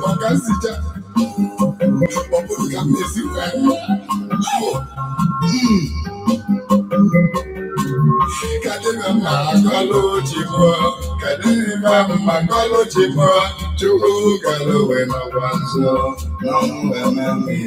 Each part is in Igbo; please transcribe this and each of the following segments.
maka nzicha ọ bụrụ ka na mma akọlụ chi kadị mma akọlụ chi mụọ chukwu galụwe n'ọgwa na ọnwụ mmiri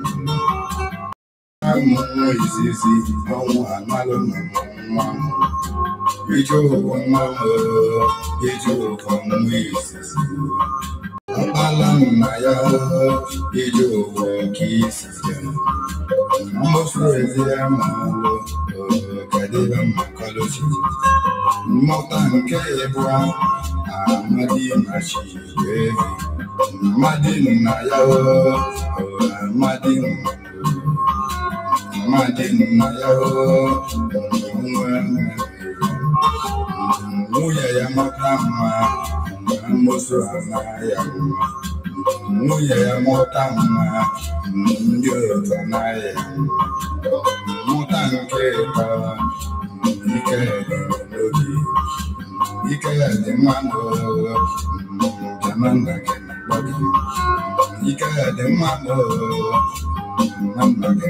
amụmụ izizi ọnwụ amalụmụ nwa m ije ụkwụ nwa m ije ụkwụ nwa izizi mkpala nna ya ije ụkwụ nke izizi mmofu ezi amalụ kadebe mmakọlụchi mmụta nke ịbụ amadi machi evi mmadụ nna ya amadi nna Thank you. ya ya dị dị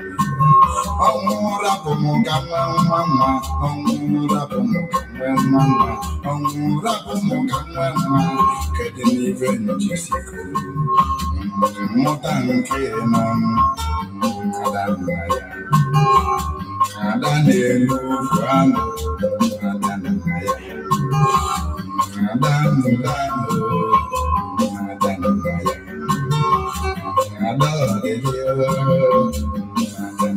ọnwụra bụ m ga nwa nwa nwa ọnwụra bụ m ga nwe nwa nwa ọnwụra bụ m ga nwe nwa kedu n'ibe njisikọ mmụta nke nọ ada nna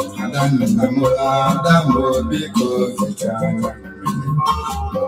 Adam, Adam, Adamo, Biko, Vitana.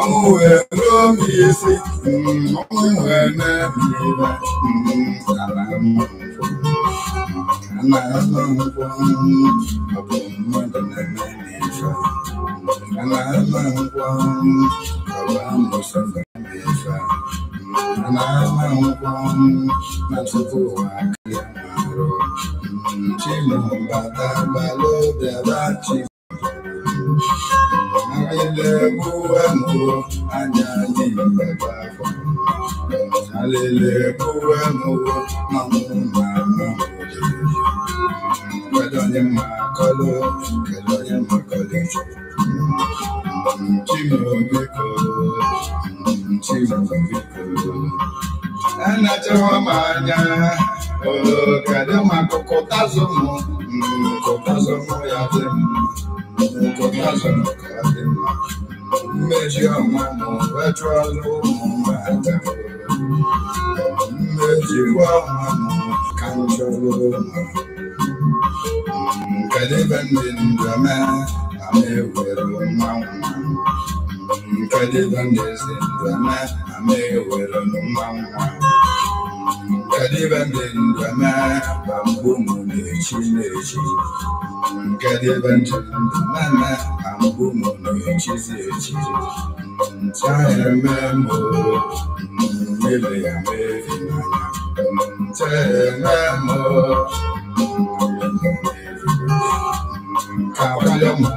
ọmụwe ruo m isi ọmụwe na-ebiba ala na-azọ nkwụ ọ bụ mmadụ na-eme n'ife a na-azọ nkwụ ọ bụ amụsọ na-eme ife a na-azọ nkwụ na tupu ụwa aka ya na-arụ chimụbata balụ bịaba chi Alelekuwemo, anyali mbebako. Alelekuwemo, mamuma mamude. Kedonye makolo, kedonye makole. Mchimo viko, mchimo viko. anachawa m anya kedu maka kụtazụ m hmm, kụtazụ m ya dị mma kụtazụ m ka mma mmeji ọma m wechụọla ụmụaka mmejikwa ọma m ka m chọrọ ụmụ hmm, kedu ebe ndị ndụ mee ma na nkwadebe mmezi ndwama amewere n'ụma nwa nkwadebe mmezi ndwama bambu mu nechi. na-echi na-echi nkwadebe ntụ ndwama bambu mụ na-echizi echi ntahịa mmemme mmele ya mevi n'anya ntahịa mmemme mmele ya mevi n'anya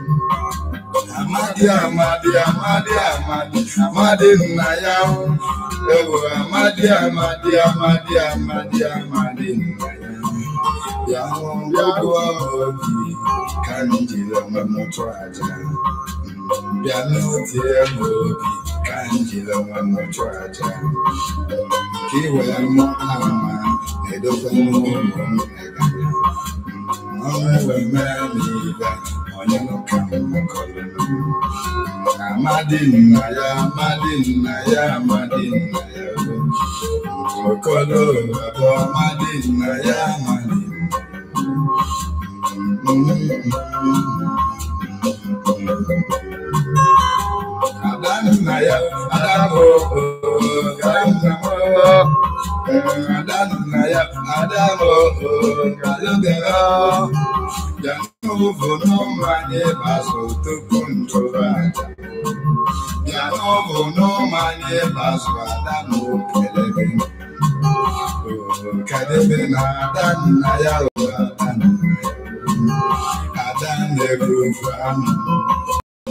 amadi amadi amadi amadi amadi nna ya ewu amadi amadi amadi amadi amadi nna ya ya ọgwụ obi ka anyị jiri onwe m chụọ aja bịa n'otie m obi ka anyị jiri onwe m chụọ aja ka ị wee mụ ama na-edokwa n'ụmụ m ọnụ eweme m ibe onye n'ụka amadi nna ya amadi nna ya amadi nna ya okolo bụ amadi nna ya amadi nna ya Adanụ na ya, adanụ adanụ na ya, adanụ alụbịara bịanụvụ n'ụmụanyị bazụ tupu ntụrụ aja bịanụvụ n'ụmụanyị bazụ adanụ kelebe kadebe adanụ na adanụ adanụ egwu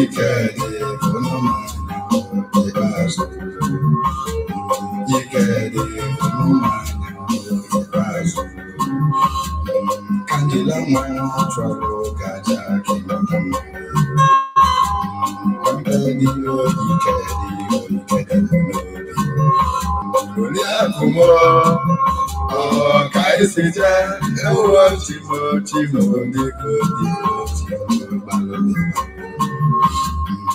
ikede onoma ibazo ikede onoma ibazo kandila mwana chwalo gaja kinonoma kambedi o ikede o ikede lórí àkùmọ ọkàìsíjẹ ẹwọ tìmọ tìmọ onígbòdìbò tìmọ balùwẹ.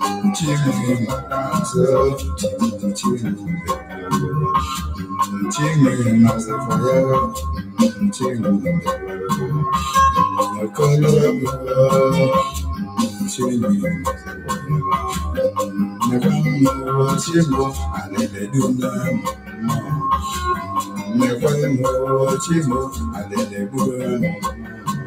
Chimney myself, chimney, chimney, chimney myself forever, chimney, the color of love, chimney myself forever. Never more chimney, I never do now. Never more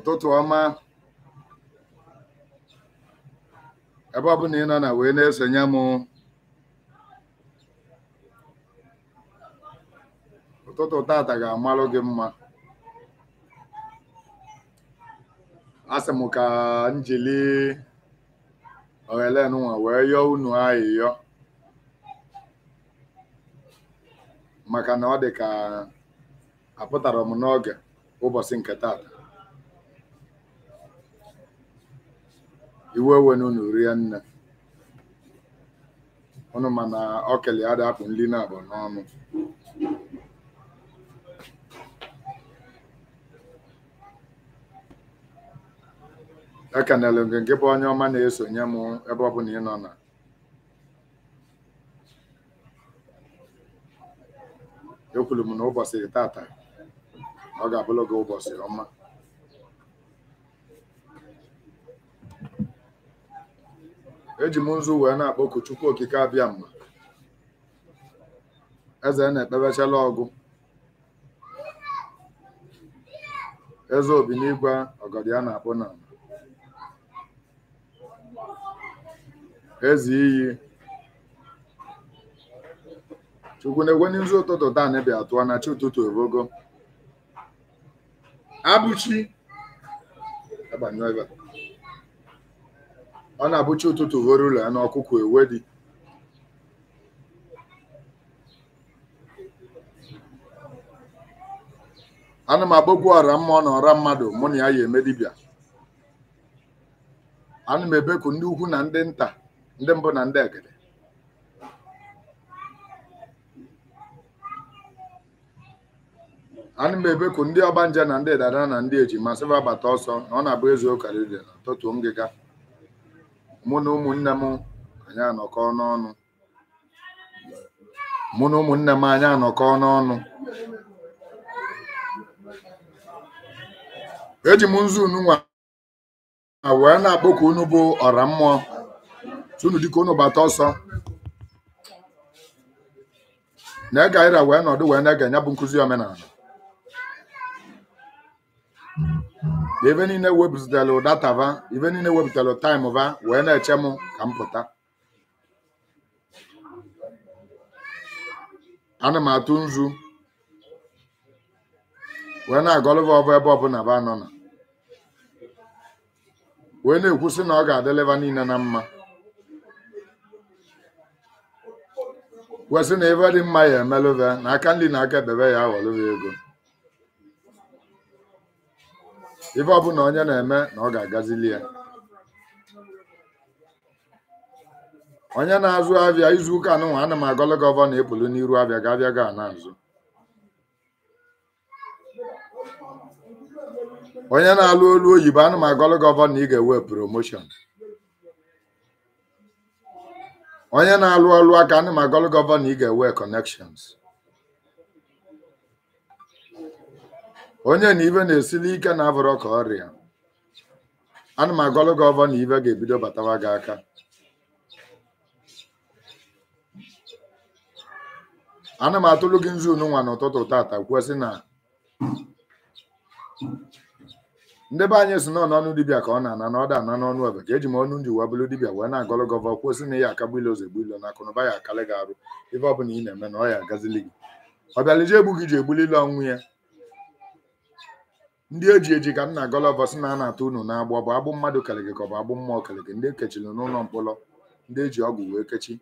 ụtụtụ ọma ebe ọ bụla ị nọ na wee na-esonye m ụtụtụ tata ga-amalụ gị mma asị m ka njili nwa wee yọọ unu ayịyọ maka na ọ dị ka apụtara m n'oge ụbọchị nke tata iwe unu rie nne unu mana ọ kele ya nri na-abụ n'ọnụ ekenelu gị nke bụ onye ọma na-esonye m ebe ọ bụla ị nọ na ekwuru m na ụbọchị tata ọ ga-abụrụ gị ụbọchị ọma eji m nzu wee na-akpọku chukwu okike abịa mma eze na-ekpebechala ọgụ eze obi n'igwe ọgọdị a na-akpụ na eze iyi chukwu na-egwe n'izu ụtụtụ taa na-ebi na chi ụtụtụ evogo abụchi ọ na-abụcha ụtụtụ ghọrọ ụlọ ya na ewe dị ana m agbogwu ọra mma ọ na ọra mmadụ mụ na ya ya eme dibịa ana m ebeku ndị ukwu na ndị nta ndị mbụ na ndị egede ana m ebeku ndị nje na ndị dada na ndị ejima sịba bata ọsọ na ọ na-abụ eziokwu karịrị na tụtụo ngịga mụ na ụmụnne m anyị anọkọ n'ọnụ mụ na ụmụnne m eji m nzu unu nwa wee na-akpọ ka unu bụ ọra mmụọ tunu dịka unu bata ọsọ na ega ira wee nọdụ wee na-ege nya bụ nkụzi omenala ebe niile wepụtara va ibe niile wepụtara taịm va wee na-eche m ka m pụta ana m atụ nzu wee na-agọlụva ọbụ ebe ọbụla ba nọ na wee na-ekwusị na ọ ga-adịleva niile na mma wesị na ebe dị mma ya emelụve na aka nri na aka ebebe ya aghọlụva ego Ife na onye na-eme na ọ ga-agazili ya onye na-azụ abịa izu ụka n'ụwa ana m agọlụ gọva na-epulu n'iru abịa ga-abịa ga na azụ onye na-alụ olu oyibo ana m agọlụ gọva na ị ga-ewe promoshon onye na-alụ ọlụ aka ana m agọlụ gọva na ị ga-ewe connections onye na ibe na-esili ike na-abụrụ ka ọrịa ana m agọlụ gị ọbọ na ibe ga-ebido batawa gị aka ana m atụlụ gị nzu nwa n'ụtụtụ tata kwuo na ndị be anyị si nọ n'ọnụ dibịa ka ọ na-ana na ọ ana n'ọnụ ọba ka eji m ọnụ nji uwe bụrụ dibịa wee na-agọlụ gị ọbọ kwuo na ya akagbu ilo ụzọ egbu ilo na akụnụba ya akalị gị arụ ife ọbụla ị na-eme na ọ ya agazili gị ọ bịalije egbu gị ji egbuli ọnwụ ya ndị eji eji ka nna Gulliver sị na a na-ata unu n'agba ọ bụ agbụ mmadụ kele ka ọ bụ agbụ mmụọ kele ndị ekechiri n'ụlọ mkpọrọ ndị eji ọgwụ wee kechi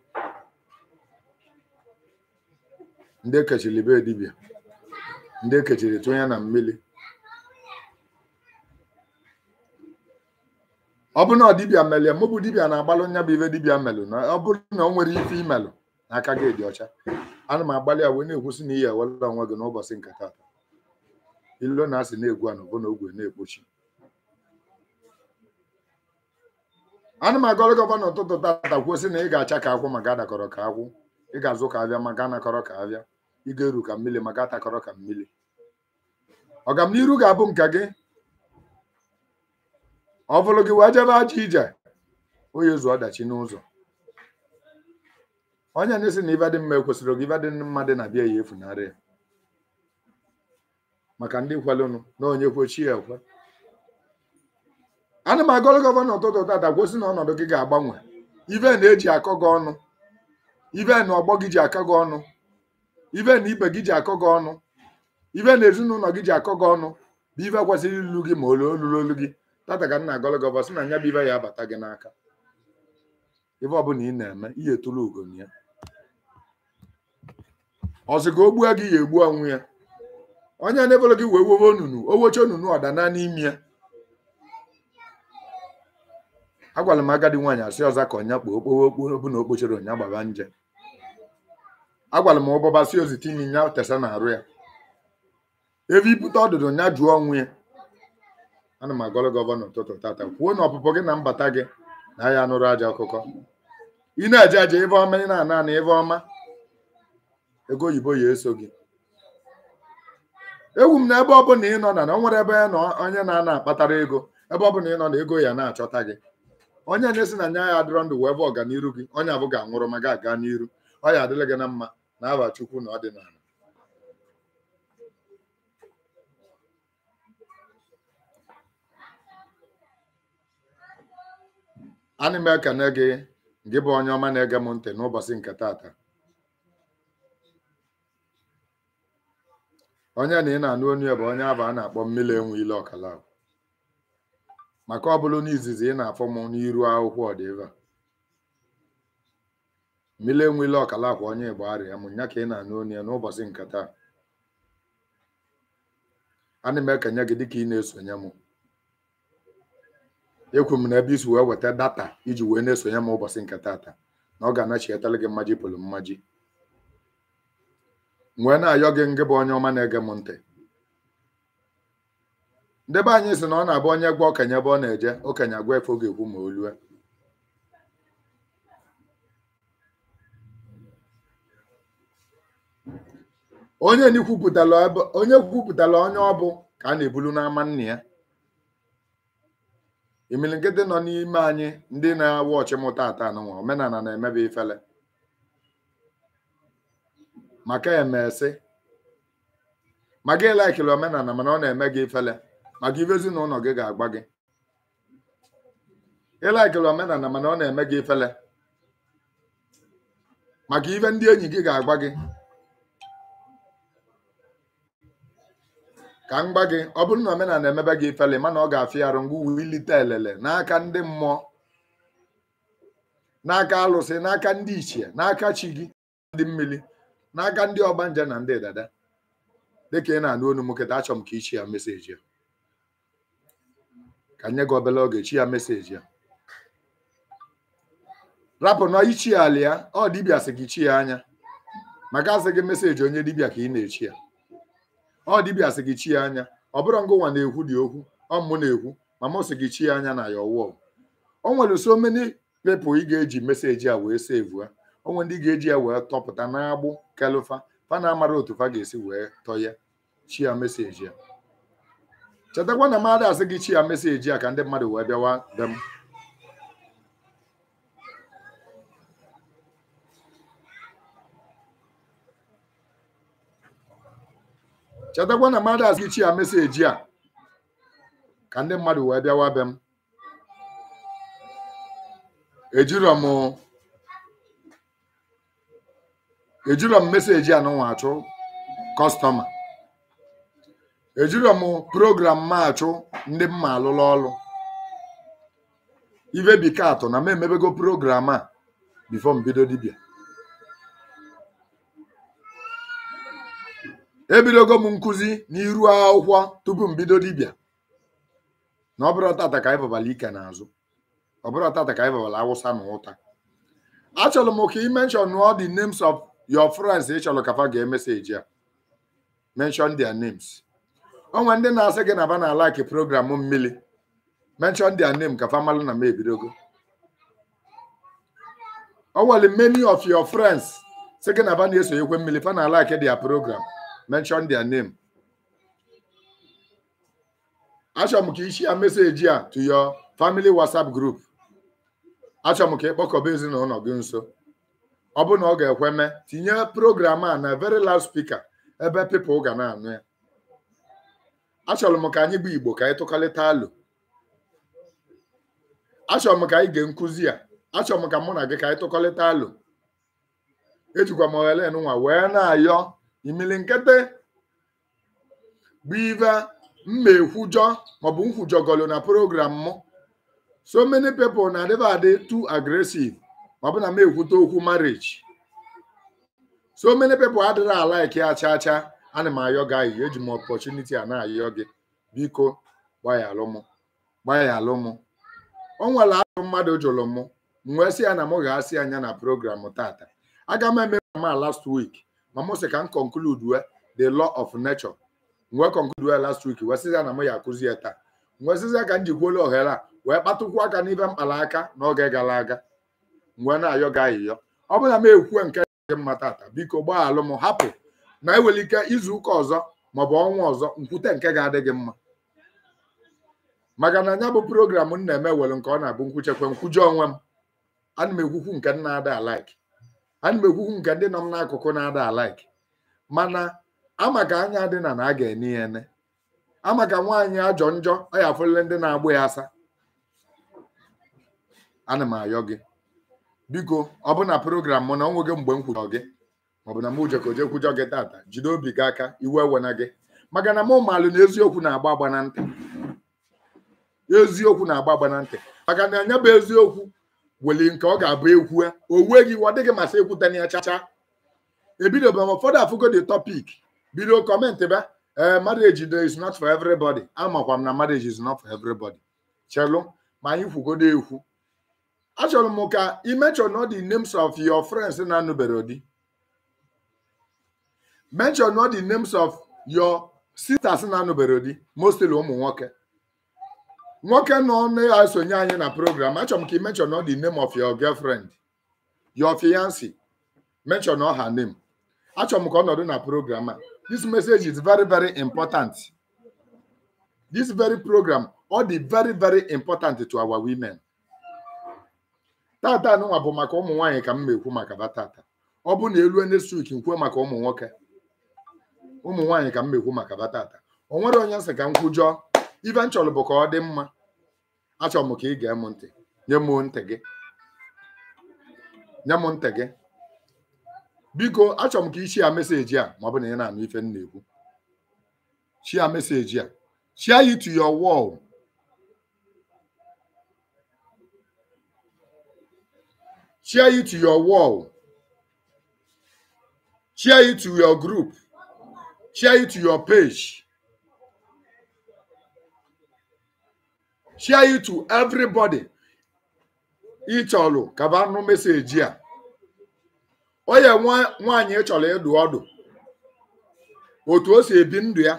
ndị ekechiri be dibịa ndị ekechiri na mmiri ọ bụrụ na ọ dibịa melie mụ bụ dibịa na-agbalụ nya bụ ife dibịa melụ na ọ bụrụ na o nwere ife imelụ na aka gị dị ọcha ana m agbalị a wee na-ekwusị na iyi ewelụla onwe gị n'ụbọchị nke taa. ilo na asị na-egwu anụ bụ na ogwe na-ekpochi ana m agọrọ gọvanọ ụtụtụ tata kwuo na ị ga-acha ka akwụ maka adakọrọ ka akwụ ị ga-azụ ka abịa maka anakọrọ ka abịa ị ga-eru ka mmiri maka atakọrọ ka mmiri ọgamniru ga-abụ nka gị ọ bụrụ gị wee jebe aja ije onye zuo ọdachi n'ụzọ onye na-esi na ibe dị mma ekwesịrị gị ibe dị mma dị na bịa ya efunarị ya maka ndị kwalụnụ na onye kwechi ya ekwe ana m agọrọ gọvanọ ụtụtụ tata gwosi na ọnọdụ gị ga-agbanwe ive na-eji akọ gị ọnụ ive na ọgbọ gị ji akọ gị ọnụ ive na ibe gị ji akọ gị ọnụ ive na ezinụlọ gị ji akọ gị ọnụ bụ ive kwesịrị ilu gị ma olu olulu olu gị tata ka nna agọrọ gọvanọ sị na nya bụ ive ya abata gị n'aka ive ọbụla ị na-eme ihe tụrụ ugo ya ọsị ka o gị ya egbu onwe ya onye na-ebolo gị wee wowe onunu owoche onunu ọdana n'imi ya agwara m agadi nwaanyị asị ọzọ ka ọnya kpoo okpowe okporo bụ na okpochere ọnya gbaba nje agwara m ụbọba si ozi tinye nya tesa na-arụ ya ebe ibute ọdụdụ nya jụọ ọnwụ ya ana m agọrọ gọvanọ ụtụtụ tata kwuo na ọpụpụ gị na mbata gị na aya nụrụ aja ọkụkọ ị na-eje aja ebe ọma ị na-ana ana ebe ọma ego oyibo ya eso gị ewu m na ebe ọ bụla ị nọ na na nwere ebe nọ onye na-ana akpatara ego ebe ọ bụla ị nọ na ego ya na-achọta gị onye na-esi na nya ya adịrọ ndụ wee bụ ọganiru gị onye abụghị anwụrụ ma ga aga n'iru ọ ya adịla gị na mma na aba chukwu na ọdịnala ana m ekene gị gị bụ onye ọma na-ege m ntị n'ụbọchị nke taata onye na ị na-anụ onu bụ onye abụ a na-akpọ mmiri enwe ile ọkala maka ọ bụrụ na izizi ị na-afọ m n'iru akwụkwọ ọdịva mmiri enwe ile ọkala akwa onye igbo arịa m nya ka ị na-anụ onu ya n'ụbọchị nkata ana m ekenye gị dịka ị na-esonye m ekwu m na ebe isi wee weta data iji wee na-esonye m ụbọchị nke taata na ọ ga-anachietara gị mmaji pụlụ mmaji nwee na-ayọ gị ngị bụ onye ọma na-ege m ntị ndebe anyị sị na ọ na-abụ onye gwa okenye ebe ọ na-eje okenye agwa efe oge ekwu ma o onye kwupụtara onye ọ bụ ka a na-ebulu n'ama nna ya nọ n'ime anyị ndị na-awụ ọchịmụ tata omenala na-emebe ifele maka emesị ma gị laikiri omenala mana ọ na-eme gị ifele maka ife ezinụlọ gị ga-agba gị ịlaikiri omenala mana ọ na-eme gị ifele maka ife ndị enyi gị ga-agba gị ka m gba gị ọ bụrụ na omenala emebe gị ifele mana ọ ga-afịarụ ngwa uwe elele n'aka ndị mmụọ n'aka alụsị n'aka ndị ichie n'aka chi gị dị mmiri n'aka ndị ọgbanje na ndị dada dịka ị na-anụ onu m achọm achọ m ka ichi ya meseji ya ka nye gị obere oge chi ya meseji ya rapụ na ichi ala ya ọ dibịa sị gị chi ya anya maka asị gị meseji onye dibịa ka ị na-echi ya ọ dibịa sị gị chi ya anya ọ bụrụ ngụnwa na-ekwu dị okwu ọ mụ na-ekwu ma mụ sị gị chi ya anya na ya ọwụọ o nwere so many people ị ga-eji meseji a wee sevu ha onwe ndị ga-eji ya wee tọpụta n'agbụ kelufa fa na-amara otu fa ga-esi wee tọ ya chia ya meseji ya chetakwa na mmadụ asị gị chi ya meseji ya ka ndị mmadụ wee bịawa be chetakwa na mmadụ asị gị chi ya meseji ya ka ndị mmadụ wee bịawa m ejirọ m ejiro m meseji anụnwa achụ kọstọma ejiro m program m achụ ndị mma alụla ọlụ ibe bekee atọ na m emebego program a bifo mbido dibia dibịa ebidogo m nkụzi n'iru akwụkwọ tupu mbido dibia na ọ bụrụ tata ka anyị ike n'azụ ọ bụrụ tata ka anyị awụsa na ụta achọrọ m ka ị menshọn all names of your friends ị chọrọ kafa gee emeseji ya mention their names onwe ndị na-asị gị na ba na like program mmiri mention their name kafa malụ na m ebidogo onwere oh, many of your friends sị gị na ba na-esonyekwe mmiri fa na like their program mention their name achọrọ m ka ichi ya meseji a to your family whatsapp group achọrọ m ka ịkpọkọba ezinụlọ gị nso ọ bụ na ọ ga-ekwe tinye program a na very loud speaker ebe people ga na-anụ ya achọrọ m ka anyị bụ igbo ka anyị tụkalịta alụ achọrọ m ka anyị gee nkụzi ya achọrọ m ka mụ na gị ka anyị tụkọlịta alụ ejikwa m oghele nwa wee na-ayọ imili nkịtị bụ mma ekwujọ maọbụ nkwujọgọlụ na program mụ so many people na adịba adị too aggressive ọ bụ na m ekwute okwu marriage so many people adịrị ala ike ya chaa chaa ana m ayọ gị ayị eji m opportunity a na-ayọ gị biko gbaghaalụ m gbaghaalụ m o nwere ahụ mmadụ jụrụ m wee sị ya na m ga-asị anya na program tata aga m eme ma last week ma m sị ka m conclude the law of nature wee conclude last week wee sị ya na m ya akụzi ya taa wee sịzi ka m jikwuola ohere a wee kpatụkwu aka n'ibe mkpara aka n'oge gara aga ngwe na-ayọ gị ọ bụrụ na m ekwuwe nke dị mma tata biko gbaghalụ m hapụ na enwere ike izu ụka ọzọ maọbụ ọnwa ọzọ nkwute nke ga-adị gị mma maka na nya bụ program m na-eme were nke ọ na-abụ nkwuchekwe nkwuje onwe m ana m ekwukwu nke m na-ada alaiki ana m ekwukwu nke ndị nọ m n'akụkụ na-ada alaiki mana ama ka anya dị na na a ga-ene ya ene ama ka nwaanyị ajọ njọ ọ ya afụlele ndị na-agbụ ya asa ana m ayọ gị biko ọ bụ na program mụ na ọ nweghị mgbe m kwujọ gị maọbụ na m ujekoje kwujọ gị tata jide obi gị aka iwe ewena gị maka na mụ maalụ na eziokwu na-agba agba na ntị eziokwu na-agba agba na ntị maka na anya bụ eziokwu weli nke ọ ga-abụ ekwu o weghị iwe ọ dịghị masị ekwutana ya chacha ebido ma ụfọdụ afụgo the topic bido kọmentị ba ee eh, marriage is not for everybody amakwa m na marriage is not for everybody chelụ ma anyị kwugodo ekwu achọrọ m ka ị mention the names of your friends na-anụbere di mention all the names of your sisters na-anụbere di mostly ụmụ nwoke nwoke nọ na-esonye anyị na program achọrọ m ka ị mention the name of your girlfriend your fiance, mention all her name achọrọ m ka ọ nọdụ na program a this message is very very important this very program all dị very very important to our women. tata nụnwa bụ maka ụmụ nwaanyị ka m na-ekwu maka ha tata ọ bụ na elu next week nkwue maka ụmụ nwoke ụmụ nwaanyị ka m na-ekwu maka ha tata o nwere onye nsị ka m kwujọọ ife m chọrọ bụ ka ọ dị mma achọrọ m ka ị gee m ntị nye m ntị gị nye m ntị gị biko achọrọ m ka ichi ya meseji a ma ọ bụ na ị na-anụ ife m na-ekwu chia meseji a chia it to your wall Cheer you to your wall. Cheer you to your group. Cheer you to your page. Cheer you to everybody. Ị chọrọ ka nụ meseji a. Onye nwaanyị e chọrọ ịdụ ọdụ. Otu o si ebi ndụ ya.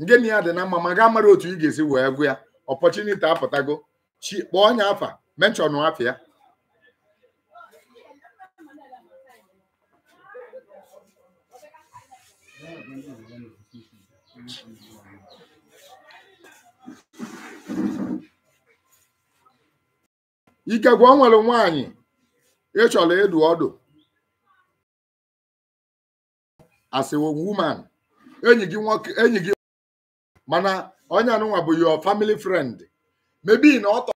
Ngịnị ya dị na mma ma ga mara otu ị ga-esi wee gụ ya. Opportunity apụtago. kpọọ onye afa menchọnụ afịa. ya. ikegwe o nwere nwaanyị ịchọrọ ịdụ ọdụ asịwo woman enyi gị nwoke enyi gị mana onye anụnwa bụ your family friend mebi na ọ tọ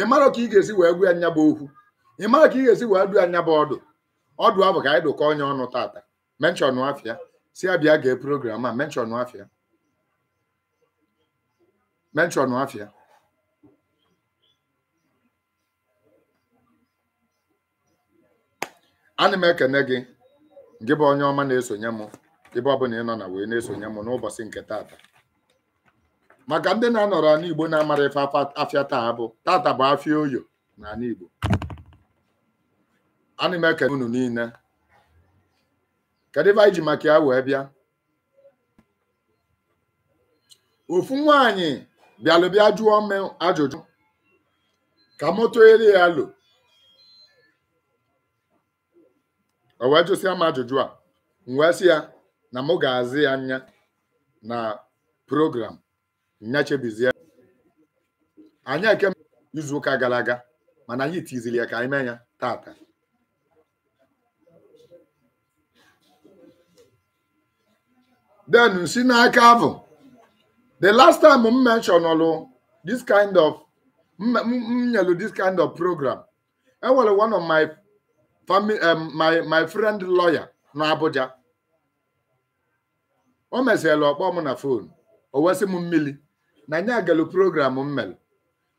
ị mara ka ị ga-esi wee gwa anya bụ okwu ị mara ka ị ga-esi wee dụ anya bụ ọdụ ọdụ ahụ ka anyị dụkọ onye ọnụ tata menchọn afịa si ya gee program a menchọn afịa menchọn afịa ana m ekene gị gị bụ onye ọma na-esonye m ebe ọbụla ị nọ na wee na-esonye m n'ụbọchị nke taata maka ndị na-anọrọ anụ Igbo na-amara ife afịa taa bụ tata bụ afịa oyo na anụ Igbo ana m ekene unu niile kedu ebe anyị ji maka ya wee bịa ofu nwaanyị bịalụ bịa jụọ m ajụjụ ka moto eri ya lo o wee jụsịa m ajụjụ a m wee sị ya na mụ ga-azị ya anya na program nyachebizie anyị eke izuụka gara aga mana anyị tiziri ya ka anyị mee ya tata den si n'aka bụ the last time m mention ọrụ this kind of m nyelu this kind of program enwere one of my family um, my my friend lawyer n'Abuja o mesịala ọkpọ mụ na fon o wesị m mmiri na nya agalu program m mere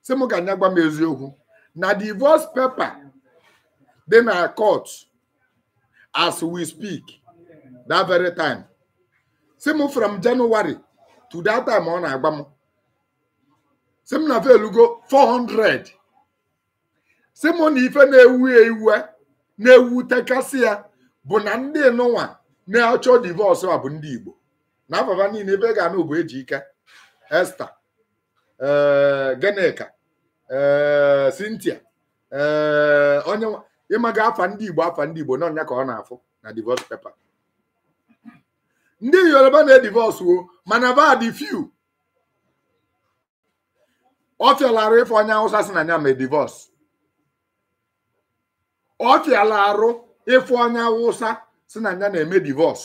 sị m ka nya m eziokwu na divorce paper dị na court as we speak that very time sị m from January to that time ọ na agba m sị m na velugo 400 sị m na ife na-ewu ewu e, na-ewutekasị ya bụ na ndị nụnwa na-achọ divọsụ a bụ ndị Igbo na afaba niile ebe e ga-anụ bụ ike Esther eh, Genika eh, Cynthia eh, onye ịmaga afa ndị Igbo afa ndị Igbo n'ọnya ka ọ na-afụ na divọs pepa ndị Yoruba na-edivọsụ o mana bad few ọ fịalara ife onye Hausa si na ya ma e divọsụ ọ fịala arụ ịfụ onye awụsa si na ya na-eme divọs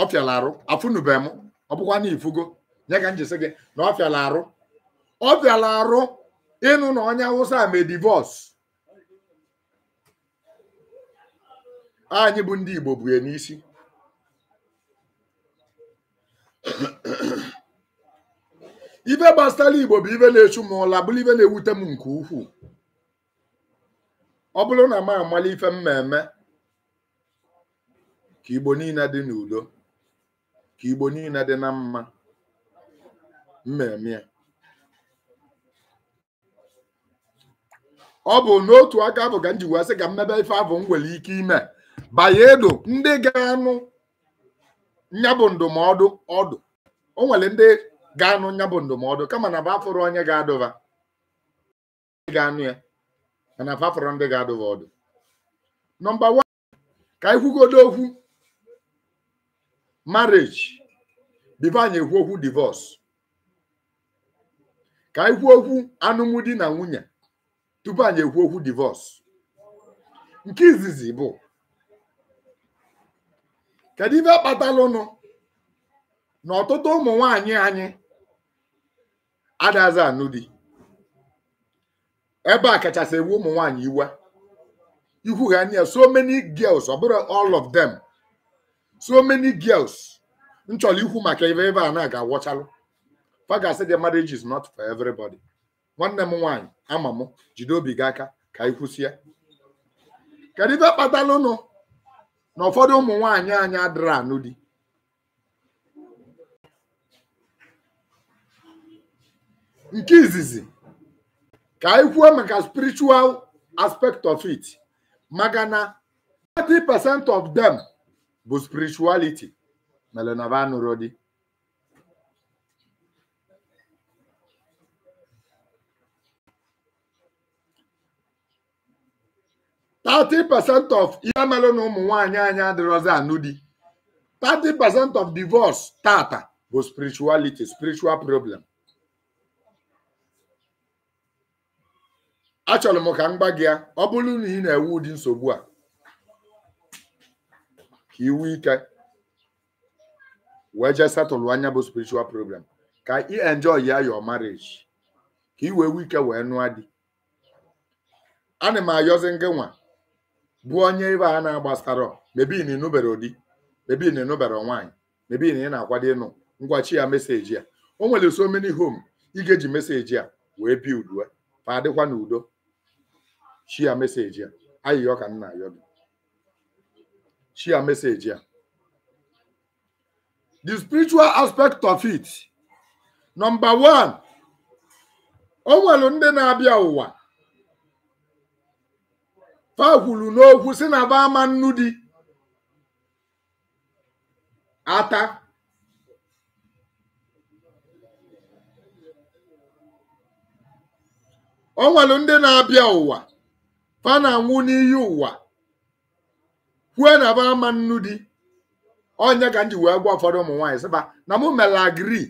ọ fịala arụ afụnube m ọ bụkwa na ifugo nye ka njisi gị na ọ fịala arụ ọ fịala arụ ịnụ na onye awụsa mee divọs anyị bụ ndị igbo bụ ya n'isi ife gbasara igbo bụ ibe na-echu m ụla bụrụ ibe na-ewute m nke ukwuu ọ bụrụ na m amala ife mmemme ka Igbo niile dị n'udo ka Igbo niile dị na mma mmemme ọ bụ n'otu aka bụ ka m ji sị ka mmebe ife abụ m nwere ike ime bayedo ndị ga-anụ nyabụ ndụmọdụ ọdụ o nwere ndị ga-anụ nyabụ ndụmọdụ kama na bụ onye ga-adụba ga-anụ ya na afa fọrọ ndị ga-adụghị ọdụ nọmba 1. ka anyị kwugodo okwu marriage bifo anyị ekwu okwu divorce ka anyị okwu okwu alụmdi na nwunye tupu anyị ekwu okwu divorce nke izizi bụ kedu ife kpatalụnụ na ọtụtụ ụmụ nwanyị anyị adazi anụ di ebe a kachasị ewu ụmụ nwaanyị iwe ihu ha anya so many girls ọ all of them so many girls m chọrọ maka ebe ebe a na-aga awọchalụ fagasị the marriage is not for everybody nwanne m nwanyị ama m jide obi gị aka ka ị kwụsịa kedu ife kpatalụnụ na ụfọdụ ụmụ nwaanyị anyị adịrị anụ di nke izizi ka anyị kwuo maka spiritual aspect of it maka na 30% of them bụ spirituality mere na ba nụrụ di thirty percent of ihe mere na ụmụ nwaanyị anyị adịrọzi anụ di 30% of divorce tata bụ spirituality spiritual problem achọrọ m ka m gba gị ya ọ bụrụ na ị na-ewu ụdị nsogbu a ka iwu ike wee jee setụlụ anya bụ spiritual program ka ị enjoy ya your marriage ka i wee ike wee nụọ di ana m ayozi ngị nwa bụ onye ebe a na-agbasara mebi na ịnụbere ụdị mebi na ịnụbere nwaanyị mebi na ị na-akwado ịnụ ngwachi ya meseji ya o nwere so many home ị ga-eji meseji a wee bi udue ma adịkwa n'udo shia meseji a ayịyọ ka nna ayọ gị shia meseji a the spiritual aspect of it Nọmba one o nwere ndị na-abịa ụwa fa kwuru n'okwu si na ba ama nnu di ata o nwere ndị na-abịa ụwa fa na-anwụ n'iyi ụwa kwue na ba ama nnu di onye ka nji wee gwa ụfọdụ ụmụ nwaanyị sịba na mụ mere agiri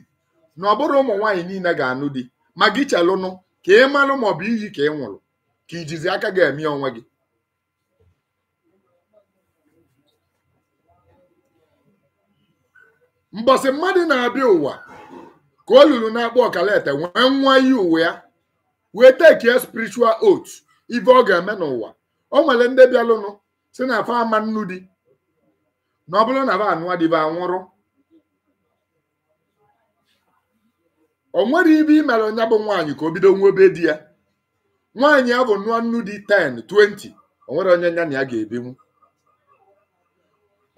na ọ bụrụ ụmụ nwaanyị niile ga-anụ di ma gị chelụnụ ka ị malụ ma ọ bụ iyi ka ị nwụrụ ka ijizi aka ga-eme onwe gị mbọsị mmadụ na-abịa ụwa ka o na-akpọ ete wee nwa iyi uwe ya wee tekie spirichual oath ibe ọ ga-eme n'ụwa o nwere ndị bịalụnụ si na afọ ama nnu di na ọ bụrụ na ba anụwa dibe anwụrụ o nwere ibe i mere onye bụ nwaanyị ka o bido nwebe di ya nwaanyị ahụ bụ nụọ nnu di 10 20 o nwere onye nya na ya ga-ebinwu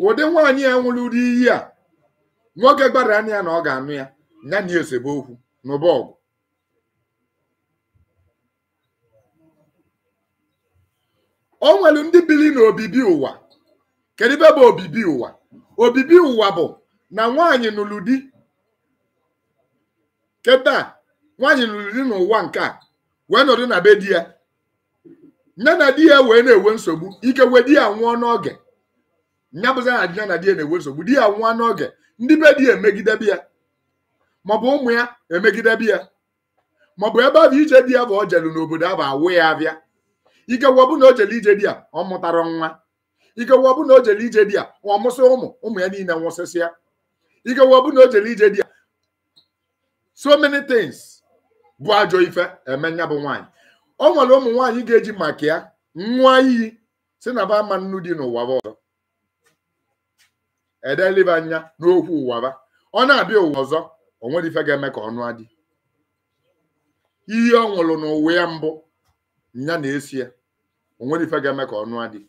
ụdị nwaanyị ya nwụrụ ụdị iyi a nwoke gbara anya ya na ọ ga-anụ ya nya na esebe okwu n'ụba ọgụ o nwere ndị biri na obibi ụwa kedu ebe bụ obibi ụwa obibi ụwa bụ na nwanyị nụrụ di keta nwanyị nụrụ di n'ụwa nke a wee nọdụ na be di ya nne na di ya wee na-enwe nsogbu ike wee di ya nwụọ n'oge nya bụzi na di ya na di ya na-enwe nsogbu di ya nwụọ n'oge ndị be di ya emegidebe ya maọbụ ụmụ ya emegidebe ya maọbụ ebe ahụ ije di ya bụ o jelu n'obodo ahụ awụ ya abịa ikewu ọbụ na o jele ije di ya ọ mụtara nwa ikewu na o jele ije di a, ọ mụsị ụmụ ụmụ ya niile nwụsịsịa ikewu na o jele ije di ya so many things bụ ajọ ife eme nya bụ nwaanyị o nwere ụmụ nwaanyị ga-eji maka ya nwa iyi si na ba ama nnu dị n'ụwa ọzọ edelibe anya n'okwu ba. ọ na-abịa ụwa ọzọ o nwere ife ga-eme ka ọnụ adị ihe ọ nwụrụ n'ụwa ya mbụ nya na-esi ya onwere ife ga-eme ka ọnụ adị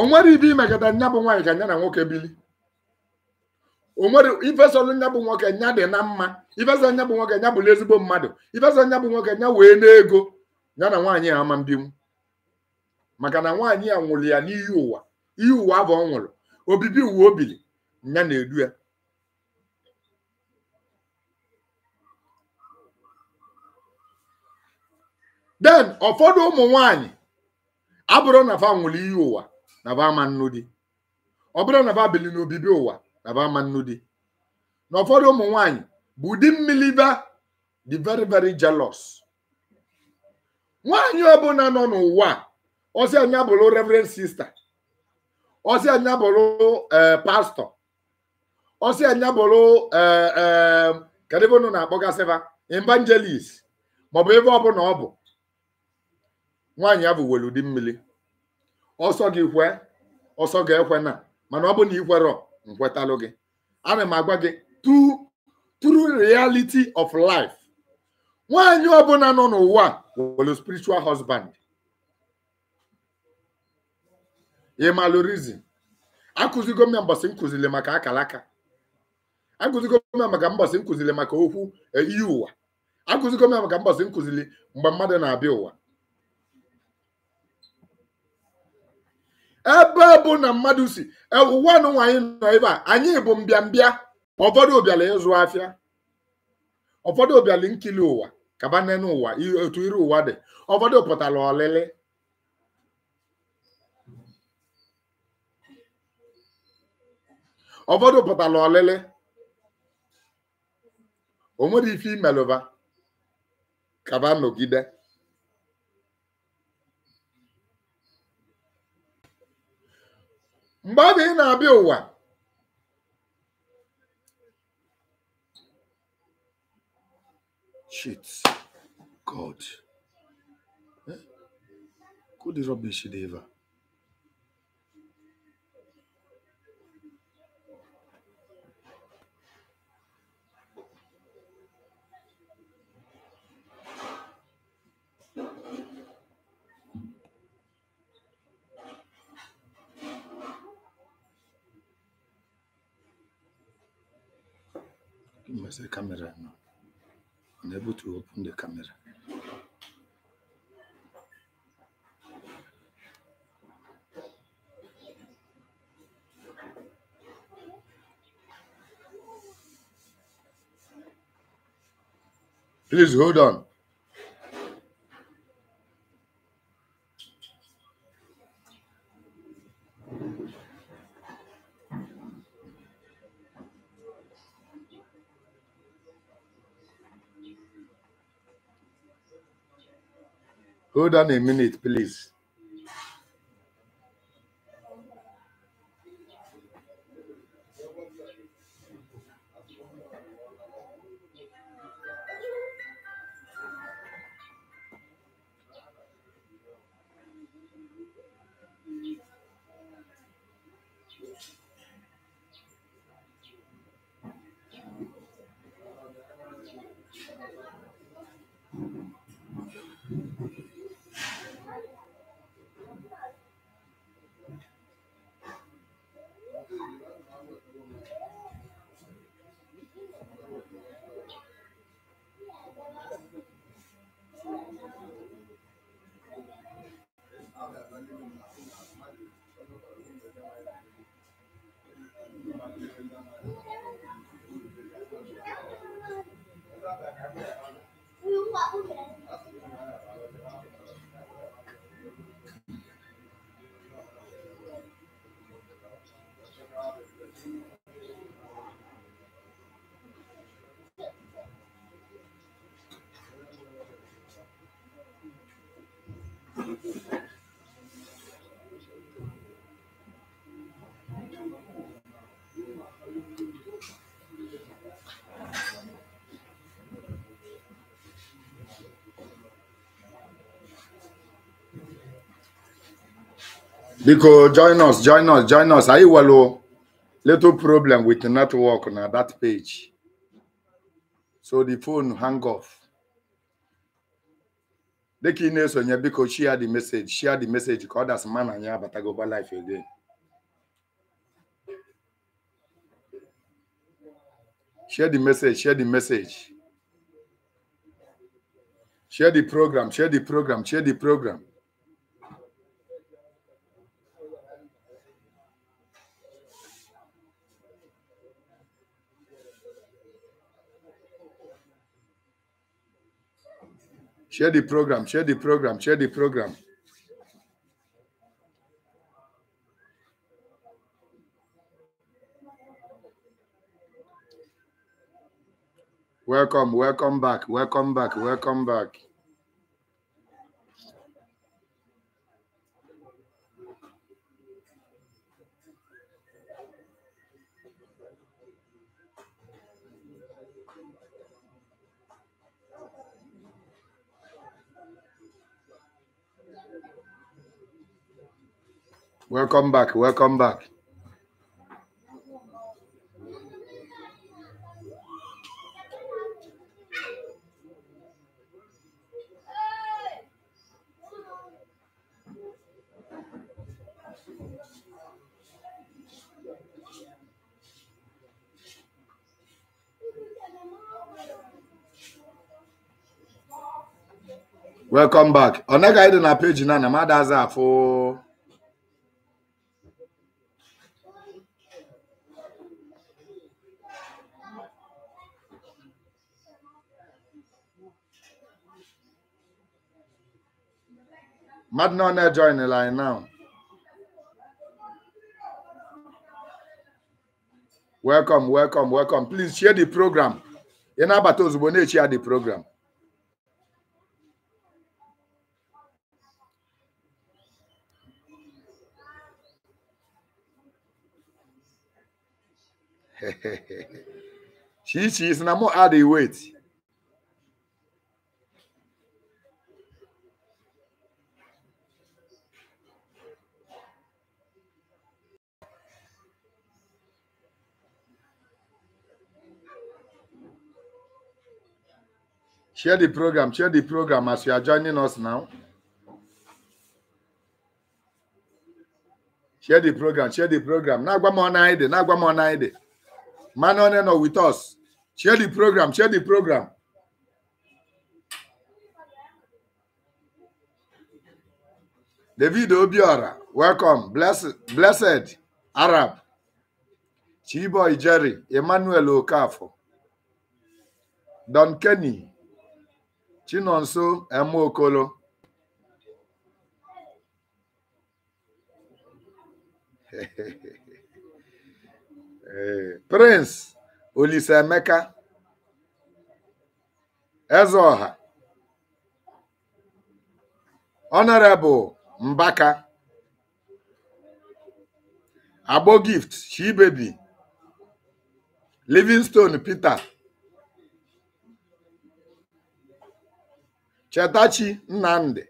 onwere ibe imegada nya bụ nwaanyị ka nya na nwoke bili onwere ifesolu nya bụ nwoke nya dị na mma ifeso nya bụ nwoke nya bụrụ ezigbo mmadụ ifeso nya bụ nwoke nya wee n'ego ya na nwaanyị a ama mbinwu maka na nwaanyị a nwụrụ ya n'ihi ụwa ihe ụwa abụ ọ nwụrụ obibi uwe o biri nya na-edu ya den ụfọdụ ụmụ nwanyị abụrụ na fa nwụrụ iyi ụwa na fa ama nnu dị ọ bụrụ na fa bili n'obibi ụwa na fa ama nnu dị na ụfọdụ ụmụ nwanyị bụ ụdị mmiri ba dị very very jealous nwanyị ọbụla nọ n'ụwa ọsị anya bụrụ reverend sister ọsị anya bụrụ e, pastor ọsị anya bụrụ e, e, kedụ ebe unu na-akpọgasịba evangelist maọbụ ebe ọbụla ọ bụ nwaanyị ya bụ were ụdị mmiri ọsọ gị kwe ọsọ gị ekwe na mana ọ bụ na ikwerọ nkwetalụ gị ana m agwa gị true reality of life nwaanyị ọbụla nọ n'ụwa were spiritual husband ịmalụ akụzigo m ya mbọsị nkụziri maka akalaka akụzigo m ya maka mbọsị maka okwu e, iyi ụwa akụzigo m maka mbọsị mgbe mmadụ na-abịa ụwa ebe bụ na mmadụ si ewuwanụ nwaanyị nọ ebe a anyị bụ mbịambịa ụfọdụ ụbịala ịzụ afịa ụfọdụ ụbịala nkili ụwa kabanene ụwa otu iri ụwa dị ụfọdụ pụtara ọlịlị ụfọdụ pụtara ọlịlị o nwere ife imelụba kaba nọgide mgbe ọ bụ ị na-abịa ụwa shit god eh? Who the rubbish ever? minus the camera now. Unable to open the camera. Please hold on. Hold on a minute, please. 动物园。Biko, join us, join us, join us. Are you well? Little problem with the network on that page. So the phone hang off. The key news Biko, share the message, share the message, because that's man and yeah, but I go back life again. Share the message, share the message. Share the program, share the program, share the program. Share the program, share the program, share the program. Welcome, welcome back, welcome back, welcome back. Welcome back. Welcome back. Welcome back. Ọ naghị adị na peji na na mmadụ aza afụ mmadụ na ọ na-ejoinela anyị now welcome welcome welcome please share the program ị na-abata ozugbo na the program she she is na mo add the weight Share the program. Share the program as you are joining us now. Share the program. Share the program. Na Na mo Nagwamonaide. Nagwamonaide. Man on no with us. Share the program. Share the program. David Obiora, welcome. Blessed, blessed Arab. Chiboy Jerry, Emmanuel Okafo. Don Kenny, Chinonso Emeokolo Prince Olise Olisaemeka Ezeọha Honorable Mbaka Agbogift Chibebi Livingstone Peter Chetachi Nnamdi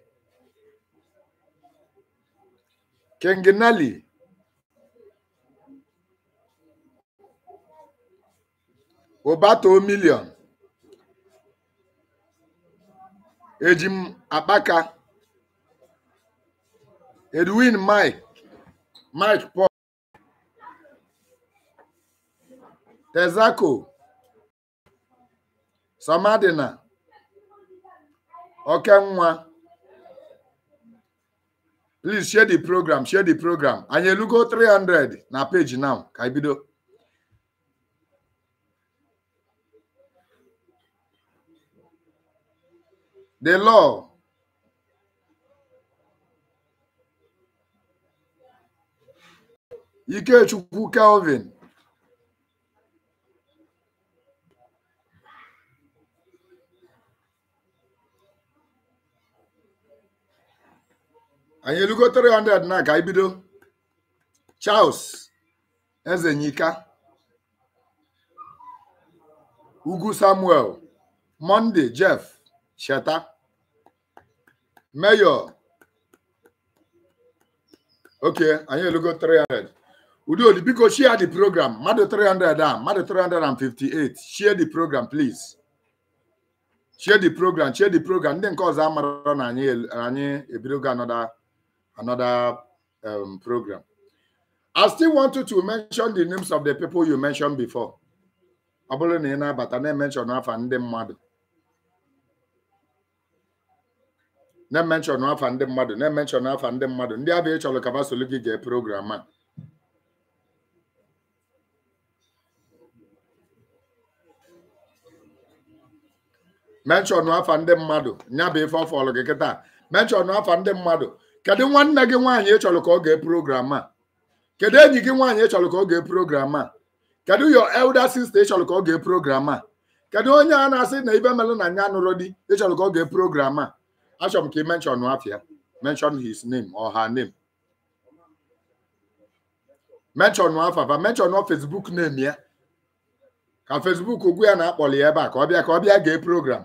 King Neli Obato Million Ejim Akpaka Edwin Mike Mike Paul Tezako Samadina Okay, nwa. Please share the program, share the program. And you look 300 na page now. Kaibido. The law Ikechukwu Calvin anyị elugo 300 na ka ibido bido Charles Ezenyika Ugwu Samuel Monday Jeff Sheta Mayor ok anyị elugo 300 Udoli biko share the program mmadụ 300 a mmadụ 358 share the program please share the program share the program ndị nke ọzọ amara na anyị ebidogo anọda another um, program. I still wanted to mention the names of the people you mentioned before. ọ bụrụ na ị na-abata na-emenshọn afa ndị mmadụ na-emenshọn afa ndị mmadụ na-emenshọn afa ndị mmadụ ndị abịa ịchọrọ ka basolu gị gee program a menshọn afa ndị mmadụ nya bụ ife ọ fọrọ gị kịta menshọn afa ndị mmadụ kedu nwanne gị nwaanyị ị chọrọ ka ọ gee program a kedu enyi gị nwaanyị ị chọrọ ka ọ gee program a kedu your elder sister ị chọrọ ka ọ gee program a kedu onye a na-asị na ibe melụ na nya nụrụ di ị chọrọ ka ọ gee program a achọrọ m ka ị mention afia mention his name or her name afa afafa mention Facebook name ya ka Facebook ugwu ya na-akpọli ya ebe a ka ọ bịa ka ọ bịa gee program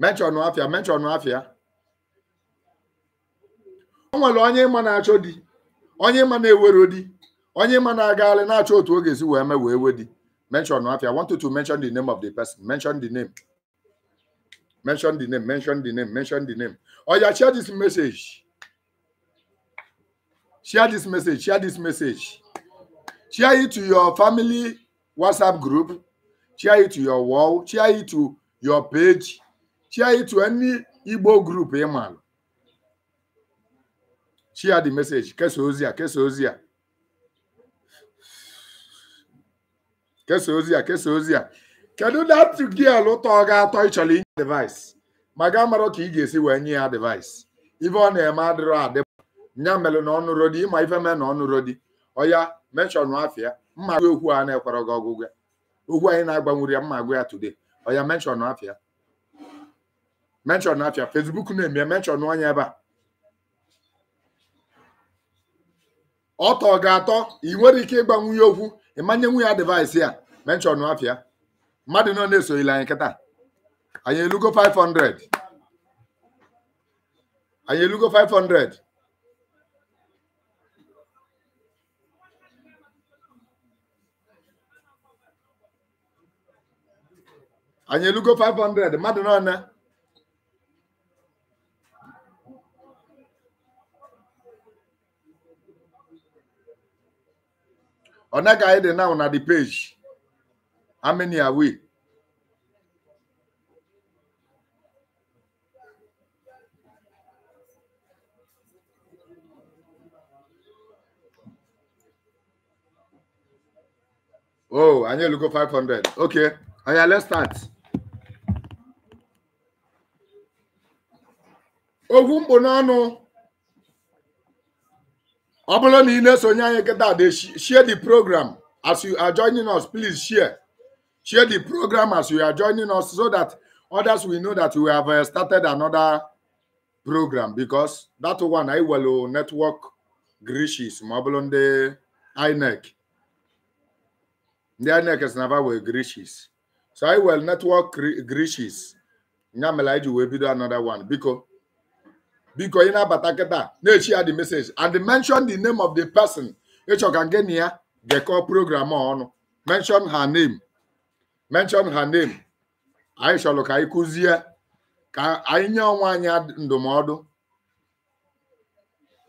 mechọn afịa mechọn afịa o nwere onye ịma na-achọ di onye ịma na-ewero di onye ịma na-agagharị na-achọ otu o ga-esi wee mee wee we di mention no afia. I want you to mention the name of the person. Mention the name. Mention the name. Mention the name. Mention the name. Oh yeah, share this message. Share this message. Share this message. Share it to your family WhatsApp group. Share it to your wall. Share it to your page. share it Igbo group ị maalụ share the kesa ozi a kesa ozi a kesa ozi a kesa ozi a kedu dat gil ụtọ ọ ga-atọ ịchọrọ inye device ma ga marọ ka ị ga-esi wee nye ya device eh, ife ọ na-eme adịrọ adị nya melụ na ọnụ rodi ịma ife mee na ọnụ rodi ọya mechọnụ afịa mma okwu a na-ekwere gị ọgwụgwọ okwu anyị na-agbanwere ya mma agwụ ya today ọya mechọnụ afia menshọn apịa Facebook na-eme menshọn onye ebe a ọtọ ga-atọ ị nwere ike ịgba nwunye okwu ịmanye nwunye ya devaịsị a menshọn apịa mmadụ nọ na-esoghile anyị kịta anyị elugo 500 anyị elugo 500 anyị elugo 500 mmadụ nọ na Onaga Ede now on the page. How many are we? Oh, I need to go 500. Okay. Oh, yeah, let's start. Ogun Bonano ọ bụrụ na ị na-esonye anyị kịta de share the program as you are joining us please share share the program as you are joining us so that others will know that we have uh, started another program because that one I welu uh, network grishis ma ọ bụrụ ndị INEC ndị INEC si na wee grishis so I welu network grishis nya mere anyị ji wee bido another one biko biko ị na-abata kịta na-echi ya the message and mention the name of the person ịchọ ka gị na ya gekọọ program ọnụ mention her name mention her name anyị chọrọ ka anyị kụzie ka anyị nye onwe anyị ndụmọdụ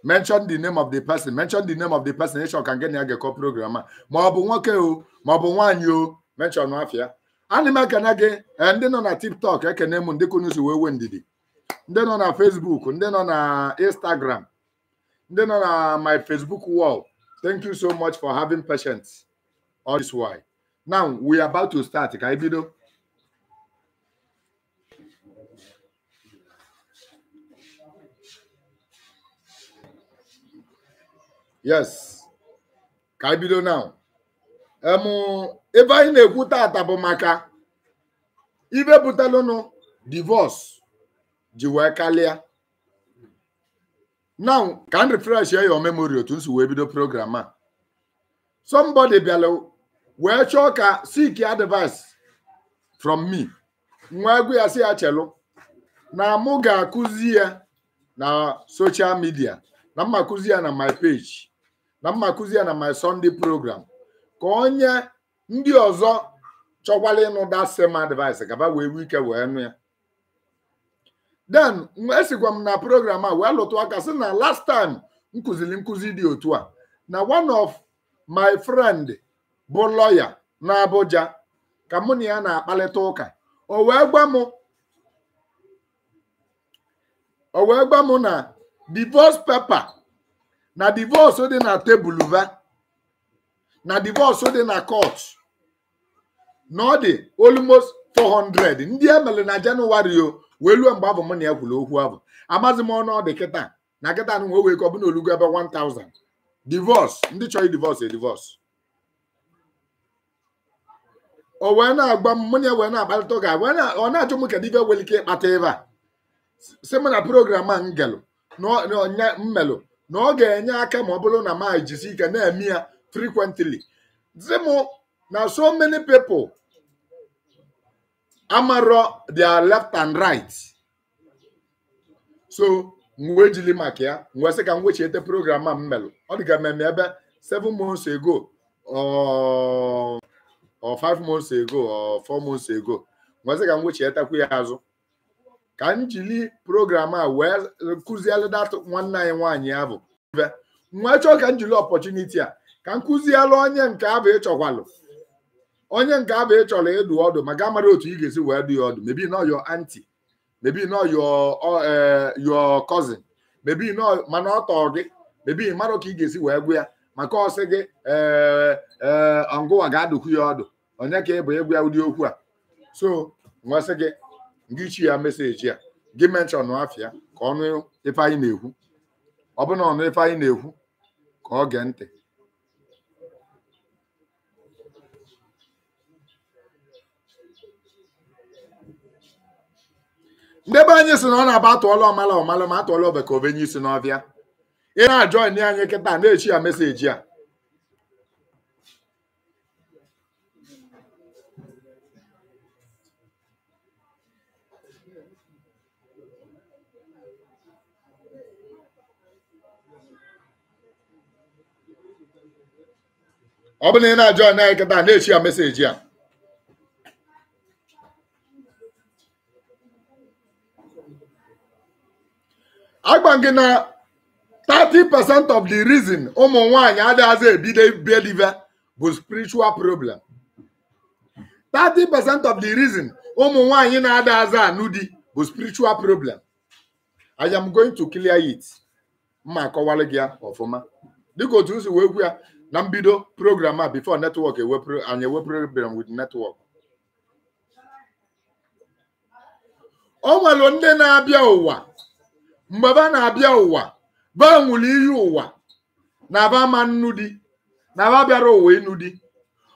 mention the name of the person mention the name of the person ịchọ ka gị ya gekọọ program a ma ọ nwoke o ma ọ bụ nwaanyị o mention afịa ana m ekene gị eh, ndị nọ na tiktok ekene m ndị kunu wee wee ndidi ndị nọ na Facebook ndị nọ na Instagram ndị nọ na my Facebook wall thank you so much for having patience all this while now we are about to start ka anyị bido yes ka anyị bido now ebe anyị na-ekwu tata bụ maka ibe butalụnụ divorce ji wee kalịa now ka m refresh your memory otu nsi wee bido program a somebody bịala wee chọọ ka seek advice from me nwa egwu ya si ya chelu na mụ ga-akụzi ya na social media na mma kụzi ya na my page na mma kụzi ya na my Sunday program ka onye ndị ọzọ chọkwala ịnụ that same advice gaba wee wike wee nụ ya then esikwa m na program a wee lụtụ aka sị na last time m kụziri nkụzi dị otu a na one of my friend bụ lọya na Abuja ka mụ na ya na-akparịta ụka o wee gwa m o wee na divorce paper na divorce dị na tebụl va na divorce dị na court na ọ dị 400 ndị e na Jenụwarị o wee luo mgbe abụ m na ya kwuru okwu abụ amazi m ọnụ ọ dị kịta na kịta na nwe na ọbụna olugo ebe 1000 divos ndị chọrọ divorce e divos. o wee na-agba m mụnye wee na-akparịta ụka ọ na achọ m kedu ibe nwere ike ịkpata ebe a si m na program a m na mmelụ na ọ ga-enye aka ma ọ bụrụ na m jisi ike na-eme ya frequently si m na so many people amarọ their left and right so m wee maka ya m sị ka m wechiete program a m melụ ọ dịga mmemme ebe 7 months ago um, or five months ago or 4 months ago m sị ka m wechietekwu ya azụ ka m jiri program a wee kụzielụ dat nwanne anyị nwaanyị ya bụ nwa chọọ ka m jiri a ka m kụzielụ onye nke abụ ịchọkwalụ onye nke abụ ị chọrọ ịdụ ọdụ gaa amara otu ị ga-esi wee dụ ya ọdụ mebi nọ yọ anti mebi nọ yọ yo cousin mebi nọ mana ọ tọọ gị mebi mara ka ị ga-esi wee gwụ ya maka ọsị gị ee e, ọngụwa ga-adụkwu ya ọdụ onye ka ị bụ ịgwa ya ụdị okwu a so nwesị gị gị chi ya meseji a gị menshọn afịa ka ọnụ ife anyị na-ekwu ọ bụ na ọnụ ife anyị na-ekwu ka ọ gee ntị ndị be anyị si na ọ na-aba atụọla ọmala ọmala ma atụọla ọba ka obenye isi n'ọbịa ị na-ajọ ndị anyị kịta na-echi ya meseji a ọ bụ na ị na-ajọ anyị kịta na-echi ya meseji a agba gị na 30% of the reason ụmụ nwanyị adịghịzi ebido believe bụ spiritual problem 30% of the reason ụmụ nwanyị na-adịghịzi anụ di bụ spiritual problem I am going to clear it mma akọwara gị ya ọfụma dịka otu si wee kwu ya na mbido program a before network anyị program with network o nwere ndị na-abịa ụwa mgbe ba na-abịa ụwa ba nwụrụ ihe ụwa na ba ma nnu di na ba bịara ụwa ịnụ di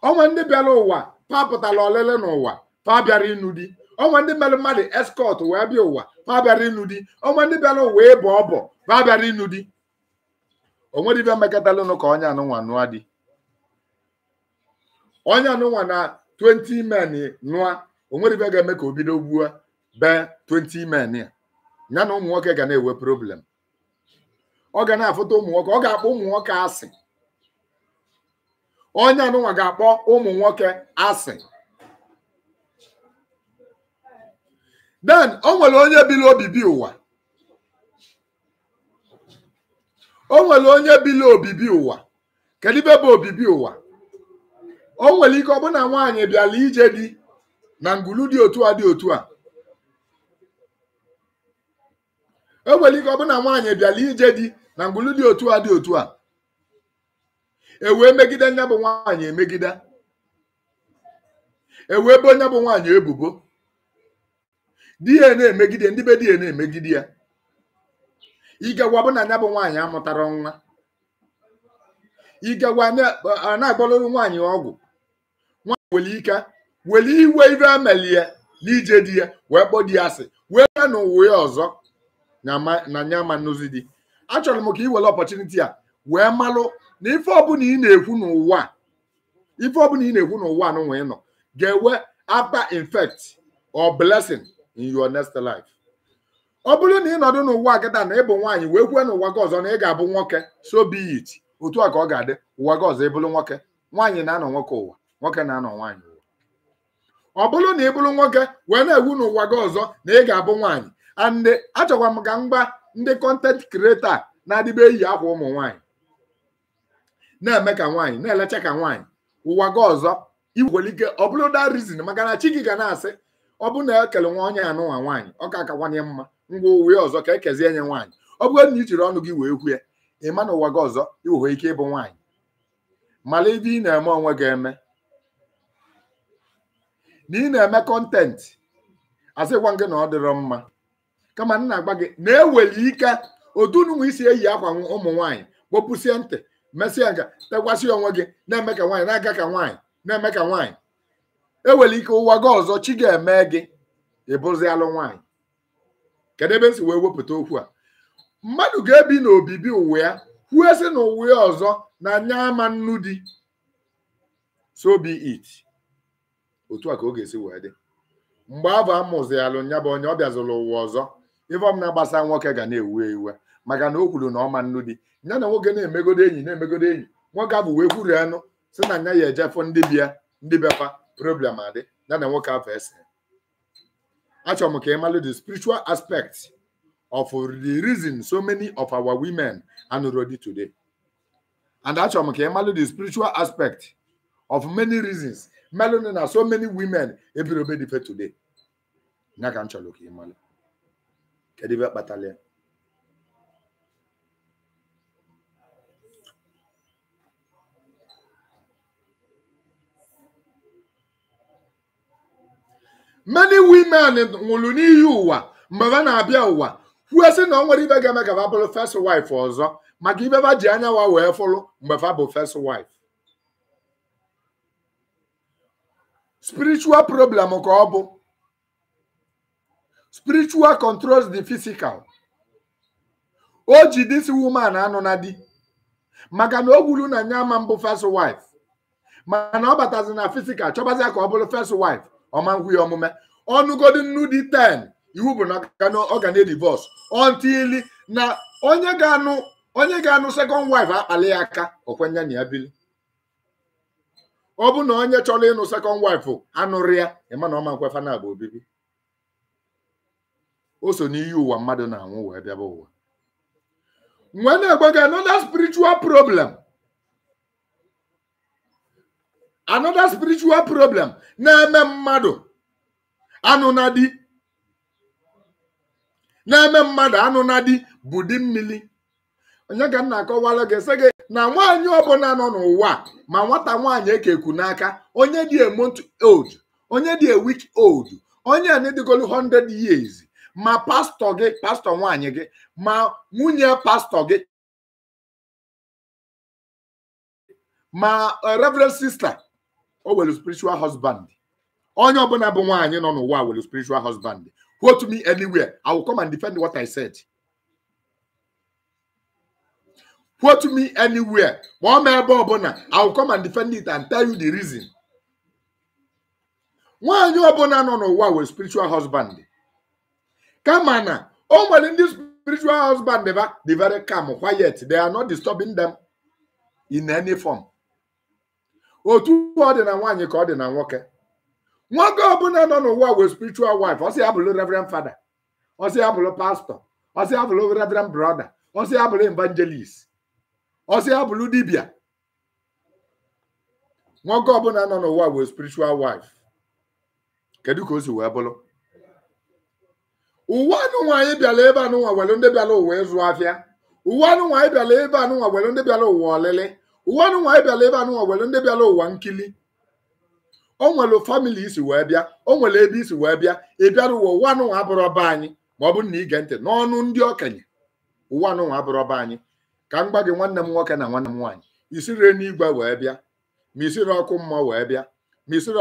ọnwa ndị bịara ụwa pa pụtara olele n'ụwa pa bịara ịnụ di ọnwa ndị mere mmadụ eskọt wee bịa ụwa pa bịara ịnụ di ọnwa ndị bịara ụwa ịbụ ọbọ pa bịara ịnụ di onwere ibe mekatalụnụ ka onye anụnwa nụa di onye anụnwa na 20 men nụa onwere ibe ga-eme ka o bido gbuo bee 20 men ya ya na ụmụ nwoke ga na-enwe problem ọ ga na-afụta ụmụ nwoke ọ ga-akpọ ụmụ nwoke asị onye anụnwa ga-akpọ ụmụ nwoke asị den o nwere onye bili obibi ụwa o nwere onye bili obibi ụwa kedu ibe bụ obibi ụwa o nwere ike ọ bụ na nwaanyị bịara ije dị na ngulu dị otu a dị otu a enwere ike ọ bụ na nwaanyị bịala ije di na ngwụlụ dị otu a dị otu a e wee megide nya bụ nwaanyị emegide e wee ebe onye bụ nwaanyị ebubo di ya na-emegide ndị be di ya na-emegide ya igagwa bụ na nya bụ nwaanyị amụtara nwa igagwa na-agbalụrụ nwaanyị ọgwụ nwaanyị nwere ike were iwe amali ya na ije di ya wee kpọ di ya asị wee bịa n'ụwa ya ọzọ na nya ma nnuzi dị achọrọ m ka ị were ọpọchuniti a wee malụ na ife ọbụla ị na-ekwu n'ụwa ife ọbụla ị na-ekwu n'ụwa n'ụwa ị nọ ga enwe after infect or blessing in your next life ọ bụrụ na ị nọdụ n'ụwa agada na ịbụ nwaanyị wee kwue n'ụwa gị ọzọ na ị ga-abụ nwoke so be it otu a ka ọ ga-adị ụwa gị ọzọ ịbụrụ nwoke nwaanyị na-anọ nwoke ụwa nwoke na-anọ nwaanyị ụwa ọ bụrụ na ị bụrụ nwoke wee na-ewu n'ụwa gị ọzọ na ị ga-abụ nwaanyị and achọkwa m ka mgba ndị kọntent kreta na-adịbe eyi akwa ụmụ nwaanyị na-eme ka nwaanyị na-elecha ka nwaanyị ụwa gị ọzọ igwelike ọ bụrụ da rizin maka na chi gị ga na-asị ọ na ekele nwa onye anụnwa nwaanyị ọ ka akawanye mma ngwa uwe ọzọ ka ekezie nye nwaanyị ọ bụrụ na i ọnụ gị wee kwue ị ma na ụwa gị ọzọ iwewe ike ịbụ nwaanyị mala ebe ị na-eme onwe gị eme na ị na-eme kọntentị asịkwa gị na ọ dịrọ mma kama nna agba gị na-eweli ike odununwa isi eyi akwa ụmụ nwaanyị kpopụsie ntị mesịa nka tekwasị onwe gị na-eme ka nwaanyị na-aga ka nwaanyị na-eme ka nwaanyị eweli ike ụwa gị ọzọ chi ga-eme gị ịbụzi alụ nwaanyị kedu ebe m si wee wepụta okwu a mmadụ ga-ebi n'obibi ụwa ya kwuo sị na ụwa ya ọzọ na anya ama nnu di so be it otu a ka ọ ga-esi wee dị mgbe afọ amụzialụ ya bụ onye ọ bịazụlụ ụwa ọzọ ife na-agbasa nwoke ga na-ewu ewu maka na o kwuru na ọma nnu dị ya na nwoke na-emegodo enyi na-emegodo enyi nwoke abụ wee kwuru anụ si na nya ya ejefọ ndị bịa ndị bịafa problem adị ya na nwoke afọ ese achọrọ m ka ị malụ the spiritual aspect of the reason so many of our women are not ready today and achọrọ m ka ị malụ the spiritual aspect of many reasons melụnụ na so many women ebirobe dife today nya ka m chọrọ ka ị malụ kedu ebe kpatara ya many women nwụrụ n'ihi ụwa mgbe ha na-abịa ụwa kwuo sị na ọ nwere ibe ga-eme ka bụrụ first wife ọzọ maka ibe ha ji anya wa wee fụrụ mgbe fa bụ first wife spiritual problem ka ọ bụ spiritual controls the physical o ji this woman anụ na di maka na o gwuru na nya ama mbụ first wife mana ọ batazi na physical chọbazia ka ọ bụrụ first wife ọma nkwughị omume ọnụgodi nnu dị 10 iwu bụ na ọ ga na-edivorce until na onye ga-anụ onye ga-anụ second wife akpali ya aka okwenye na ya bili ọ bụ na onye chọrọ ịnụ second wife anụrụ ya ịma na ọma nkwefa na bụ obibi o so n'iyi ụwa mmadụ na-anwụ wee bịaba ụwa nwee na-egbe another spiritual problem another spiritual problem na-eme mmadụ anụ na eme mmadụ anụ bụ di mmiri onye ka m na-akọwara gị sị gị na nwaanyị ọbụla nọ n'ụwa ma nwata nwaanyị ekeku n'aka onye dị a month old onye dị a week old onye a na-edịgolu 100 years ma pastor, gị pastọ nwaanyị gị ma nwunye pastọ gị ma uh, reverend sister o nwere spiritual husband onye ọbụla bụ nwaanyị nọ n'ụwa nwere spiritual husband quote me anywhere i will come and defend what i said quote me anywhere kpọọ m ebe ọbụla i will come and defend it and tell you the reason nwaanyị ọbụla nọ n'ụwa nwere spiritual husband kama na o nwere ndị spiritual husband they are very calm quiet they are not disturbing them in any form Oh, two otu ọ dị na nwaanyị ka ọ dị na I don't know what wee spiritual wife I say I believe reverend father I say I believe pastor I say I believe reverend brother I say I believe evangelist I say ọsị abụlụ dibia don't know what wee spiritual wife Can you go to wee bụrụ uwe anụnwa anyị bịara ebe anụnwa were ndị bịara ụwa ịzụ afịa uwe anụnwa anyị bịara ebe anụnwa were ndị bịara ụwa ọlịlị uwe anụnwa anyị bịara ebe anụnwa were ndị bịara ụwa nkili o nwere famili isi wee bịa o nwere ebe isi wee bịa ị bịara ụwa ụwa anụnwa abụrụ ọba anyị ma ọ bụ na ige ntị n'ọnụ ndị okenye ụwa anụnwa abụrụ ọba anyị ka m gwa gị nwanne m nwoke na nwanne m nwanyị isiri n'igwe wee bịa ma isiri ọkụ wee bịa ma isiri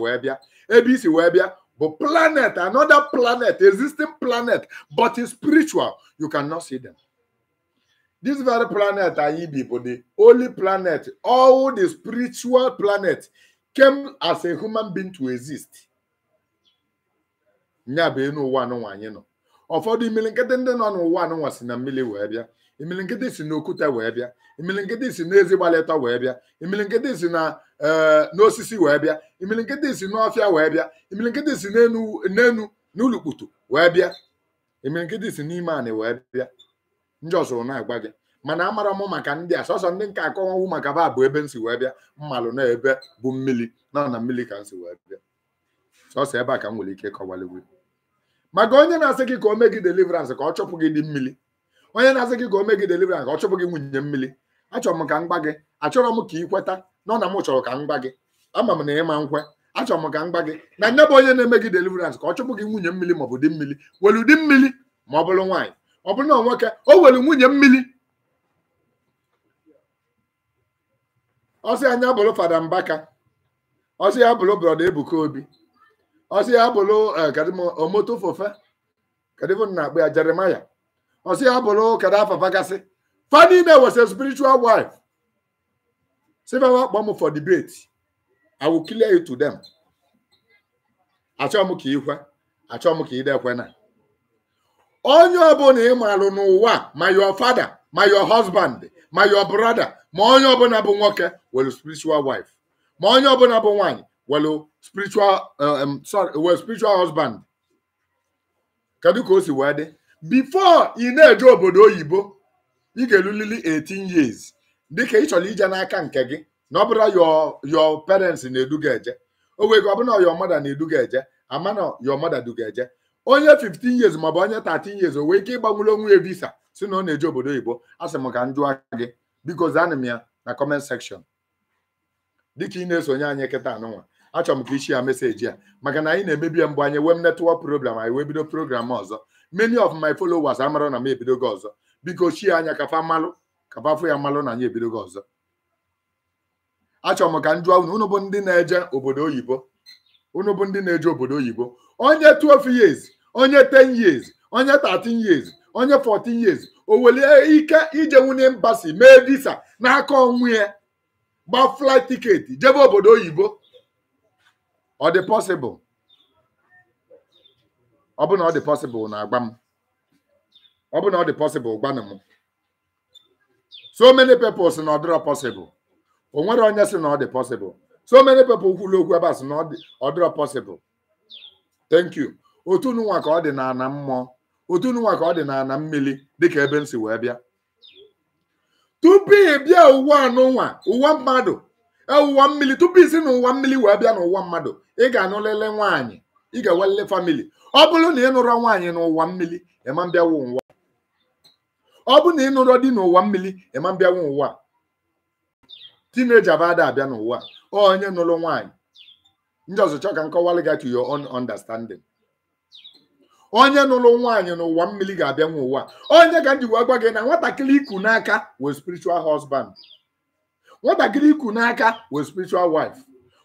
wee bịa ebe isi wee bịa But planet, another planet, existing planet, but it's spiritual. You cannot see them. This very planet, Aibibo, the only planet, all the spiritual planet came as a human being to exist. nya bụ enu ụwa anụnwa anyị nọ ụfọdụ imili nkịtị ndị nọ n'ụwa anụnwa si na mmiri wee bịa imili nkịtị si n'okwute wee bịa imili nkịtị si n'ezi wee bịa imili nkịtị si na Eh, n'osisi wee bịa imilikiti si n'ọfịa wee bịa imilikiti si n'enu n'ulukputu wee bịa imilikiti si n'ime anị wee bịa ndị ọzụrụ na-agwa gị mana amara m maka ndị a sọsọ ndị nke akọwawu maka ba bụ ebe m si wee bịa mmalụ na ebe bụ mmili na na mmili ka m si wee bịa sọsọ ebe a ka m nwere ike kọwalịgwu maka onye na-asị gị ka o mee gị deliverance ka ọ chụpụ gị dị mmili onye na-asị gị ka o mee gị deliverance ka ọ chụpụ gị nwunye mmiri achọrọ m ka m gba gị achọrọ m ka ị kweta na ọ na m chọrọ ka m gba gị ama m na ịma nkwe achọrọ m ka m gba gị na nne bụ onye na-eme gị deliverance ka ọ chụpụ gị nwunye mmiri maọbụ dị bụ mmiri welu di mmiri ma ọ bụrụ nwaanyị ọ bụrụ na ọ nwoke o welu nwunye mmiri ọsị anya bụrụ fada mbaka ọsị ya bụrụ brọda ebuka obi ọsị ya bụrụ eh, omotofofe kadịvo na-akpụ ya jeremaya ọsị ya bụrụ kada afafagasị fa niile was spiritual wife several akpọ m for debate i will clear you to them achọ m ka ịkwe achọ m ka ịdekwe na onye ọbụla ị marụ n'ụwa your father my your husband my your brother ma onye ọbụla bụ nwoke welu spiritual wife ma onye ọbụla bụ nwanyị welu spiritual uh, um, sorry welu spiritual husband kedu ka o si wee dị before ị na-eje obodo oyibo ị ga-elulili 18 years dịka ị chọrọ ije n'aka nke gị na ọ bụrụ yọ yo parents na-eduga eje o gị ọ bụrụ na mother na-eduga eje ama na yo mother duga eje onye 15 years maọbụ onye 13 years o ike ịgbanwere onwe ya visa si na ọ na-eje obodo oyibo a sị m ka m jụọ gị biko zaanị m ya na comment section dịka ị na-esonye anyị kịta anụnwa achọrọ m ka ichi ya meseji ya maka na anyị na-emebi ya mgbe anyị wee m netwọk program anyị wee bido program ọzọ many of my followers amara na m ebido gị ọzọ biko chie anya ka fa mmalụ kaba afọ ya mmalụ na anyị ga ọzọ achọrọ m ka m unu unu bụ ndị na-eje obodo oyibo unu bụ ndị na-eje obodo oyibo onye 12 years onye 10 years onye 13 years onye 14 years o welie ike ije nwunye mbasi mee visa n'aka onwe ya gba flight tiketi jebe obodo oyibo ọ dị possible ọ bụ na ọ dị possible na agba m ọ bụ na ọ dị possible gwanụ m so many people si na ọ dịrọ possible o nwere onye si na ọ dị possible so many people kwuru okwu ebe a si na ọ dị ọ dịrọ possible thank you otu nwa ka ọ dị na ana mmụọ otu nwa ka ọ dị na ana mmiri dịka ebe m si wee bịa tupu ị bịa ụwa n'ụwa ụwa mmadụ e, ụwa mmiri tupu isi na ụwa mmiri wee bịa n'ụwa mmadụ ị ga-anụlele nwaanyị ị ga-ewelele famili ọ bụrụ na ị nụrọ nwaanyị n'ụwa mmiri ịma mbịawu nwa ọ bụ na ịnụrọ dị n'ụwa mmiri ịma mbịanwe ụwa tineja abada abịa n'ụwa onye nụrụ nwaanyị ndị ọzọchọ ka nkọwalị gị to your own understanding onye nụrụ nwaanyị n'ụwa mmiri ga-abịanwe ụwa onye ka njikwa gwa gị na nwatakịrị iku n'aka wee spiritual husband nwatakịrị iku n'aka wee spiritual wife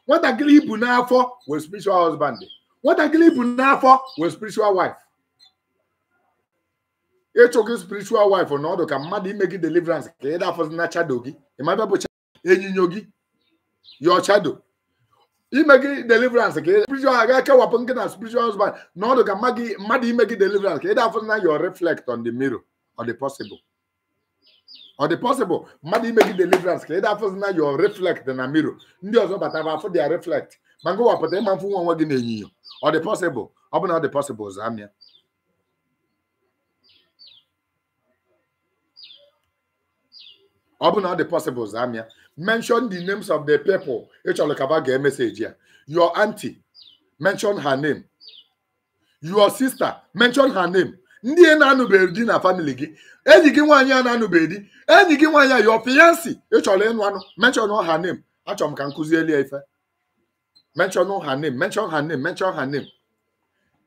nwatakịrị ibu n'afọ wee spiritual husband nwatakịrị ibu n'afọ wee spiritual wife ịchụ gị spiritual wife na ọdụ ka mmadụ ime gị deliverance ka ị dafọzi chado gị ịmabịa bụ enyinyo gị yọ chado ime gị deliverance ka spiritual aga kewapụ gị na spiritual husband na ọdụ ka mmadụ ime gị deliverance ka ị dafọzi na your reflect on the mirror ọ dị possible ọ dị possible mmadụ ime gị deliverance ka ị dafọzi na your reflect na mirror ndị ọzọ bata batara afọ dia reflect ma ngị wapụta ịma mfụ nwa onwe gị na enyinyo ọ dị possible ọ bụ na ọ dị possible zamia ọ bụ na ọ dị possible zam ya mention the names of the people ị ka ya your auntie mention her name your sister mention her name ndị na-anụbeghị di na family gị enyi gị nwaanyị a na-anụbeghị di enyi gị nwaanyị a your fiancé ị ịnụ anụ mention her name achọrọ ka m kụzieli ya ife mention her name mention her name mention ha name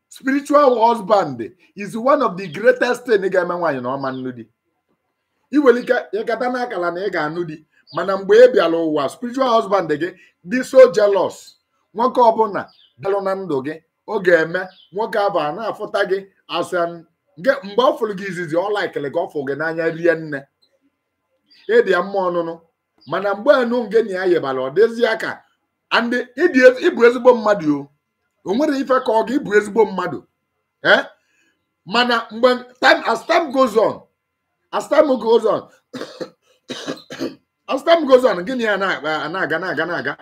spiritual husband is one of the greatest thing ga-eme nwaanyị na ọma nnu di iwelike ịgata n'akala na ị ga-anụ di mana mgbe ị e bịara ụwa spiritual husband gị dị so jealous nwoke ọbụla bịarụ na ndụ gị ọ ga-eme nwoke abụ a na-afụta gị asa mgbe ọ fụrụ gị izizi ọ laikịrị gị ọ gị n'anya rie nne ịdị ya mma ọnụnụ mana mgbe enu nge na ya yibara ọ dịzie ka ịbụ ezigbo mmadụ o nwere ife ka ọ ga ịbụ ezigbo mmadụ ee eh? mana mgbe time as time goes on as time goes on as time goes on gịnị ya na-aga na-aga na-aga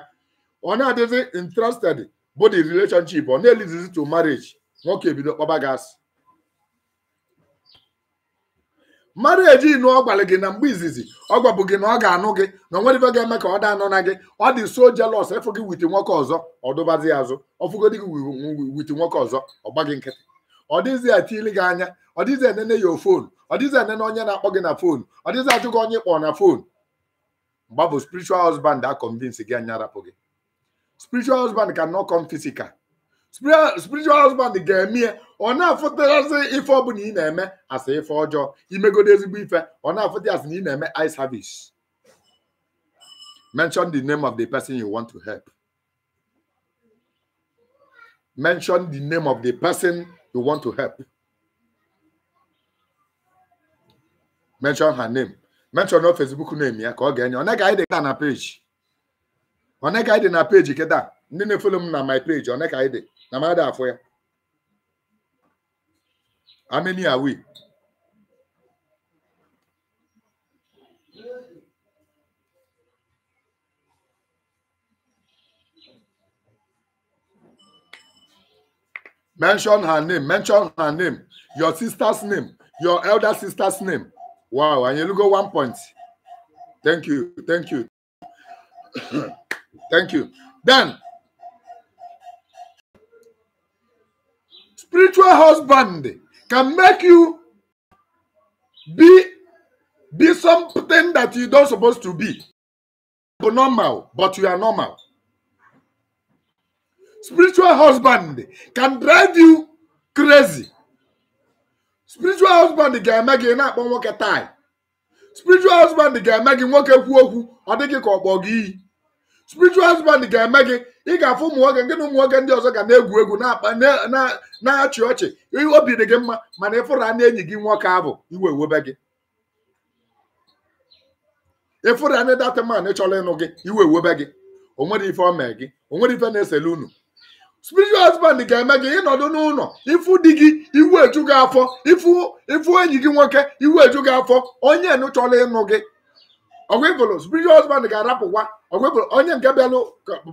ọ na-adịzi interested bụ the relationship ọ na-elizizi to marriage nwoke ebido kpọba gị asị marriage inu ọ gị na mgbe izizi ọ gwabụ gị na ọ ga-anụ gị na onwere ife ga-eme ka ọ dị anụ na gị ọ dị so jealous efu gị witi nwoke ọzọ ọ dụbazi ya azụ ọfụgodi gị witi nwoke ọzọ ọ gị nkịtị ọ dịghịzi etili gị anya ọ dịghịzi enene ya fon. ọ dịghịzi ene na onye na-akpọ gị na foonu ọ dịghịzi ajụ gị onye kpọọ na foonu mgba bụ spiritual husband a convince gị anya arapụ gị spiritual husband cannot come physical spiritual husband ga-eme ọ na-afụtarazi ife ọbụla ị na-eme asị ife ọjọọ imegodo ezigbo ife ọ na-afụta asị na ị na-eme I service mention the name of the person you want to help mention the name of the person you want to help mention her name mention no facebook name ya ka ọ ga-enye ọ naghị na page ọ naghị na page kịta ndị na-efolo m na my page ọ naghị anyị dị na mmadụ afọ ya ameni awi mention her name mention her name your sister's name your elder sister's name wow and you look at one point thank you thank you thank you then spiritual husband can make you be be something that you don't supposed to be normal but you are normal spiritual husband can drive you crazy spiritual husband ga-eme gị na-akpọ nwoke tai spiritual husband ga-eme gị nwoke kwuo okwu ọ dịghị ka kpọọ gị iyi spiritual husband ga-eme gị ị ga-afụ ụmụ nwoke nke na ụmụ ndị ọzọ ga na-egwu egwu na-achị ọchị obi dị gị mma mana ịfụra na enyi gị nwoke abụ iwe ewebe gị man ịnụ gị iwe ewebe gị o mee ife na-esele spiritual husband ga-eme gị ịnọdụ n'ụlọ ifu di gị iwu eju gị afọ ifu enyi gị nwoke iwu eju gị afọ onye nụchọla ịnụ gị ọgwịbụlụ spiritual husband ga-arapụkwa ọgwịbụlụ onye nke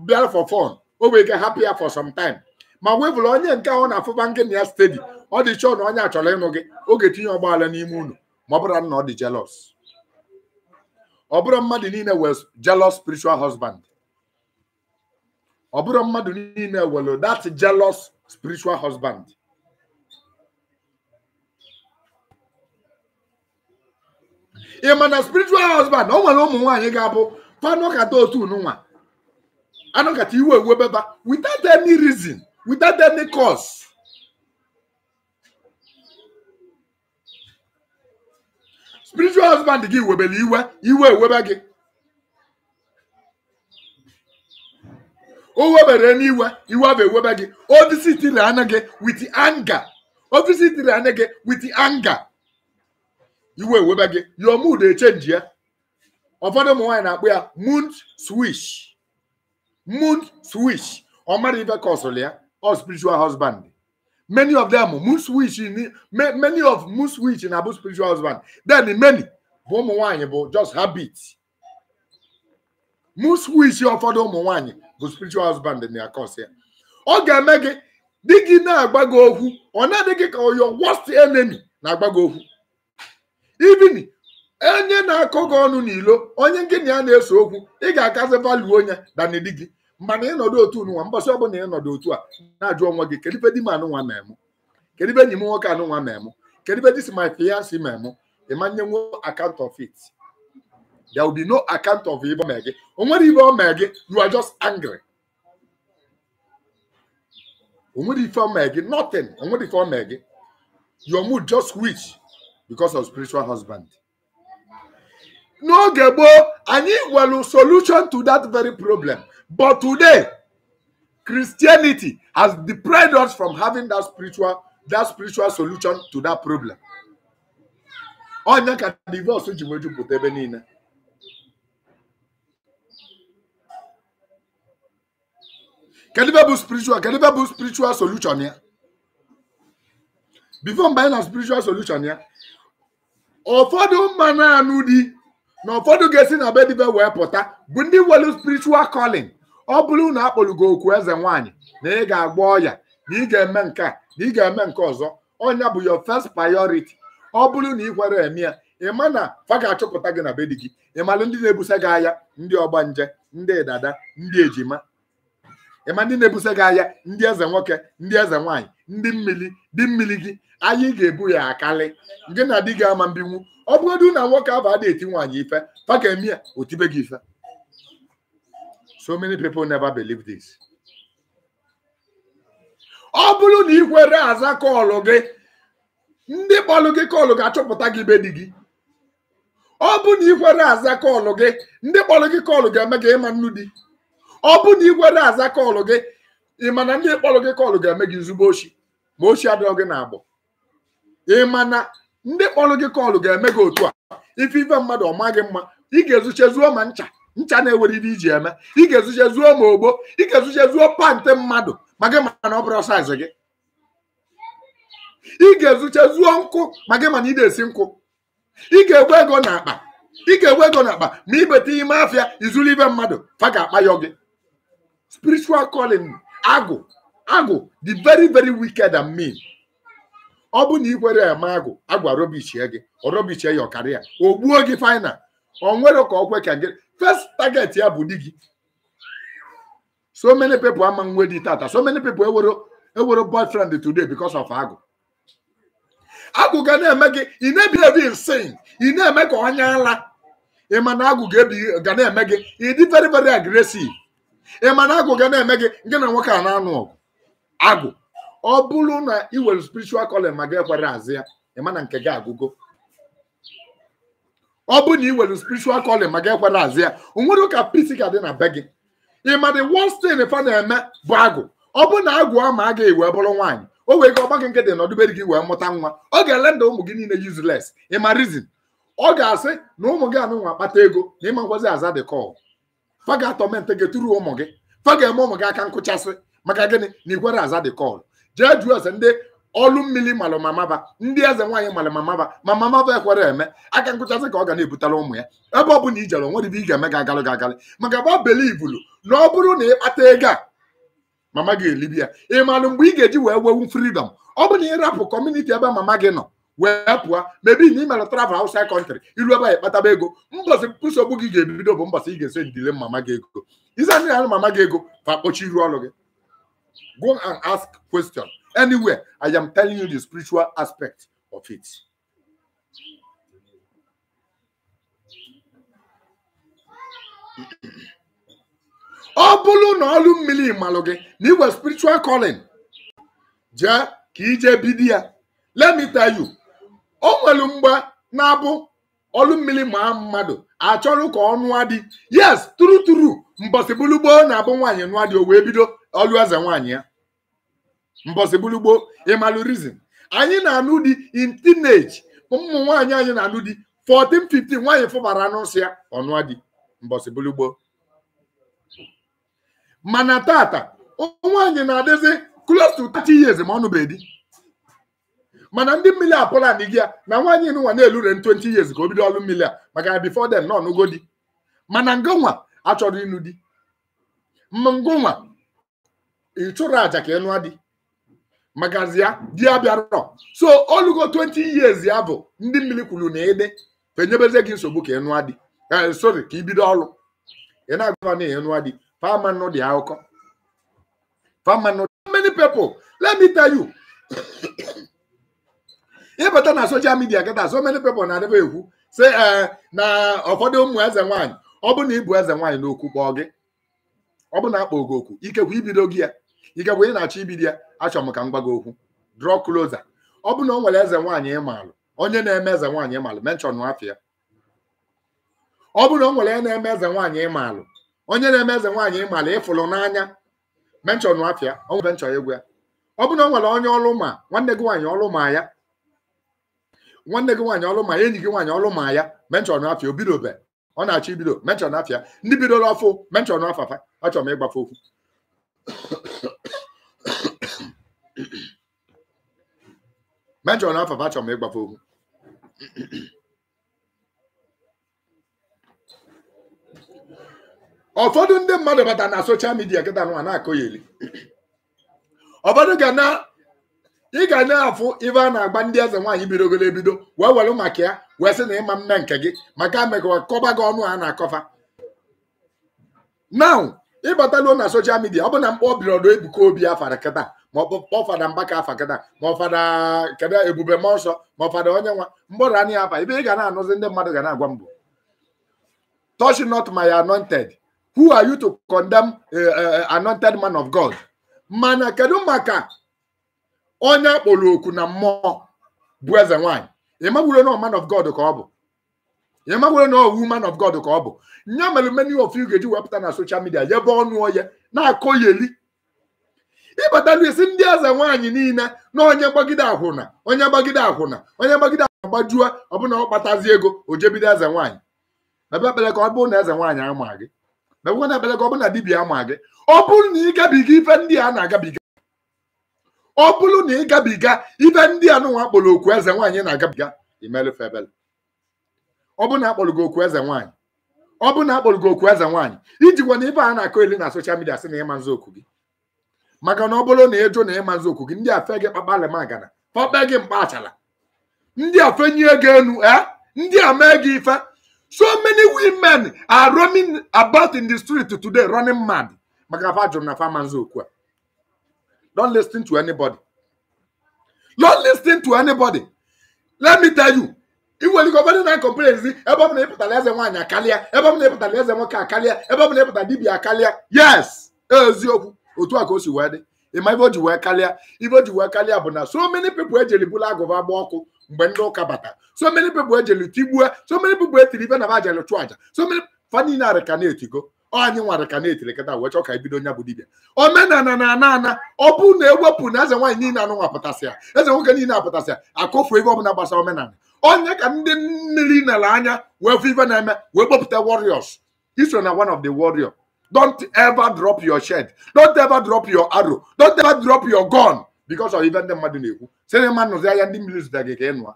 bịara for fọn o wee ga hapụ ya for some time ma gwebụlụ onye nke ahụ na-afụba nke na ya stedi ọ dị chọọ na onye achọrọ ịnụ gị oge tinye ọgbaghara n'ime unu ma ọ bụrụ na ọ dị jealous ọ bụrụ mmadụ niile wee jelọs spiritual husband ọ bụrụ mmadụ niile welu that jealous spiritual husband ị ma na spiritual husband ọ nwere ụmụ nwaanyị ga-abụ panụkata otu nwa anụkata iwe ewebeba without any reason without any cause spiritual husband gị webere iwe iwe ewebe gị o webere n'iwe iwe bụ ewebe gị o visitiri anya gị with anger o visitiri anya gị with anger iwe ewebe gị your mood echenji ya ụfọdụ ụmụ nwaanyị na-akpọ ya mood switch mood switch ọ mara ife ka ọsụrụ ya ọ spiritual husband many of them mood switch many of mood switch na-abụ spiritual husband then many bụ ụmụ nwaanyị bụ just habit mood switch ụfọdụ ụmụ nwaanyị bụ spiritual husband na akọs ya ọ ga-eme gị di gị na-agba gị okwu ọ na-adị gị ka your worst enemy na-agba gị okwu even onye na-akọ gị ọnụ n'ilo onye gị na ya na-eso okwu ị ga-akazi valuo onye dana di gị mana ịnọdụ otu nwa mbọsị ọbụla ịnọdụ otu a na-ajụ onwe gị kedụ ibe di m anụnwa ma emu kedụ ibe enyi m nwoke anụnwa ma emu kedụ ibe this my fiancé ma emu ịma nye nwe of it There will be no account of evil Maggie. And when evil Maggie, you are just angry. And when evil Maggie, nothing. And when evil Maggie, your mood just switch because of spiritual husband. No, Gebo, need a solution to that very problem. But today, Christianity has deprived us from having that spiritual that spiritual solution to that problem. Onye divorce kedu ibe bụ spiritual kedu bụ spiritual solution ya bifo mgbe anyị na spiritual solution ya ụfọdụ mmanụ anụ dị na ụfọdụ ga-esi na be wee pụta bụ ndị nwere spiritual calling ọ bụrụ na gị okwu eze nwaanyị na ị ga-agba ọya na ị ga-eme nke a na ị ga-eme nke ọzọ ọnya bụ your first priority ọ bụrụ na ị kwere eme ya ịma na fa ga-achọpụta gị na bedi gị gị ịmalụ ndị na-ebusa gị agha ndị ọgbanje ndị dada ndị ejima ịma ndị na-ebuso gị ahịa ndị eze nwoke ndị eze nwaanyị ndị mmiri dị mmiri gị anyị ga-ebu ya akali gị na di gị ama mbinwu ọ bụgodu na nwoke abụ ada eti nwaanyị ife paka emi ya otibe gị ife so many people never believe this ọ bụrụ na ị kwere aza kọọlụ gị ndị kpọlụ gị kọọlụ ga-achọpụta gị be di gị ọ bụ na ị kwere aza kọọlụ gị ndị kpọlụ gị kọọlụ ga-eme gị ịma nnu di ọ bụ na igwe na-aza kọọlụ gị ị ma na ndị kpọrọ gị kọọlụ ga-eme gị zugbo ochi ma ochi adịrọ gị na-agbọ ị ma na ndị kpọrọ gị kọọlụ ga-eme gị otu a ife ife mmadụ ọ maghị mma ị ga-ezuche zuo ma ncha ncha na-eweriri ewere iji eme ị ga-ezuche zuo ma ogbo ị ga-ezuche zuo pantị mmadụ ma gị ma na ọ bụrụ saịz gị ị ga-ezuche zuo nkụ ma gị ma na ị na-esi nkụ ị ga-egwe ego n'akpa ị ga-egwe ego n'akpa ma ibeta ime afịa izuru ibe mmadụ fa ga-akpa gị spiritual calling agụ agụ the very very wicked and mean ọ bụ na ị kwere eme agụ agụ arọbichie gị ọrọbichie ya ọkarịa o gbuo gị final ọ nwere ka ọ kwe ka gị first target ya bụ di gị so many people ama nwe di tata so many people ewere ewere boyfriend today because of agụ agụ ga na-eme gị ị na-ebi ebi insane ị na-eme ka ọnya ala ị ma na agụ ga na-eme gị ị dị very very aggressive ị ma na agụ ga na-eme gị nke na nwoke a na-anụ ọgụ agụ ọ bụrụ na ị nwere spiritual calling ma gị ekwere azị ya ị ma na nke gị agụgo ọ bụ na ị nwere spiritual calling ma gị ekwere azị ya o nwere ụka peace ga dị na be gị ị ma the worst thing fa na-eme bụ agụ ọ bụ na agụ ama a ga-ewe bụrụ nwaanyị o wee ga ọgbakọ nke dị na n'ọdụberi gị wee mụta nwa ọ ga-ele nda ụmụ gị niile useless ị ma reason ọ ga-asị na ụmụ gị anụnwa akpata ego na ịma nkwazi aza the call fa ga gị tụrụ ụmụ gị fa ga-eme ụmụ gị aka nkụchasị maka gịnị na igwere aza dị kọl jee jụọ eze ndị ọlụ mmiri malụ mamaba ndị eze nwaanyị malụ mamaba ma mamaba ekwere eme aka nkụchasị ka ọ ga na-ebutara ụmụ ya ebe ọ bụla ijere onwe dị ị ga-eme ga agalụ ga agalị maka gba belivulu na ọ bụrụ na ịkpata ego a mama gị elibi ya ị marụ mgbe ị ga-eji wee wewu fridọm ọ bụ na ịrapụ kọmuniti ebe mama gị nọ wee pụọ mebi na ị travel outside country ilu ebe a ịkpataba ego mbọsị nsogbu gị ga-ebido bụ mbọsị ị ga-eso ndile mama gị ego ize ndị na mama gị ego fa kpọchi iru ọrụ gị go and ask question anywhere i am telling you the spiritual aspect of it ọ bụrụ na ọlụ mmiri malụ gị na iwe spiritual calling jee ka ije bido ya let me tell you o nwelu mgbe na-abụ ọlụ mmiri maa mmadụ achọrọ ka ọ nụa di yes turu turu mbọsị na-abụ nwaanyị nụa di o wee bido ọlụ eze nwaanyị ya mbọsị bulugboo ịmalụ reason anyị na-anụ di in teenage ụmụ nwaanyị anyị na-anụ di 14 15 nwaanyị fụbara n'ụsị ya ọnụa di mbọsị mana tata nwaanyị na-adịzi close to 30 years ma ọ nụbeghị mana ndị mmiri a Poland gị ya na nwaanyị nụnwa na-elure 20 years ka o bido ọrụ mmiri a maka na before them nọ n'ogo di mana ngonwa achọrọ ịnụ di ngonwa ịchụrụ aja ka ịnụ adị. magazi ya di ya bịarọ so olugo 20 years ya bụ ndị mmiri kwuru na ịdị fenyebeze gị nsogbu ka ịnụ adị. E, sorry ka ị bido ọrụ ị na-agụa na ịnụa di famanụ dị akụkọ famanụ many people let me tell you ịbata na soshal midia kịta so many people na-adịba ekwu si ee eh, na ụfọdụ ụmụ eze nwaanyị ọ bụ na ịbụ eze nwaanyị n'okwu kpọọ gị ọ bụ na akpọ gị okwu ikekwe ibido gị ya ikekwe ị na-achọ ibido ya achọ m ka m gị okwu draw closer ọ bụ na o nwere eze nwaanyị onye na-eme eze nwaanyị ịmalụ menchọn afịa ọ bụ na nwere na-eme eze nwaanyị ịmalụ onye na-eme eze nwaanyị ịmalụ ịfụlụ n'anya menchọn nwanne gị nwaanyị ya nwanne gị nwaanyị ọlụ ma enyi gị nwaanyị ọlụ ma ya menchọn afịa obidobe ọ na-achọ ibido menchọn afịa ndị bidola ọfụ menchọn afafa achọrọ m ịgbafe okwu menchọn afafa achọrọ m ịgbafe okwu ụfọdụ ndị mmadụ bata na soshal midia kịta nwa na-akọ ya eli ụfọdụ ga na ị ga na-afụ ibe a na-agba ndị eze nwaanyị bidogolo ebido wee welu maka ya wee sị na ịma mme nke gị maka mekwa kọba gị ọnụ a na-akọfa now ịbataluo na soshal midia ọ bụ na mkpa obirodo ebuka obi afara kata ma ọ fada mbaka afa kata ma ọ ebube ma ọsọ ma onye nwa mgbọrọ anya afa ibe ị ga na-anụzi ndị mmadụ ga na-agwa mbụ touch not my anointed who are you to condemn eh, eh, eh, anointed man of God mana kedu maka onye akpọrọ oku na mmụọ bụ eze nwanyị ịmagburo na man of God ka ọ bụ ịmagburo na woman of God ka ọ bụ nya mere many of you ga-eji wepụta na soshal midia yebe ọnụ onye na-akọ yeli ịbatalu isi ndị eze nwaanyị niile na onye gbagide akwụna onye gbagide akwụna onye gbagide akwụna gbajue ọbụna ọ kpatazi ego o jebido eze nwaanyị ebe ekpere ka ọ na eze nwaanyị ama gị ebe ekpere ka ọ bụrụ na dibịa ama gị ọ bụrụ na ịgabiga ife ndị a na-agabiga ọ bụrụ na ị gabiga ibe ndị anụnwa kpọrọ okwu eze nwaanyị na-agabiga imelụfe ebele ọ bụ na akpọrọ gị okwu eze nwaanyị ọ bụ na akpọrọ gị okwu eze nwaanyị iji gwa na ibe a na-akọ eli na soshal midia sị na ịma nzọ okwu gị maka na ọ bụrụ na ịjụ na ịma nzọ okwu gị ndị a fe gị kpakpalị magana kpakpe gị mkpa achala ndị a fenyie gị enu e ndị a mee gị ife so many women are running about in the street today running mad maka fa jụrụ na fa ma nzọ okwu a Don't listen to anybody. Don't listen to anybody. Let me tell you, iweli gọvanọ na-akọmplen zi ebe ọ na eze nwaanyị akarịa ebe ọ na ịpụtara eze nwoke akarịa ebe ọ na dibia akarịa yes eziokwu otu a osi o wee dị ịma ibe o ji wee karịa ibe ji wee karịa bụ na so many people ejeli bụla agụba agba ọkụ mgbe ndị ụka bata so many people ejeli tigbue so many people etiri ibe na ba jeli chụ aja so many fa niile arịka na-etigo anyị nwara ka na-eterekata wee chọọ ka ebido nya bụ dibịa omenala na ana ana ọ bụ na ewepụ na eze nwaanyị niile anụnwa pụtasị ya eze nwoke niile apụtasị ya akụfu ego ọbụla gbasara omenala onye ka ndị mmiri nara anya wee fụ ife na-eme wee kpọpụta warriors iso na one of the warrior don't ever drop your shed don't ever drop your arrow don't ever drop your gun because of ife ndị mmadụ na-ekwu sị na ma nụzi ahịa ndị mmiri zụta gị ka ị nụa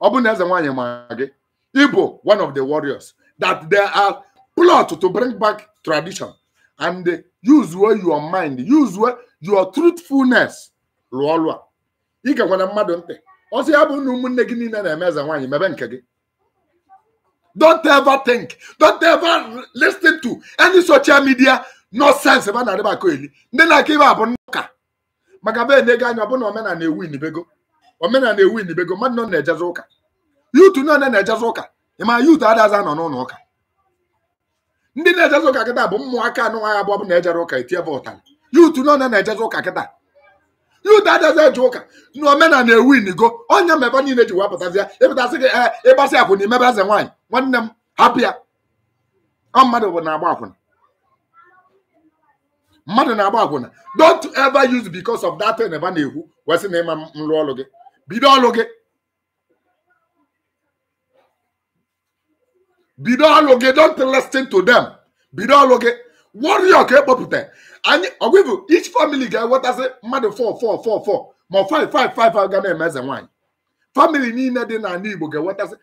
ọ bụ na eze nwaanyị ma gị ịbụ one of the warriors that there are plot to bring back tradition and uh, use your mind use your truthfulness rụọ ọrụ Ike ị gakwana mmadụ ntị ọsọ ya bụ na ụmụnne gị niile na-eme eze nwaanyị mebe nke gị don't ever think don't ever listen to any social media nonsense ebe a na-adịba akọ eli ndị na-aka ibe abụ ụka maka be na-ego anya ọbụna omenala ewu inibego omenala ewu inibego mmadụ nọ na-ejezi ụka yutu nọ na-ejezi ụka ị ma yutu adaza nọ n'ụlọ ụka ndị na-ejeze ụka kịta bụ ụmụaka anụnwaghị abụọ bụ na-ejere ụka etie vọtalị yutu nọ na na-ejeze ụka kịta yutu adazi eje ụka na omenala ewu inigo onye mebe niile ji wepụtazi ya ịpụtasị gị ee eh, ịgbasị akwụna imebe eze nwaanyị nwanne m hapụ ya ọ mmadụ bụ na-agba akwụna mmadụ na-agba akwụna don't ever use because of that thing ebe na-ekwu wesị na ịma nrụ ọrụ gị bido ọrụ gị bido ọlụ gị don't listen to dem bido ọlụ gị warrior ka ekpopụta anyị ọgwụbụ each family ga-enwetasị mmadụ 4444 ma 5555 ga na-eme eze nwaanyị family niile dị n'ala Igbo ga-enwetasị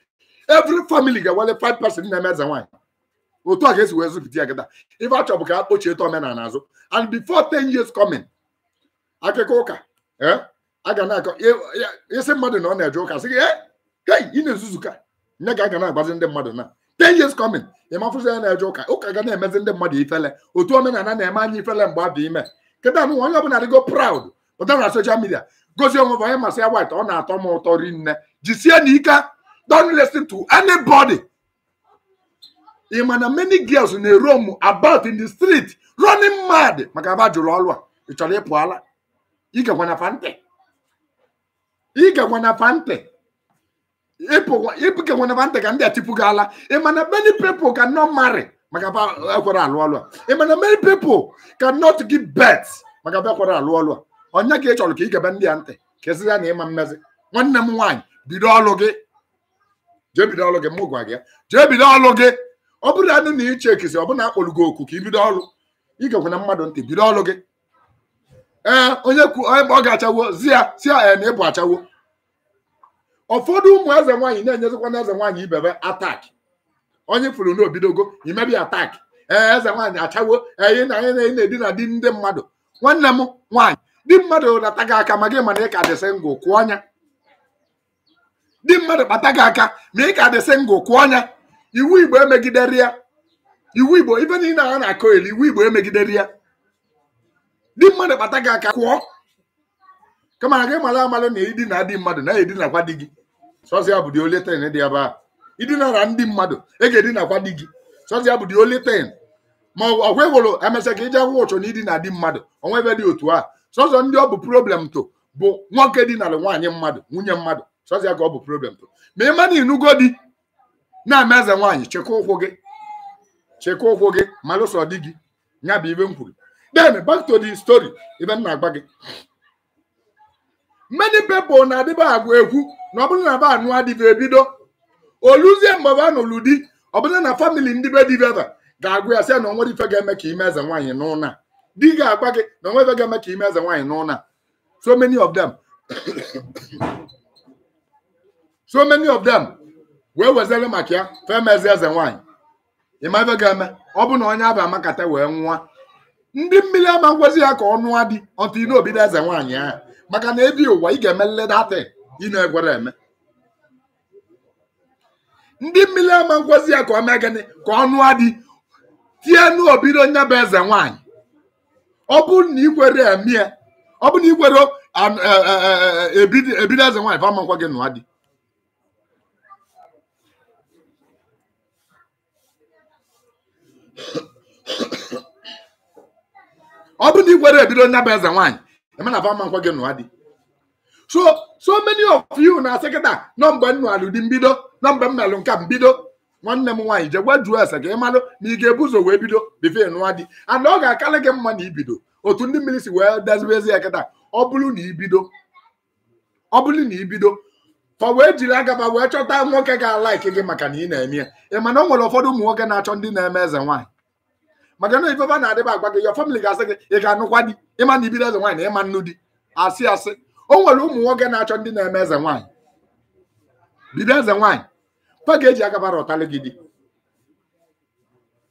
every family ga-enwele 5 person na-eme eze nwaanyị otu a ga-esi wee zụpụta ya gịta ife achọ bụ ka a eto omenala azụ and before 10 years coming akụkọ ụka e, a ga na-akọ e, e, isi mmadụ na ọ na-eje ụka sị gị ị na-ezuzu ka nye ga aga na-agbazi ndị mmadụ na ten years coming ịmafụzi ya na-eje ụka ụka ga na-emezi ndị mmadụ ifele otu omenala na-eme anyị ifele mgbe abụ ime nkịta anụ onye ọbụla dịgo proud pụta na social media gosi onwe onye masị ya white ọ na-atọ m ụtọ rinne jisie na ike don't listen to anybody ị ma na many girls na ero m about in the street running mad maka aba jụrụ ọrụ a ị chọrọ ịpụ ala igekwana fante igekwana fante ịpụkenwana ba ntị ka ndị a tipụ gị ala ịmana e many people can not marry maka ekwere alụ ọlụ a ịmana e many people ka not gi bet maka ekwere alụ ọlụ a onye ka ị chọrọ ka ị gebe ndị a ntị ka esi ya na ịma mmezi nwanne m nwaanyị bido ọlụ gị jee bido ọlụ gị mụ gwa gị jee bido ọlụ gị ọ bụrụ anụ na iche ekisi ọ bụ na akpọrọ oku ka ị bido ọlụ ị ga-ekwana mmadụ ntị bido ọlụ gị ee onye ọ ga-achawo zi ya si ya e, na ịbụ achawo ụfọdụ ụmụ eze nwaanyị na-enyezikwa na eze nwaanyị ibebe ataki onye furu n'obidogo imebi ataki ee eze nwaanyị achawo eyi na anyị na-edina di ndị mmadụ nwanne m nwaanyị di mmadụ rata gị aka ma gị mana ị ka dịsị ngụ kwụ ọnya di mmadụ kpata gị aka ma ị ka dịsị ngụ kwụ ọnya iwu igbo emegidere ya iwu igbo ibe niile a na-akọ elu iwu igbo emegidere ya di mmadụ kpata gị aka kwụọ kama na gị mara amara na idina dị mmadụ na ya edinakwa di gị sọzịa bụ di ole ten dị ebe a idinara ndị mmadụ e ga-edinakwa di gị sọzịa bụ di ole ten ma ọ gwehụrụ emesịa ka ije akwụkwọ ụchọ na idina dị mmadụ onwe ebe dị otu a sọzọ ndị ọ bụ problem to bụ nwoke dinara nwaanyị mmadụ nwunye mmadụ sọzịa ka ọ bụ problem to ma ịma na inugo di na-ama eze nwaanyị chekwa ụkwụ gị chekwa ụkwụ gị malụsọ di gị nya bụ ibe m kwuru then back to the story ibe m na-agba gị many people na adịba agwa egwu na ọ bụrụ na ba anụ adịbe ebido oluzie mgbe ba nụrụ di ọ bụrụ na famili ndị be dibeba ga-agwa ya sị na onwere ife ga-eme ka ime eze nwaanyị n'ụna di ga-agwa gị na onwe ife ga-eme ka ime eze nwaanyị n'ụna so many of them so many of them wee wezere maka ya femezi eze nwaanyị ịma ife ga-eme ọ bụ na onye abịa amakata wee nwụọ ndị mmiri ama ngwazi ya ka ọ nụọ di ọtụ inobido eze nwaanyị ahụ maka na ebi ụwa ị ga-eme nledata ị na-egwere eme ndị mmiri ama nkwozi ya ka ọ mee gịnị ka ọnụ adị tie n'obido onye bụ eze nwaanyị ọ bụrụ na ikwere eme ya ọ bụrụ na ikwere e, e, e, ebido eze nwaanyị fama nkwa gị nụwa dị ọ bụrụ na ikwere ebido onye bụ eze nwaanyị emana va mma nkwa gị nụwa dị so so many of you na sekịta nọ mgbe m dị mbido nọmba mgbe m nka mbido nwanne m nwaanyị je gwa jụọ ese ka ị malụ na ị ga-ebu ụzọ wee bido bifee nụwa dị and ọ ga-akarị gị mma na ibido otu ndị mmiri si wee deziwezi ya kịta ọ bụrụ na ibido ọ bụrụ na ibido fa wee jiri agaba wee chọta nwoke ga-alaiki gị maka na ị na-eme ya ị mana o nwere ụfọdụ ụmụ nwoke na-achọ ndị na-eme eze nwaanyị maka na na-adịba agwa gị ya famili ga-asị gị ị e ga-anụkwa di ịma na ibido eze nwaanyị na ịma nnu di asị asị o nwere ụmụ nwoke na-achọ ndị na-eme eze nwaanyị bido eze nwaanyị fa ga agabara ụtalị gị di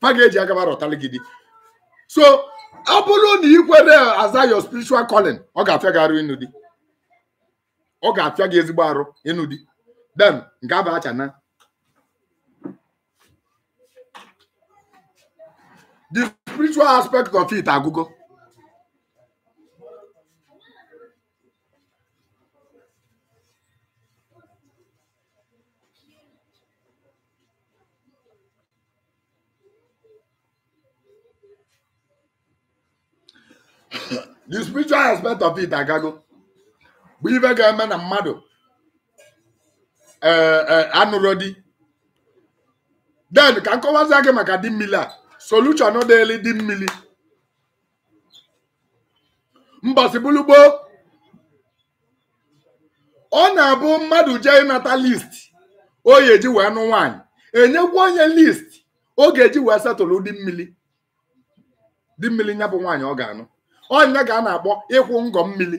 fa ga agabara ụtalị gị di so ọ bụrụ na ị kwere aza your spiritual calling ọ ga-afịa gị arụ ịnụ di ọ ga-afịa gị ezigbo arụ ịnụ di den nke abụ na. the spiritual aspect of it agụgo the spiritual aspect of it agago bụ ife ga-eme na mmadụ eh, eh, anụrụ di den ka nkọwazie gị maka di mmili a solution dịịlị di mmili mbọsị bụlụ ọ na-abụ mmadụ jee ịnata list o ga-eji wee nụ nwaanyị enyekwa onye list ọ ga-eji wee setụlụ di mmili di mmili nya bụ nwaanyị ọ ga-anụ onye ga a na-akpọ ịkwụ ngọ mmiri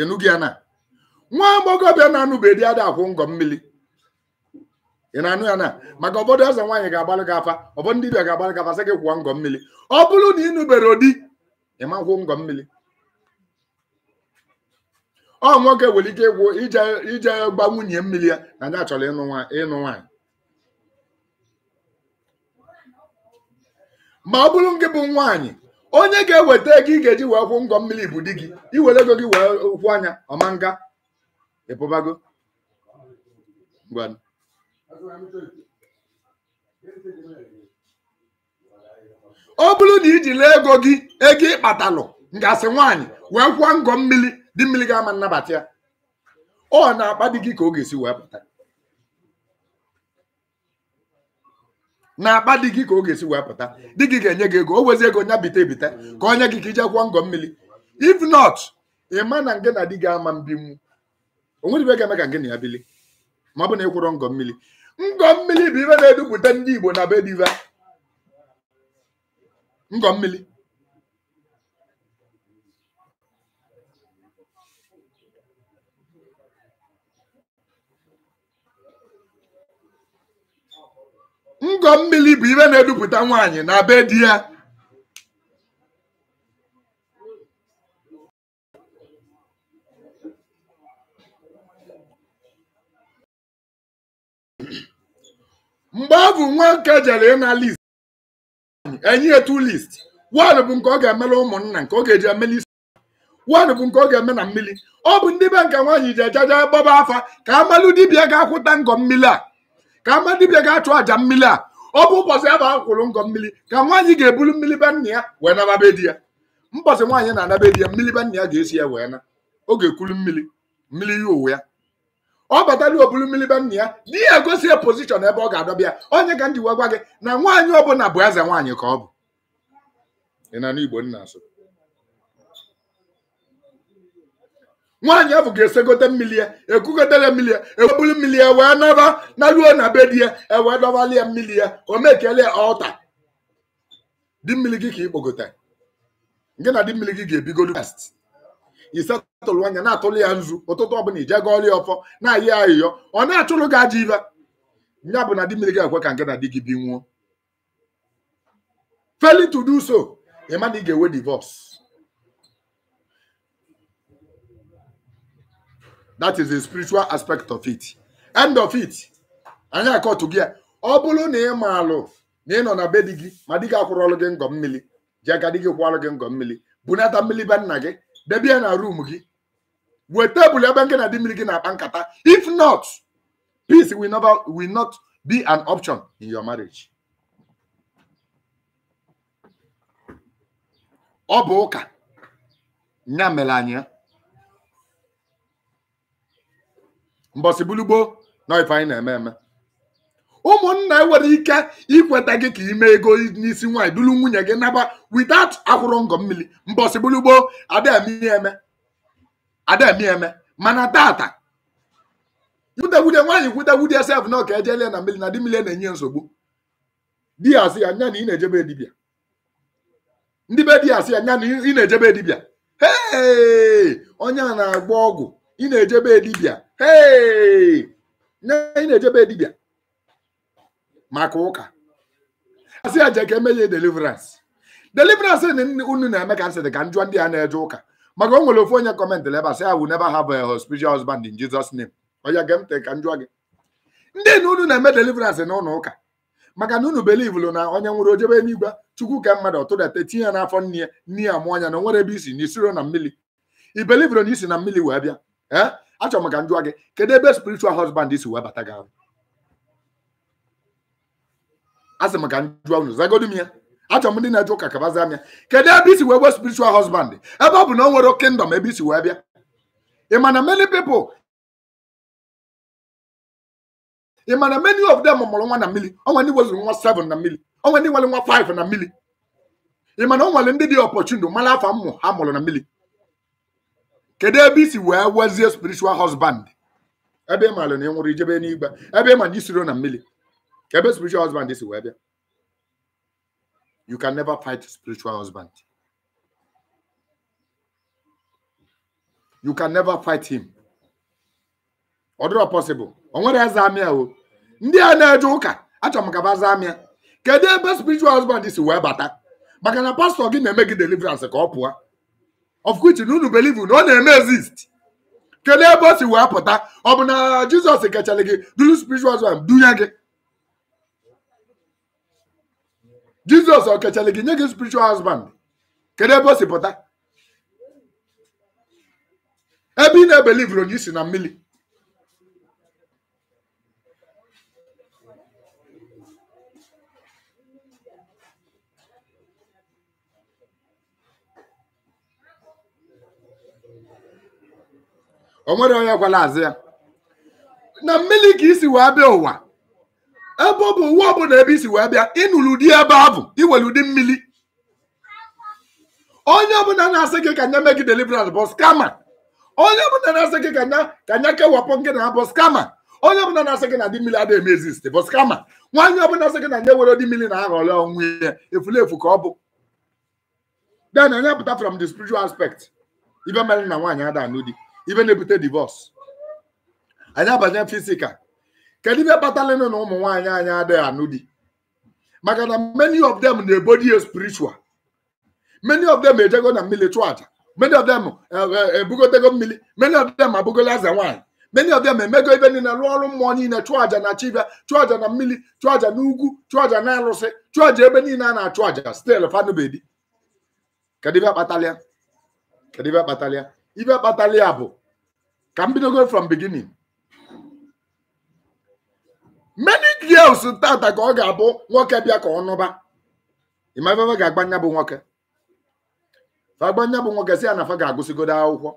ịnụgị ya na nwa agbọghọbịa na-anụbeghị di ada akwụ ngọ mmiri ị na-anụ ya na maka obodo eze nwaanyị ga-agbalị gị afa ọbọ ndị bịa ga-agbalị gị afa sị gị kwụọ ngọ mmiri ọ bụrụ na ị nụbere ụdị ịma kwụ ngọ mmiri ọ nwoke nwere ike ịkwụ ije gba nwunye mmiri ya na ndị achọrọ ịnụ nwaanyị ma ọ bụrụ gị bụ nwaanyị onye ga-eweta ego ị ga-eji wee kwụ ngọ mmiri bụ di gị iwere ego gị wee kwụ anya ọma nga ịpụbago ọ bụrụ na iji lee ego gị ego ịkpatalụ ngasị nwaanyị wee kwụọ ngọ mmiri di mmiri ga-ama nnabata ya ọ na-akpa di gị ka ọ ga-esi wee pụta na akpa di gị ka ọ ga-esi wee pụta di gị ga-enye gị ego o wezi ego nya bite ebite ka onye gị ka ije kwụọ ngọ mmiri if not ị ma na nge na di gị ama mbinwu onwere ga-eme ka nge na ya bili ma ọ bụ na ị kwụrọ ngọ mmiri ngọ mmiri bụ ibe na-edupụta ndị Igbo na be diva ngọ mmiri ngọ mmiri bụ ihe na-edupụta nwaanyị na be di ya mgbe ọ bụ nwoke jere ịna list enyi etu list wad bụ nke ọ ga-emere ụmụnna nke ọ ga-eji emeli isi wad bụ nke ọ ga-eme na mmiri ọ bụ ndị be nke nwaanyị ji ejaja gbaba afa ka amalụ dibịa ga-akwụta ngọ mmiri a ka ama dibịa ga-achụ aja mmiri a ọ bụ ụbọchị ya bụ akwụrụ ngọ mmiri ka nwaanyị ga-eburu mmiri be ya wee nababe di ya mbọchị nwaanyị na-anabe di ya mmiri be ya ga-esi ya wee na ọ ga mmiri mmiri ya uwe ya ọ batara oburu mmiri be ya di ya gosi ya pozishọn ebe ọ ga-adọba ya onye ka m ji wee gwa gị na nwaanyị ọbụla bụ eze nwaanyị ka ọ bụ ị na n'Igbo nna asụ nwaanyị ahụ ga-esegote mmiri ya ekugotere mmiri ya eweburu mmiri ya wee naba na ruo na be di ya ewee dọbali ya mmiri ya o mekele ọta di mmiri gị ka ikpogote gị na di mmiri gị ga-ebigodu past isetụlụ anya na-atụlụ ya nzu ụtụtụ ọbụla ije ga ọrịa ọfọ na-ayị ayịyọ ọ na-achụrụ gị aja ibe ya bụ na di mmiri gị ekwe ka nke na di gị bi nwuo failing to so ị na ị ga-enwe divorce that is the spiritual aspect of it end of it gị ya ọ bụrụ na ị alụ, na ị nọ na be di gị ma di gị akwụrọlụ gị ngọ mmiri ji aka di gị kwụọlụ gị ngọ mmiri bunata mmiri be nna gị debie na ruum gị wee tebụl ebe nke na di mmiri gị na-akpa nkata if not peace will never will not be an option in your marriage ọ bụ ụka nya mere anya mbọsị bulugboo na ife anyị na-eme eme ụmụnna e nwere ike ikweta gị ka ime ego n'isi nwaanyị duru nwunye gị naba witat akwụrụ ngọ mmiri mbọsị bulugboo ademi eme mana tata kwutewude nwaanyị kwutewude sef na ọka ejelie na mmiri na di mmiri na-enye nsogbu di asị ya nya na ị na-ejebe dibịa ndị be di asị ya nya na ị na-ejebe dibịa onye a na-agba ọgwụ ị na-ejebe dibịa ị na-ejebe dibịa maka ụka asị ya ka emeghe deliverance deliverance unu na-eme ka nsị dị ka njọ ndị a na-eje ụka maka o nwere ofu onye kọmentịrị ebe asị I will never have a spiritual husband in Jesus name onye gee ntị ka njọ gị ndị na unu na-eme deliverance na ụlọ ụka maka na unu belivulu na onye nwere ojebe eluigwe chukwu ka mmadụ tụdata tinye ya n'afọ nne ya nne ya mụọ anya na o nwere ebe isi na isiro na mmiri i belivuru na isi na mmiri wee bịa ee eh? achọrọ m ka m gị kedu ebe spiritual husband si wee bata gị asị m ka m jụọ unu zagodi m ya achọrọ m ndị na-eje ụka kabazia m ya kedu ebe isi wee wee spiritual husband ebe ọ bụ na o nwere kingdom ebe isi wee bịa ị ma na many pipo ị ma na many of them mụrụ nwa na mmiri onwe ndị wezụrụ nwa 7 na mmiri onwe ndị nwere nwa 5 na mmiri ị ma na o nwere ndị dị opportunity mara afọ mmụ ha mụrụ na mmiri kedu ebe isi wee wezie spiritual husband ebe ị maara na ị nwụrụ ijebe n'igba ebe ị ma na isiro na mmiri ebe spiritual husband si wee bịa you can never fight spiritual husband you can never fight him ọ dịrọ possible o nwere eze amịa o ndị a na-eje ụka achọrọ m ka ba amịa kedu ebe spiritual husband si wee bata maka na pastọ gị na-eme gị deliverance ka ọ pụọ of which na unu believe na ọ na-eme exist kedu ebe o si wee pụta ọ bụ na jizọs kachara gị duru spiritual dunye gị jizọs ọ kachara gị nye gị spiritual husband kedu ebe o si pụta ebe ị na-ebelivu onye isi na mmiri o nwere onye gwara azụ ya na mmiri ka isi wee bịa ụwa ebe ọ bụ uwe ọbụla ebe isi wee bịa ịnụrụ ụdị ebe a bụ iwere ụdị mmiri onye ọbụla na-asị gị ka nye mee gị deliverance bụ skama onye ọbụla na-asị gị ka nye kewapụ gị na bụ skama onye ọbụla na-asị gị na dị mmiri adịghị emezi site bụ skama nwaanyị ọbụla na-asị gị na nye were dị mmiri na aghọrọ onwe ya efulefu ka ọ bụ then onye pụta from the spiritual aspect ibe mere na nwaanyị ada anụ di ibe na-ebute divọs anyị abanye fisikal kedu ibe kpatara na ụmụ nwaanyị anyị adịghị anụ di maka na many of them na-ebodi spiritual many of them ejego na mmiri chụọ aja many of them uh, uh, uh, ebugotego mmiri many of them abụgola aza nwaanyị many of them emego ibe niile rụọ ọrụ mmụọ niile chụọ aja na chibịa chụọ aja na mmiri chụọ aja na ugwu chụọ aja na arụsị chụọ aja ebe niile a na-achụ aja stil fanubedi kedu ibe kpatara ya kedu ibe kpatara ya ibe kpatara ya bụ ka m bidogo from beginning many girls tata ka ọ ga-abụ nwoke bịa ka ọ nụba ịmafefe ga-agbanya bụ nwoke agbanya bụ nwoke si ya na fa ga-agụsigodo akwụkwọ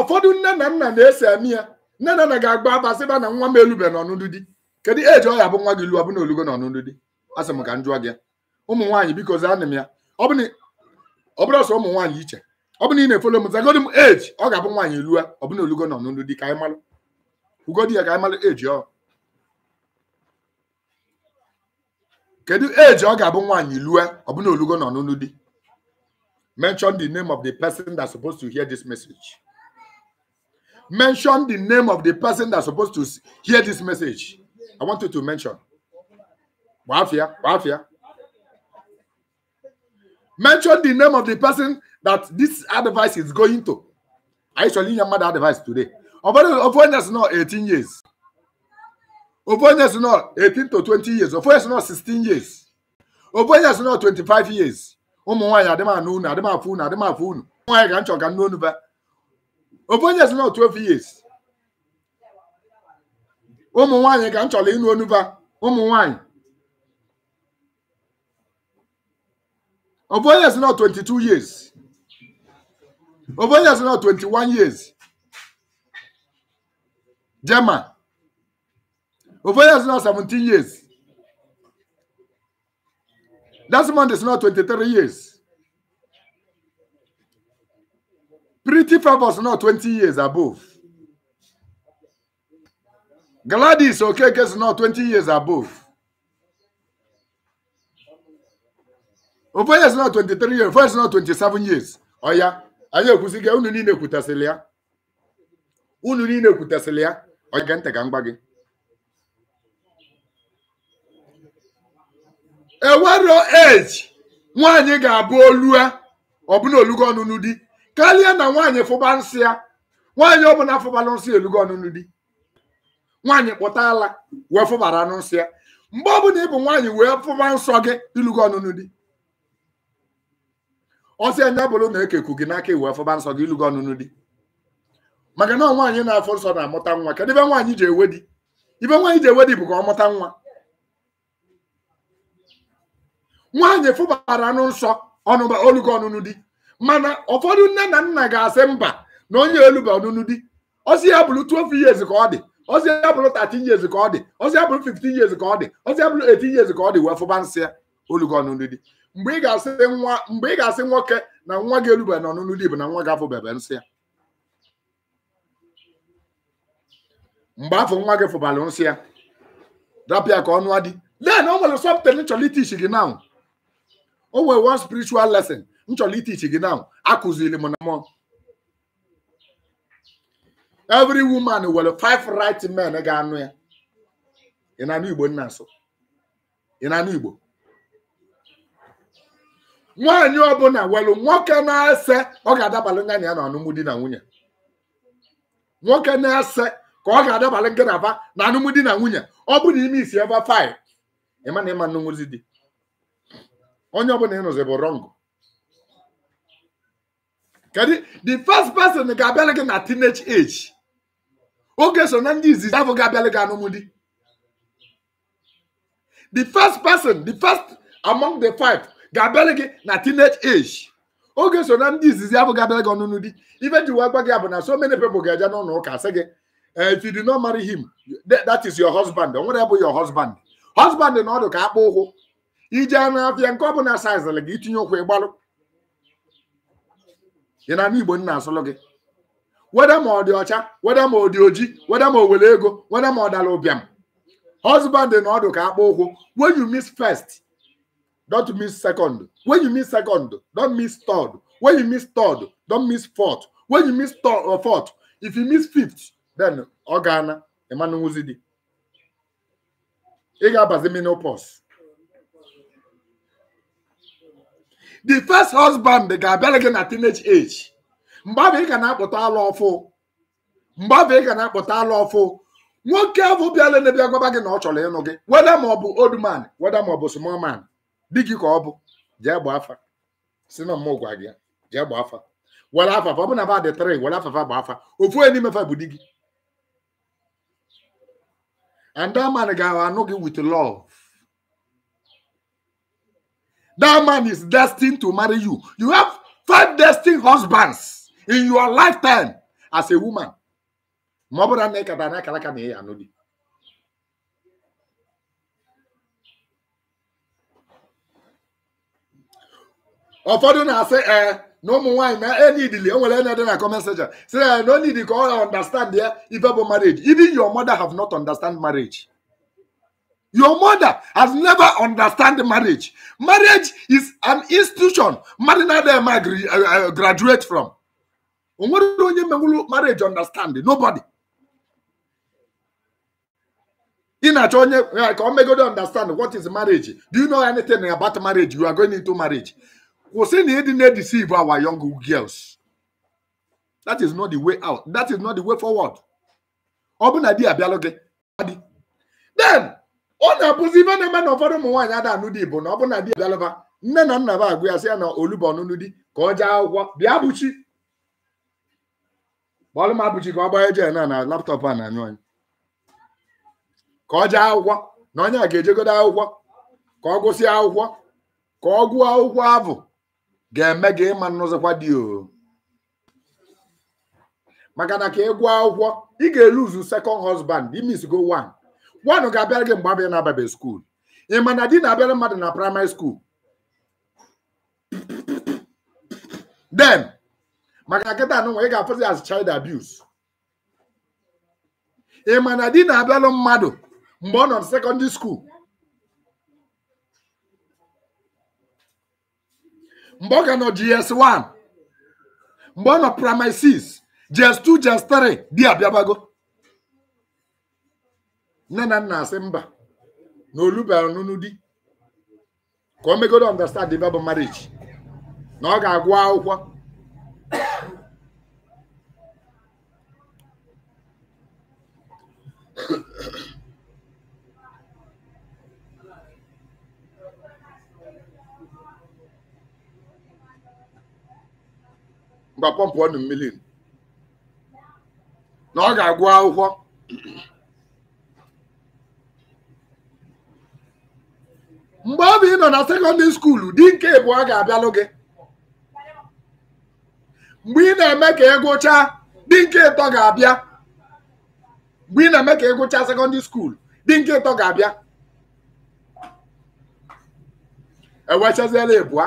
ụfọdụ nne na nna na-ese eme ya nne na nna ga-agba abasịba na nwa m elube n'ọnụdụ di kedu eji ọ ya bụ nwa gị luo bụna olugo n'ọnụdụ di asị m ka m gị ụmụ nwaanyị biko zaa na m ya ọ bụrụ sọ ụmụ nwaanyị iche ọ bụ na ị na-efolo m zagodi m eji ọ ga-abụ nwaanyị elua ọ bụna olugo nọ n'olu di ka ugodi ya ka anyị eji ọ kedu eji ọ ga-abụ nwaanyị lue ọ bụna olugo nọ n'olu di mention the name of the person that's supposed to hear this message mention the name of the person that's supposed to hear this message i want you to mention gbafia gbafia mention the name of the person that this advice is going to. I actually your mother advice today. Ofonya's not 18 years. Ofonya's not 18 to 20 years. Ofonya's not 16 years. Ofonya's not 25 years. Ụmụ nwaanyị adịm anụ unu adịm afụ unu adịm afụ unu nwaanyị ka m chọrọ ka nne unu ba Ofonya's not 12 years. Ụmụ nwaanyị ka m chọrọ ịnụ onu ba ụmụ nwaanyị Ofonya's not 22 years. Obonya is now 21 years. Gemma, Obonya is now 17 years. man is now 23 years. Pretty Favor now 20 years above. Gladys okay, is now 20 years above. Obonya is now 23 years. First is now 27 years. Oh, yeah. anyị ekwusiga unu niile kwutasịrị ya unu niile kwutasịrị ya ọ ga ntị ka m gwa gị ewero eji nwaanyị ga-abụ olu ya ọbụna olugo ọnụnụ di karịa na nwaanyị fụba nsị ya nwaanyị ọbụla fụbara nsị elugo ọnụnụ di nwaanyị kpụta ala wee fụbara nsị ya mgbe ọbụla ị bụ nwaanyị wee fụba nsọ gị ilugo ọnụnụ di ọsị anya bụrụ na ekeku gị n'aka iwu afọba nsọ gị ịlụgo ọnụnụ di maka na nwaanyị na-afọ nsọ na-amụta nwa kedu ibe nwaanyị ji ewe di ibe nwaanyị ji ewe di bụ ka ọ mụta nwa nwaanyị fụbara anụ nsọ ọnụba olugo ọnụnụ di mana ụfọdụ nne na nna ga-asị mba na onye elu ọnụnụ di ọsị ya bụrụ 12 years ka ọ dị ọsị ya bụrụ 13 years ka ọ dị ọsị ya bụrụ 15 years ka ọ dị ọsị ya bụrụ 18 years ka ọ dị wee fụba nsị ya olugo ọnụnụ di mgbe ị ga-asị nwa mgbe ị ga-asị nwoke na nwa gị erubeghị n'ọnụnụ dị bụ na nwa gị afụbebe nsị ya mgbe afọ nwa gị fụbara nsị ya rapịa ka ọnụ adị lee na o nwere sọpụtara nchọrọ itichi gị now o nwere one spiritual lesson nchọrọ itichi gị now akụziri m na mmụọ every woman nwere five right men ga-anụ ya ị na-anụ Igbo nna nso ị na-anụ Igbo nwaanyị ọbụla welu nwoke na-ese ọ ga-adabalị nga na ya na ọnụmụ di na nwunye nwoke na-ese ka ọ ga-adabalị nga na ba na anụmụ na nwunye ọ bụ na ime isi ebe faị ịma na ịma nnụnwụzi di onye ọbụla ịnụzi bụ rọngụ kedu the first person ga-abịalị gị na teenage age oge so na ndị izizi afọ ga-abịalị gị anụmụ di the first person the first among the five ga-abịara gị na teenage age oge so na ndị izizi abụghị abịara gị ọnụnụ di ife ji wee gị abụ na so many people ga-eje n'ụlọ ụka sị gị eh, if you do not marry him that is your husband o nwere bụ your husband husband na ọdụ ka akpụ ụkwụ ije n'afịa nke ọ bụla saizịlị gị itinye ụkwụ ịgbalụ ị na igbo nna asụlụ gị weda ma ọ dị ọcha weda ma ọ dị oji weda ma o were ego weda ma ọ dara ụbịam husband na ọdụ ka akpụ ụkwụ when you miss first don't miss second. When you miss second, don't miss third. When you miss third, don't miss fourth. When you miss third or uh, fourth, if you miss fifth, then Organa, Emmanuel Uzidi. Ị ga-abazi menopause. The first husband ga-abịara gị na teenage age. Mgbe ahụ ị ga na-akpụta ala ọfụ. Mgbe ahụ ị ga na-akpụta ala ọfụ. Nwoke ahụ bịara n'ebe agwaba gị na ọ chọrọ ịnụ gị. Weda ma ọ bụ old man, weda ma ọ bụ small man. di gị ka ọ bụ jee gbaa afa si na mmụọ gwa gị jee gbaa afa were afafa ọ bụ na ba dị tịrị were afafa gbaa afa ofu onye n'ime fa bụ di gị and that man ga-anụ gị with love that man is destined to marry you you have five destined husbands in your lifetime as a woman ma ọ bụrụ na ị kata na akara aka na ị anụ di ụfọdụ na-asị ee na ụmụ nwaanyị na enidili enwere enye dị na comment Say, I don't need call. I understand ya ife bụ marriage even your mother have not understand marriage your mother has never understand marriage marriage is an institution marina dem eh, eh, graduate from onwere onye mewuru marriage understand nobody ị I onye eh, ka o understand what is marriage do you know anything about marriage you are going into marriage Kwụsị na ịdị na-edeceive our young girls. That is not the way out. That is not the way forward. Ọ bụ na di abịalụ gị adị. Then ọ na-abụzi ife na-eme na ụfọdụ ụmụ nwaanyị ada anụ di na ọ bụ na di abịalụba nne na nna ba agụ na olubo ọnụnụ di ka ọ jee akwụkwọ bịa bụchi m ka ọ na a na-anyụ anyị ka ọ jee na onye a ga-ejegodo akwụkwọ ka ọ gụsịa akwụkwọ ka ọ gụọ ga-eme gị ịma n'ụzọkwa dị o maka na ka ị gwa akwụkwọ ị ga-eluzu second husband imisgo one one ga-abịara gị mgbe abịa na-ababe skuul ị ma na di na-abịara mmadụ na praịmarị skuul den maka nkịta nụnwa ị ga-afụzi as child abuse ị ma na di na-abịalụ mmadụ mgbe ọ nọ na sekọndịrị skuul mgbe ọ ga nọ gs 1 mgbe ọ nọ primary 6 2 JS3 di abịabago nne na nna asị mba na olubara n'ọnụnụ di ka o megodo understand the Bible marriage na ọ ga-agụ akwụkwọ ngwa pọmpụọ nụ mmiri na ọ ga-agụ akwụkwọ mgbe ọ bụ ị nọ na sekọndị skuulu di nke bụ ga-abịalụ gị mgbe ị na-eme ka ị gụchaa di nke ịtọ ga-abịa mgbe ị na-eme ka ị gụchaa sekọndịrị skuulu di nke ịtọ ga-abịa ewechaziela ịbụa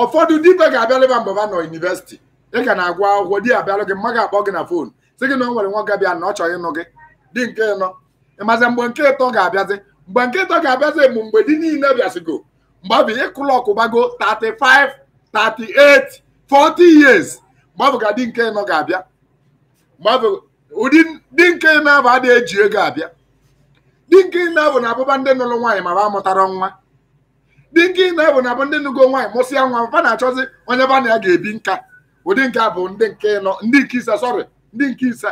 ụfọdụ dibe ga-abịalụ mgbe ha nọ yunivesiti ị ka na-agwa akwụkwọ di ya gị mma ga-akpọ gị na fon sị gị na nwere nwa ga na ọ chọghị ịnụ gị di nke ịnọ ịmazi mgbe nke ịtọ ga-abịazi mgbe nke ịtọ ga-abịazi bụ mgbe di niile bịasịgo mgbe ọ bụ ịkụlọ ọkụbago 35 38 40 years mgbe ka di nke ịnọ ga-abịa mgbe ụdị di nke ịnọ abụ adịghị eji ego abịa di nke ịnọ bụ na abụba ndị nụrụ nwaanyị ma ba mụtara nwa di nke na abụ ndị nụgo nwa mfa onye ba ya ga-ebi nka ụdị nke a bụ ndị nke nọ ndị nke ise sọrị ndị nke ise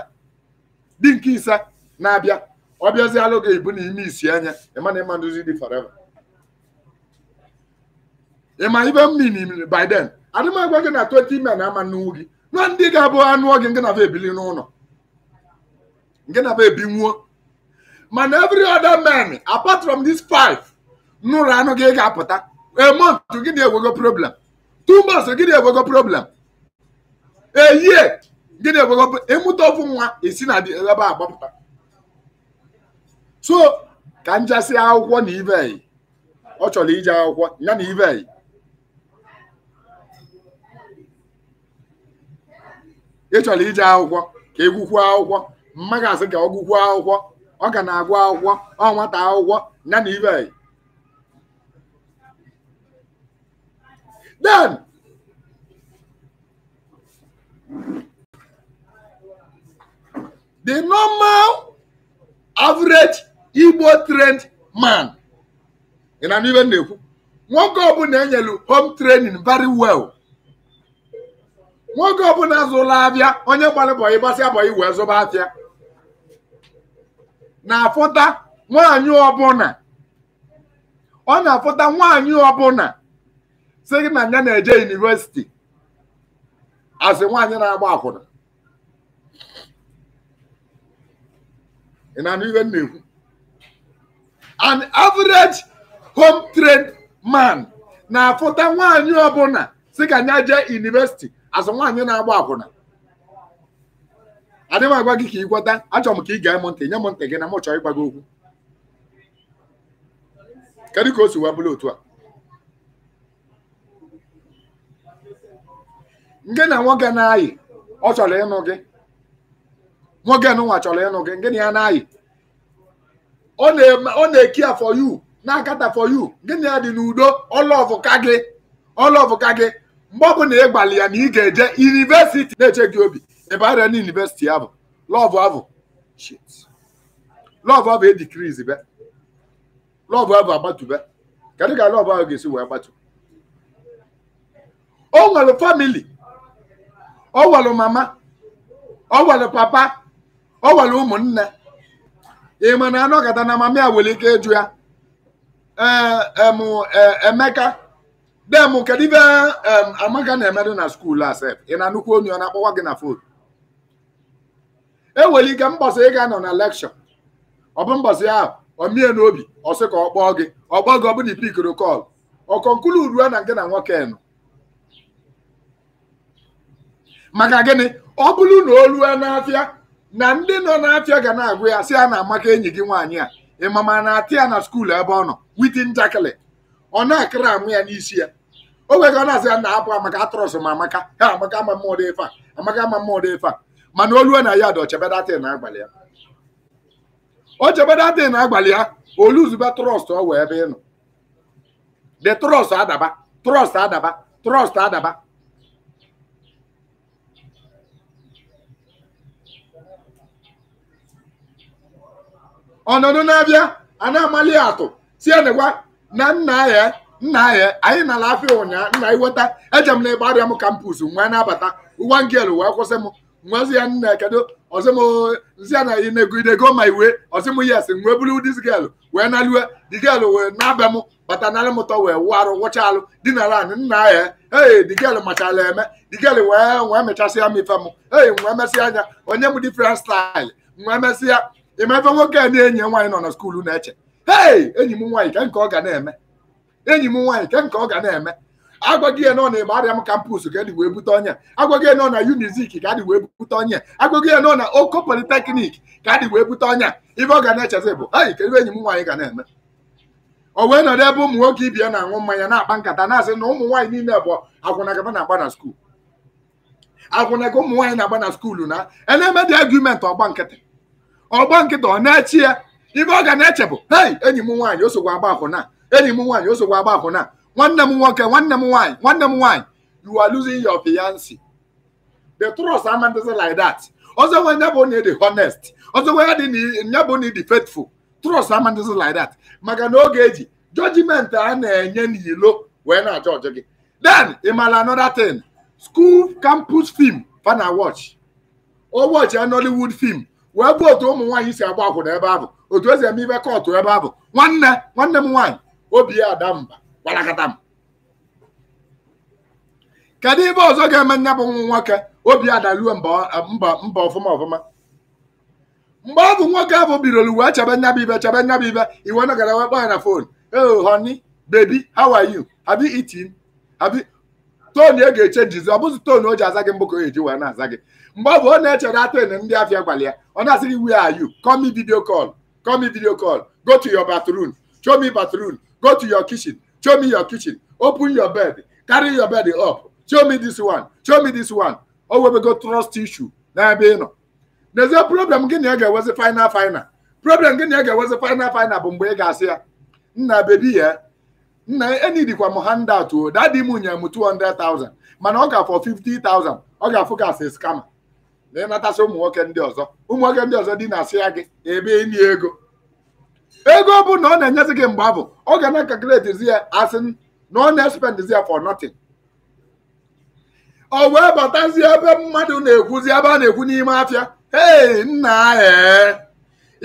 dị nke ise na-abịa ọ bịazialụ gị ibu na ime isi anya ịmana ịma nduzi dị forever ịma ibe m min by then adịmagwa gị na 20 men ama nnukwu gị na ndị ga-abụ anụ gị nke na ebili n'ụlọ nke na ebi ebinwuo mana every other man apart from these five n'ụlọ anụ gị ga-apụta a gị na-ewego problem two gị na-ewego problem eyie eh, gịnị bụ ịmụta ofu nwa esi na ebe a gbapụta so ka njasị akwụkwọ na ibe ọ chọrọ ije akwụkwọ ya na ibe ị chọrọ ije akwụkwọ ka egwukwuo akwụkwọ mmaga asị ka ọ gụkwuo akwụkwọ ọ ga na-agụ akwụkwọ ọ nwata akwụkwọ ya na ibe then The normal average Igbo trained man ị na even na-ekwu nwoke ọbụla enyelu home training very well nwoke ọbụla zụla abịa onye gbalịbọyị gbasị abọyị wee zụba afịa na-afụta nwaanyị ọbụla ọ na-afụta nwaanyị ọbụla sị na ya na-eje yunivesiti asị nwaanyị na-agba akwụna ị na-anụ ihe m na-ekwu an average home trained man na-afụta nwaanyị ọbụla si ka nya jee yunivesiti asị nwaanyị na-agba akwụna adị m agwa gị ka ị gwọta achọrọ m ka ị gaa m ntị nye m ntị gị na m chọọ ịgwa gị okwu kedu ka o si wee bụrụ otu a Nke na nwoke na-ayị ọ chọrọ ịnụ gị nwoke nụnwa chọrọ ịnụ gị nke na ya na-ayị ọ na-eki ya for you na-akata for you na ya dị n'udo ọlọvụka gị ọlọvụka gị mgbe ọ bụla ị gbalị ya na ị ga-eje yunivesiti na-eche gị obi ịbara na yunivesiti ya bụ lọvụ abụ lọvụ abụ edikrizi be lọvụ abụ agbatụbe kedu ka lọvụ ahụ ga-esi wee gbatu o nwere famili ọ welụ mama ọ welụ papa ọ welụ ụmụnne ị ma na anọgata na mama ya nwere ike ịjụ ya e, e, e, emeka dem kedu ibe amaka na-emedụ na skuulu asef ị na-anụkwu onye ọ na-akpọwa gị na fon e nwere ike mbọsị ga-anọ na lekshọ ọ bụ mbọsị ahụ omie n'obi ọsị ka ọ kpọọ gị ọ kpọọ gị ọ bụ na ipikoro kọl ọ ruo na nke na nwoke nọ maka gịnị ọ bụrụ na olu na n'afịa na ndị nọ n'afịa ga na-agụ ya si a na-amaka enyi gị nwaanyị a ịmama na-atị ya na skuulu ebe ọ nọ witi njakịlị ọ na-akịrị amụ ya n'isi ya o nwere ọ na-asị ya na abụ amaka atrọs ma amaka ha amaka ama mmụọdụ efe a amaka ama mmụọdụ efe a mana olu na ya dị na agbalị ya o chebedatị na agbalị ya trọst ọ wee ebe ị nọ de trọst adaba trọst adaba trọst adaba ọnọdụ na-abịa a na-amali atụ si enegwa na nna ya nna ya anyị nara afịa ụnyaahụ nna iweta eje m na ebe arịa m kampus nwa na-abata ụwa wee kwụsị m nwazi ya nna kedu ọzọmzi ya na i negidego ma iwe ọzịm yes nwee buru dis gelu wee naliwe digelu wee na-abịa m bata narị m ụtọ wee wụ arụ wụcha alụ dinara anị nna ya ee digelu machala eme digelu wee wee mechasịa m ife m ee wee mesịa anya onye m different style wee mesịa ị ma ebe nwoke a na enye nwaanyị nọ na skuulu na-eche hei enyi m nwaanyị ke nke ọ ga na-eme enyi m nwaanyị ke nke ọ ga na-eme agwaghị ya nọ na kampus ka e wee bute onye agwaghị ya nọ na Unizik ka adị wee bute onye agwaghị ya nọ na Oko Polytechnic ka dị wee bute onye ibe ọ ga na-echezi bụ hei kedu enyi m nwaanyị ga na-eme o wee nọrọ ebe ụmụ nwoke ibia na-aṅụ mmanya na-akpa nkata na-asị na ụmụ nwaanyị niile bụ agwụnagaba na-agba na skuulu agwụnaga ụmụ nwaanyị na-agba na skuulu na ena-eme ọgba nkịtị ọgba nkịta ọ na-echi ya ibe ọ ga na-eche bụ hei enyi m nwaanyị osogbu agba akwụna enyi m nwaanyị osogbu agba akwụna nwanne m nwoke nwanne m nwaanyị nwanne m nwaanyị you are losing your fiancé the trust amandịzi like that ọzọ nwe nya bụ na ịdị honest ọzọ nwe nya bụ na faithful trust amandịzi like that maka na oge eji judgment a na-enye n'ilo wee na-ajọ ọjọ gị then ị mara another thing school campus film fana watch o watch a Nollywood film wee gbuo otu ụmụ nwaanyị si agba akwụna ebe ahụ otu esi eme ibe kọtụ ebe ahụ nwanne nwanne m nwaanyị obi ya ada mba gbalakata m kedu ibe ọzọ ga-eme nne bụ nwa nwoke obi ya adaruo mba ọfụma ọfụma mgbe ọ bụ nwoke ahụ birolu wee chebe nya bụ ibe chebe nya bụ ibe iwe nọgara wee kpọọ ya na fon oh honi, bebi, how are you have you eaten have you ị ga-echenjizi ọ bụzi tone o ji aza gị mbụ ka o eji wee na-aza gị mgbe ọ bụ ọ na-echere atụene ndị afịa gwara ya ọ na-asịrị where are you call me video call call me video call go to your bathroom show me bathroom go to your kitchen show me your kitchen open your bed carry your bed up show me this one show me this one o webego trust issue n'ebe ị nọ n'ezie problem gị na ị ga-ewezi final final problem gị na ị ga-ewezi final final bụ mgbe ị ga-asị ya nna bebi ya nna enidikwa m handout o dadi m nye m 200,000 mana ọ ga-afọ 50,000 ọ ga-afụ ka asị skama na ịnatasị ụmụ nwoke ndị ọzọ ụmụ nwoke ndị ọzọ dị na-asị ya gị ebe ịnye ego ego bụ na ọ na-enyezi gị mgbe abụ ọ ga na-akakretizi ya asị na ọ na-espendizi ya for notin ọ wee batazi ebe mmadụ na-ekwuzi ebe a na-ekwu n'ime afịa hei nna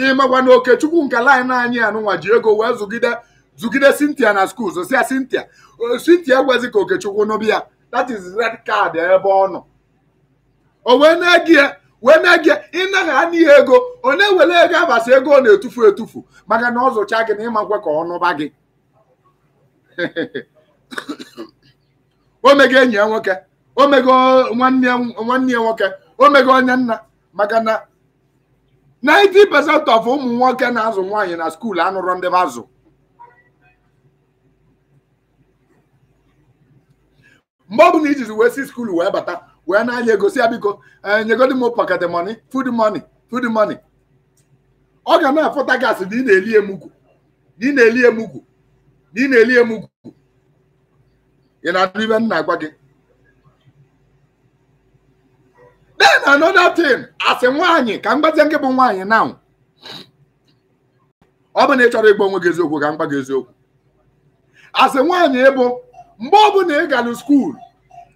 ịmakwa na okechukwu nke laịn anyị anụnwa ji ego wee zụgide zụgide Cynthia na skuul zosia Cynthia Cynthia gwezi ka okechukwu n'obi ya that is red card ebe ọ nọ o wee na-egi ya wee na-egi ya a n'ihe ego onye na ego abasị ego ọ na-etufu etufu maka na ọ gị na ịmakwa ka ọnụba gị o mego enyi ya nwoke o mego nwanne ya nwoke o mego onye nna maka na 90% of ụmụ nwoke na-azụ nwaanyị na skuul anụrọ ndị azụ mgbe ọ na ijizi wee si skuul wee bata wee na-anya egosi ya biko eh, nyegodi m pocket money food money food money ọ ga na-afụta gasị na ị na-eli emugwu na ị na-eli emugwu na ị na-eli emugwu ị na-adụ ibe m na-agwa gị then another thing asị nwaanyị ka m gbazie nke bụ nwaanyị now ọ bụ na ị chọrọ ịgba onwe gị eziokwu ka m gba gị eziokwu asị nwaanyị ịbụ mgbe ọ bụ bụla ị gara skuul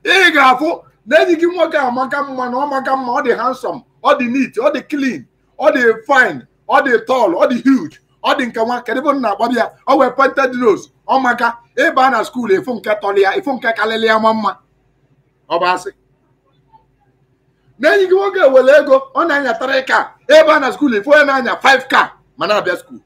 ị ga-afụ na enyi gị nwoke amaka mma na ọ maka mma ọ dị handsome ọ dị neat ọ dị clean ọ dị fine ọ dị tall ọ dị huge ọ dị nke nwa kedụ bụ nna agbabi ya ọ nwee pointed nose ọ maka ịba na skuul efu nke tọrọ ya efu nke karịrị ya ma mma ọ bụ asị na enyi gị nwoke were ego ọ na-anya tara ka ebe na skuul efu onye na-anya 5 ka ma na-abịa skuul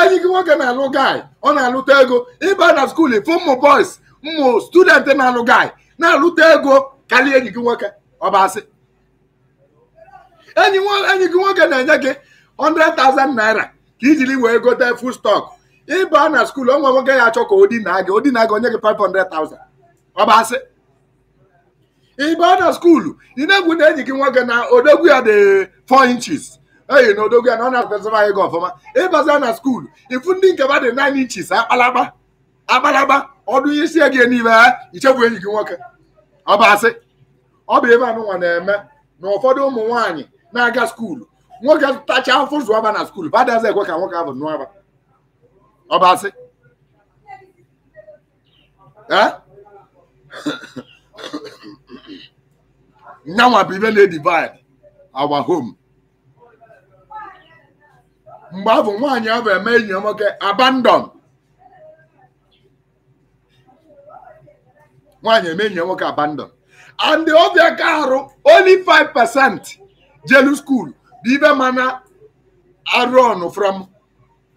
enyi gị nwoke na-alụ guy ọ na-alụta ego ịba na skuul efu ụmụ boys ụmụ student na-alụ guy na-alụta ego karịa enyi gị nwoke ọ asị enyi gị nwoke na-enye gị 100,000 naira ka ijiri wee gote full stock ịba na skuul onwe nwoke ya achọ ka odina gị odina gị onye gị 500,000 ọ asị ịba na skuulu ị na-egwu na enyi gị nwoke na odogwu ya dị 4 inches eyi na odogwu ya na ọ na-akpesịba anyị gị ọfụma ịbaza na skuulu ifu ndị nke ba dị 9 inches akpalakpa agbalagba ọdụ ihe isi gị niile ha eh? ichekwa enyi gị nwoke ọ bụ asị ọ bụ ebe anụnwa na-eme na ụfọdụ ụmụ nwanyị na-aga skuulu nwoke tacha afọ zụaba na skuulu badazi ekwe ka nwoke ahụ nụaba ọ bụ asị eh? nyanwa bụ ibe na-edivid awa home mgbe ahụ nwaanyị ahụ eme enyi nwoke abandon nwaanyị eme enyi nwoke abandon and ọfịaka arụ only 5 percent jelu skuul dị ibe mana arụọnụ from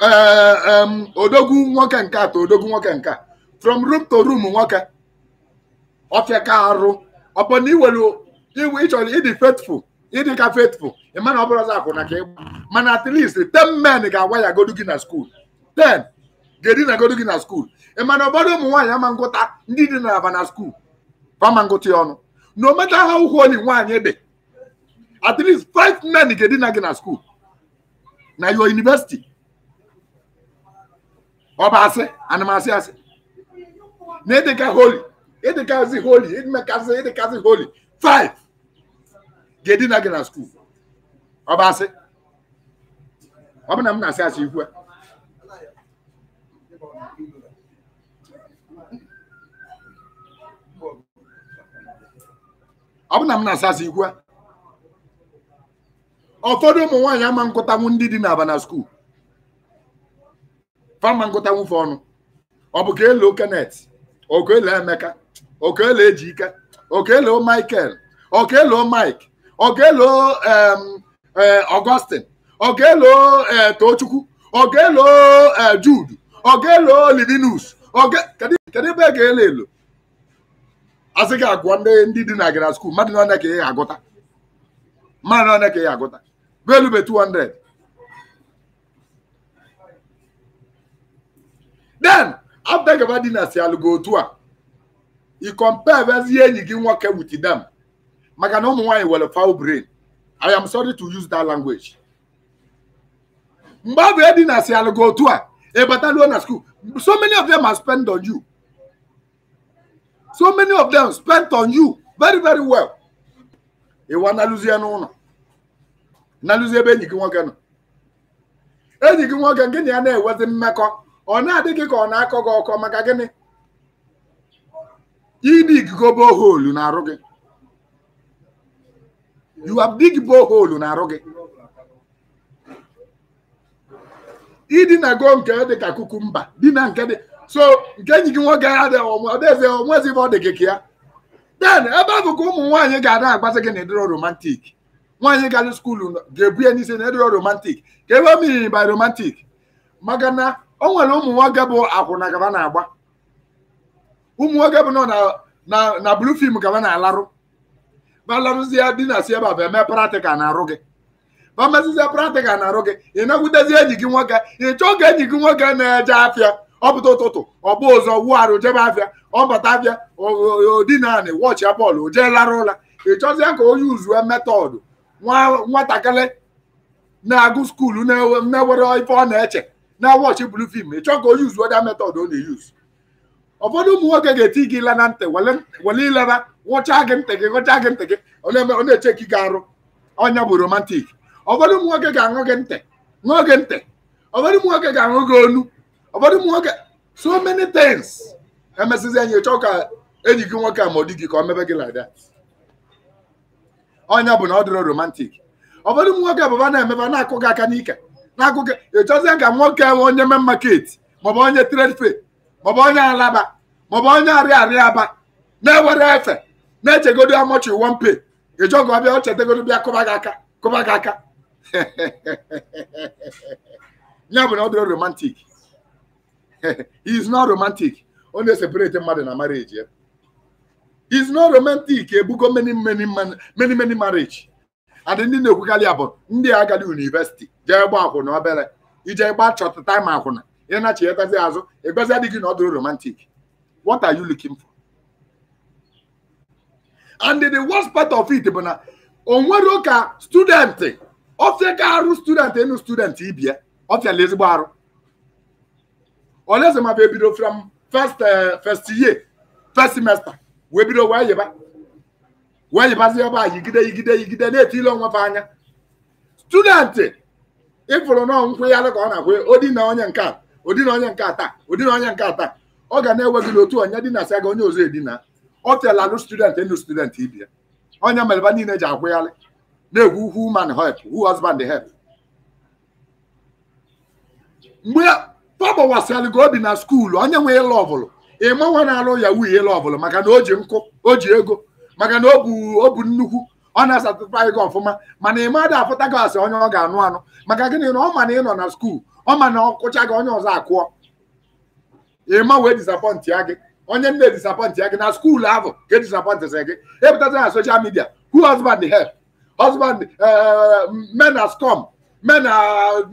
eh, odogwu nwoke nke ta odogwu nwoke nke from room to room nwoke ofiaka arụ ọpọna iwelu ịchọrọ ịdị faithful ịdị ka faithful ịma na ọ bụrụ ọzọ akwụna ka ịgba mana at least 10 men ga-agwa ya godu gị na skuul 10 ga-edi na godo gị na skuul ị mana ụfọdụ ụmụ nwaanyị amangụta ndị dị na aba na skuul ama ngụta ya ọnụ na ometa ha ụkwụ onye nwaanyị dị at least five men ga-edi na gị na skuul na yo yunivesiti ọ bụ asị anụmasị asị na ịdịka holi ịdịkazi holi ịdịmekasị ịdịkazi holi five ga-edi na gị na skuul ọ bụ asị ọ bụ na m na-asị asị ikwu a ọ na m na-asasị ikwu ụfọdụ ụmụ nwaanyị ama nkụtanwu ndị dị na abana skuul fama nkụtanwu fe ọnụ ọ bụ ka ele okenet okele emeka okele ejike okele michael okele mike okele augustin okele e, tochukwu okele e, jude okele livinus kedu ebe e ga ele elo asị gị agwa ndị dị na gị na skuul mmadụ na ka ị agụta mmadụ na ka ị agụta value be 200 then afta gaba dị na si alụgo otu a i compare vezie enyi gị nwoke wit them maka na ụmụ nwaanyị were fowl brain i am sorry to use that language mgbe abụ edina si alụgo otu a ịbataluo na skuul so many of them are spend on you so many of them spent on you very very well ịwa nalụzie n'ụlọ nalụzie ebe enyi gị nwoke nọ enyi gị nwoke gị na ya na-enwezi mmekọ ọ na adịghị gị ka ọ na-akọ gị ọkọ maka gịnị ịdị igigo boholu na-arụ gị you have na-arụ gị ịdị na go nke dị ka kukumba dị na nke dị so nke enyi gị nwoke ya dị ọdaeze onwezi ebe ọ dị gị ka ya den ebe ahụ ka ụmụ nwaanyị ga-ada agbazi gị na ediro romantik nwaanyị gara skuulu ga-ebu ya n'isi na ediro romantik ka ebe mmiri by romantik maka na o nwere ụmụ nwoke bụ akwụna gaba na-agba ụmụ nwoke bụ nọ na blu fim gaba na-alarụ ma larụzie di na si ebe a bụ eme pratikal na-arụ gị ma mezizie pratikal na-arụ gị ị nakwutezie enyi gị nwoke ị chọọ ka enyi gị nwoke na-eje afịa ọ pụta ụtụtụ ọ bụ ụzọ wụ arụ jebe abịa ọ bata abịa odinanị wọchị ya bọọlụ oje lara ụla ị chọzie ka onye uzuwe metọdụ nwatakịrị na-agụ skuulu na-ewere ife ọ na-eche na wọchi bulu fim ị chọọ ka onye uzuwe da metọdụ ọ na-eyuz ụfọdụ ụmụ nwoke ga-eti gị ila na ntị wele ilera nwụcha gị ntị gị gụcha gị ntị gị ọ na-eche ka ị ga-arụ ọnya bụ romantik ụfọdụ ụmụ nwoke ga-aṅụ gị ntị ṅụọ ntị ụfọdụ ụmụ nwoke ga-aṅụ gị onu ụfọdụ ụmụ nwoke so many things emesizi enyi chọọ ka enyi gị nwoke a ma di gị ka ọ mebe gị like that ọnya bụ na ọ dịrọ romantik ụfọdụ ụmụ nwoke bụba na-emebe na-akụ gị aka n'ike na-akụ gị ịchọzie ka nwoke nwe onye me market maọbụ onye trade fair maọbụ onye alaba maọbụ onye arịa arịa aba na-ewere efe na-echegodo amọchi one pay ịchọga ọbịa ọ chetegodo bịa kụba gị aka kụba gị aka ya bụ na ọ dịrọ romantik. he is not romantic ọ na-eseparate mmadụ na marriage ya is not romantic ebugo many many many many marriage and ndị na-ekwukarị ya bụ ndị agadi university jee gba akwụna obere ije gba chọta time akwụna ị na-achịghetazi azụ ịgọzi adịghị na ọ dụrụ romantic what are you looking for and the worst part of it bụ na onwere ụka ka student ọfịa arụ student enu student ibia ọfịala ezigbo arụ Ọlụeze ma ebido from first eh, first year first semester wee bido wee yiba wee yibazie a yigide yigide yigide na-eti ile onwe anya student ịfụrụ nọọ nkwụgharị ka ọ na-akwụ odi na onye nka a odi na onye nke a taa odi na onye nke a taa ọ ga na-ewe gị otu onye na sị gị onye ọzọ edina ọ tela alụ student enu student ibi ya onye mereba niile ji akwụgharị na-egwu who man help who husband help mgbe tọgbawasịalụ gị obi na skuulu onye nwe ịlụ ọbụlụ ịmanwa na-alụ yahu ihe ịlụ ọbụlụ maka na o ji nkụ o ji ego maka na o bu nnukwu ọ na-asatụta gị ọfụma mana ị madụ afụta gị asị onye ọ ga-anụ anụ maka gịnị na ọ ma na ị nọ na skuulu ọ ma na ọkụcha gị onye ọzọ akụọ ịma wee disapọntị ya gị onye nne disapọntị ya gị na skuulu ahụ ka edisapọntịsị gị epụtata na soshal midia hu husband help husband eh, men are scum men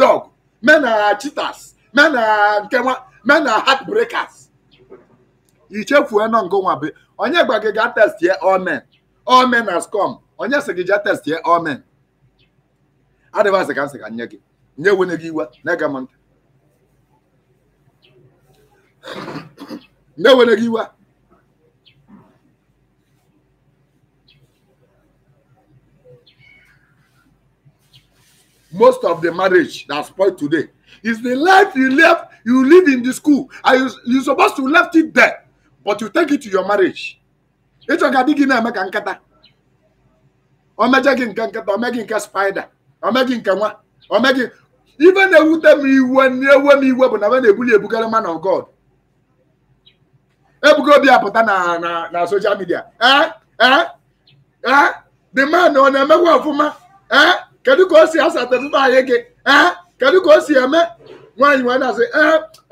dog men are cheaters men are uh, nke nwa men na uh, heartbreakers ichefuo nọ nke nwa be onye gwa gị gaa test ye all men all men has come onye si gị jee test ye all men adịvasị ka nsị ka nye gị nye nwunye gị iwe na-ege m ntị nye nwunye gị iwe most of the marriage that's spoiled today Is the life you live, you live in the school. Are you you supposed to left it there, but you take it to your marriage. It's a gadi gina meka nkata. O meje gị nke nkata, o meje nke spider, o meje nke nwa, o meje ife na-ewute m iwe na-ewe m iwe bụ na m na-ebuli ebugara man of God. Ebugo obi apụta na na na social media. Eh? Eh? Eh? The man ọ na-emekwa ọfụma? Eh? Kedu ka o si the anyị gị? Eh? kedu ka o si eme nwaanyị nwe na-asị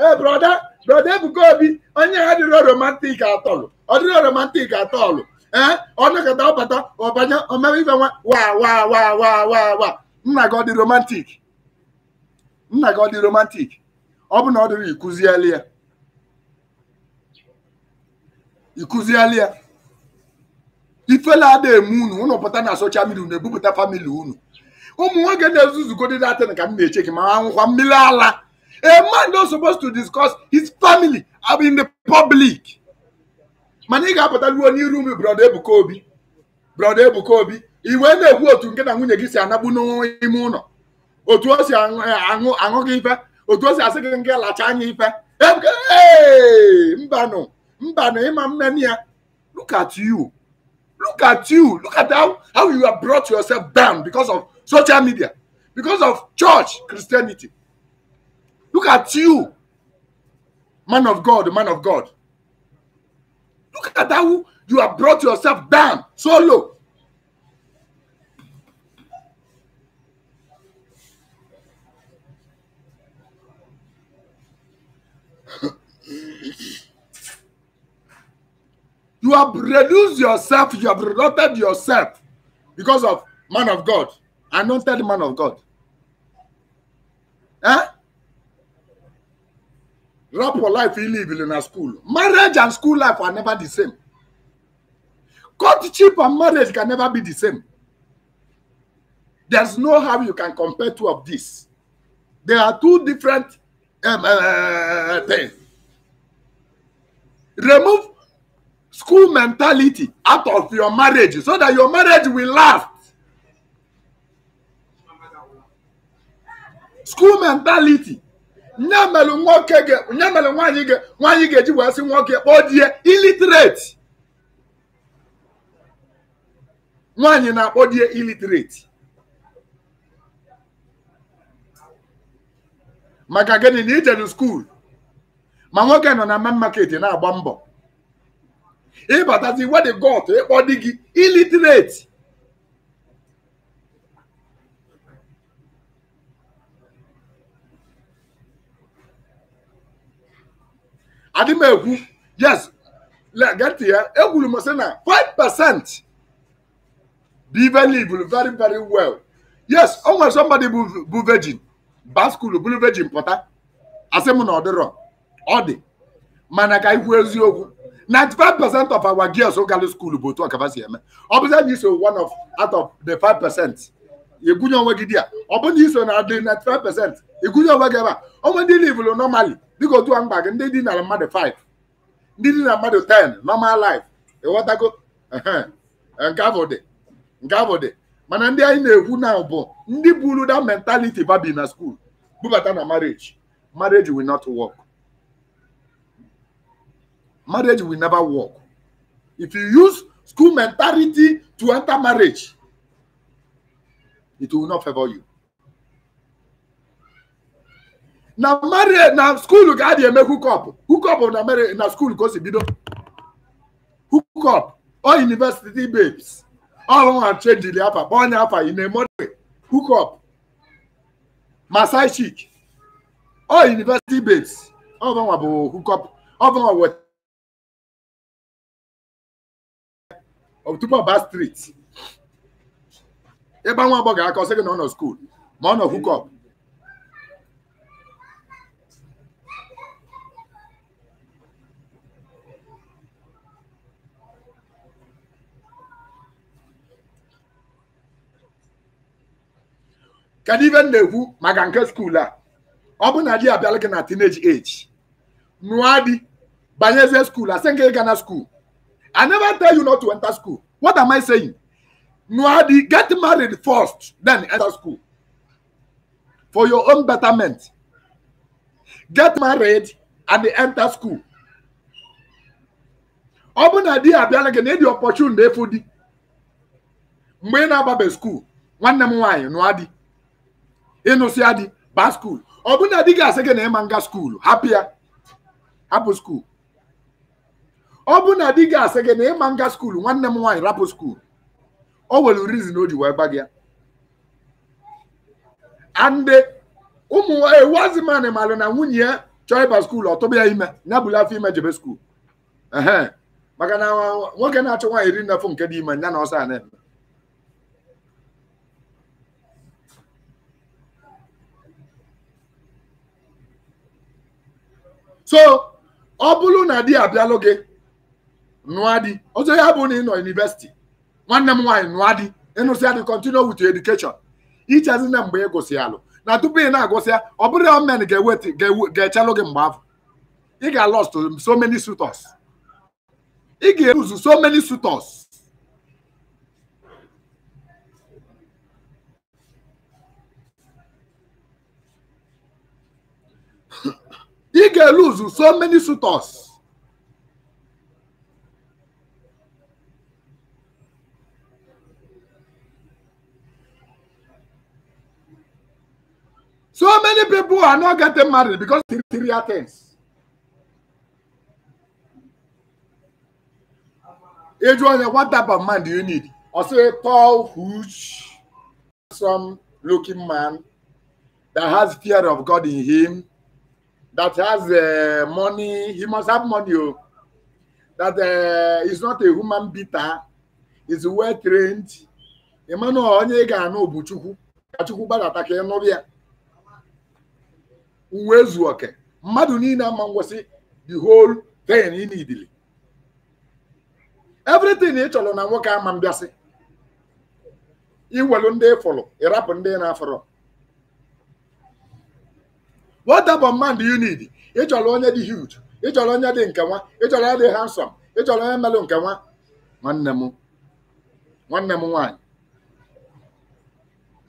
ee brọda brọda Ebuka Obi onye ha dịrọ romantik atọlụ ọ dịrọ romantik atọlụ ee eh, ọ nakọta ọbata ọbanye omebe ife nwa wa wa wa wa wa nna gị ọ dị romantik nna gị ọ dị romantik ọ bụ na ọ dịrị ikụzieli ya ikụzieli ya ifela ada eme unu unu pụta na soshal midia unu ebupụta famili unu ụmụ nwoke na-ezuzugodi datin ka m na-eche gị ma anwụkwa mmiri ala a man not supposed to discuss his family in the public mana ị ga-apụta ruo n'iru m brọda Ebuka Obi brọda Ebuka Obi iwe na-ekwu otu nke na nwunye gị si anagbu n'ime ụlọ otu o si aṅụ gị ife otu o si asị gị nke lacha anya ife mbanụ mbanụ ịma mmeni ya look at you look at you look at how, how you have brought yourself down because of social media because of church Christianity. Look at you, man of God, man of God. Look at how you have brought yourself down so low. you have reduced yourself, you have reduced yourself because of man of God anointed man of God. Eh? Rap for life, you live in a school. Marriage and school life are never the same. Courtship and marriage can never be the same. There's no how you can compare two of these. They are two different um, uh, things. Remove school mentality out of your marriage so that your marriage will last. school mentality nye mere nwoke mere nwaanyị nwaanyị ga-eji wee sị nwoke kpọọ di ya nwaanyị na-akpọ di ya illiterate maka gịnị na ijeru skuul ma nwoke nọ na man market na-agba mbọ ịbatazi wedi got ịkpọ di gị illiterate adị egwu yes geti ya egwuru m na 5% biveliv very very well yes o nwere somebody bụ virgin baskul bụrụ virgin pụta asị m na ọ dịrọ ọ dị mana ka ikwu eziokwu 95% of our girls gara skuul bụ otu ọkaba si eme ọ bụzi anyị so one of out of the 5% ịgwụnye onwe gị dị a ọ bụrụ na iso na adị 95% ikuzi onwe gị ebe a onwe ndị livụlụ normally? dịka otu a mkpa and ndị dị na mmadụ 5 ndị dị na mmadụ 10 normal life ịghọtago eh, nke afọ dị nke gavode dị mana ndị anyị na-ekwu na bụ ndị buru that mentality babi na school bubata na marriage marriage will not work marriage will never work if you use school mentality to enter marriage it will not favor you na mari na skuulu ka a dị eme hukọp hukọp na mari na skuulu ka o si bido hukọp o university babes ọhụrụ chenjili afa kpọọ onye afa ị na-emodwe hukọp masai chik o university babes ọbụnwa bụ hukọp ọbụnwa weta tupu ọba striti ịgba nwa agbọghọ aka ọ sị gị na ọ nọ skuulu ma ọ nọ hukọp Can even m na-ekwu maka nke skuul a ọ bụ na abịala gị na teenage age nụọ di banyezie skuul asị nke ịga school. i never tell you not to enter school what am i saying nụọ di get married first then enter school for your own betterment get married and enter school ọ bụ na di abịala gị na ịdị opportunity efu di mgbe ị na-agbabe skuul nwanne m nwaanyị nụọ di ịnụsịa di baa skuulu ọ bụrụ na di gị na ịma nga skuulu hapụ ya hapụ skuulu ọ bụrụ na di gị gị na ịma nga skuulu nwanne m nwaanyị rapụ skuulu o nwere na o ji wee gba gị ya ande ụmụ ewu azịmanị maara na nwunye ya chọọ ịba skuulu ọ tụba ya ime ya afọ ime jebe skuulu maka na nwoke na-achọ nwaanyị iri nnafọ nke dị ime ya na ọsọ a na-eme so ọ bụrụ na di abịalụ gị nụọ di ọzọ ya bụ na ị nọ yunivesiti nwanne m nwaanyị nụọ di ịnụsịa dị continue wit your education ichezi na mgbe ị gụsị alụ na tupu ị na-agụsịa ọ bụrụ na men ga-eweta ga-echelụ gị mgbe afọ ị ga-alọst so many ị ga-eruzu so many suitors He can lose so many suitors. So many people are not getting married because Syria things. Adrian, what type of man do you need? I say tall, huge, handsome looking man that has fear of God in him that has uh, money, he must have money. Oh. That uh, is not a human beater, is well trained. Emmanuel onye ga-anụ bụ Chukwu ka Chukwu gbadata ka ịnụrụ ya uwe zuo mmadụ niile ama ngwasị the whole thing ị nidili everything ị chọrọ na nwoke ama mbịasị iwelu ndị ịfụrụ ịrapụ ndị na-afụrụ what type of man do you need ị chọrọ onye dị huge ị chọrọ onye dị nke nwa ị chọrọ onye dị handsome ị chọrọ onye melụ nke nwa nwanne m nwanne m nwaanyị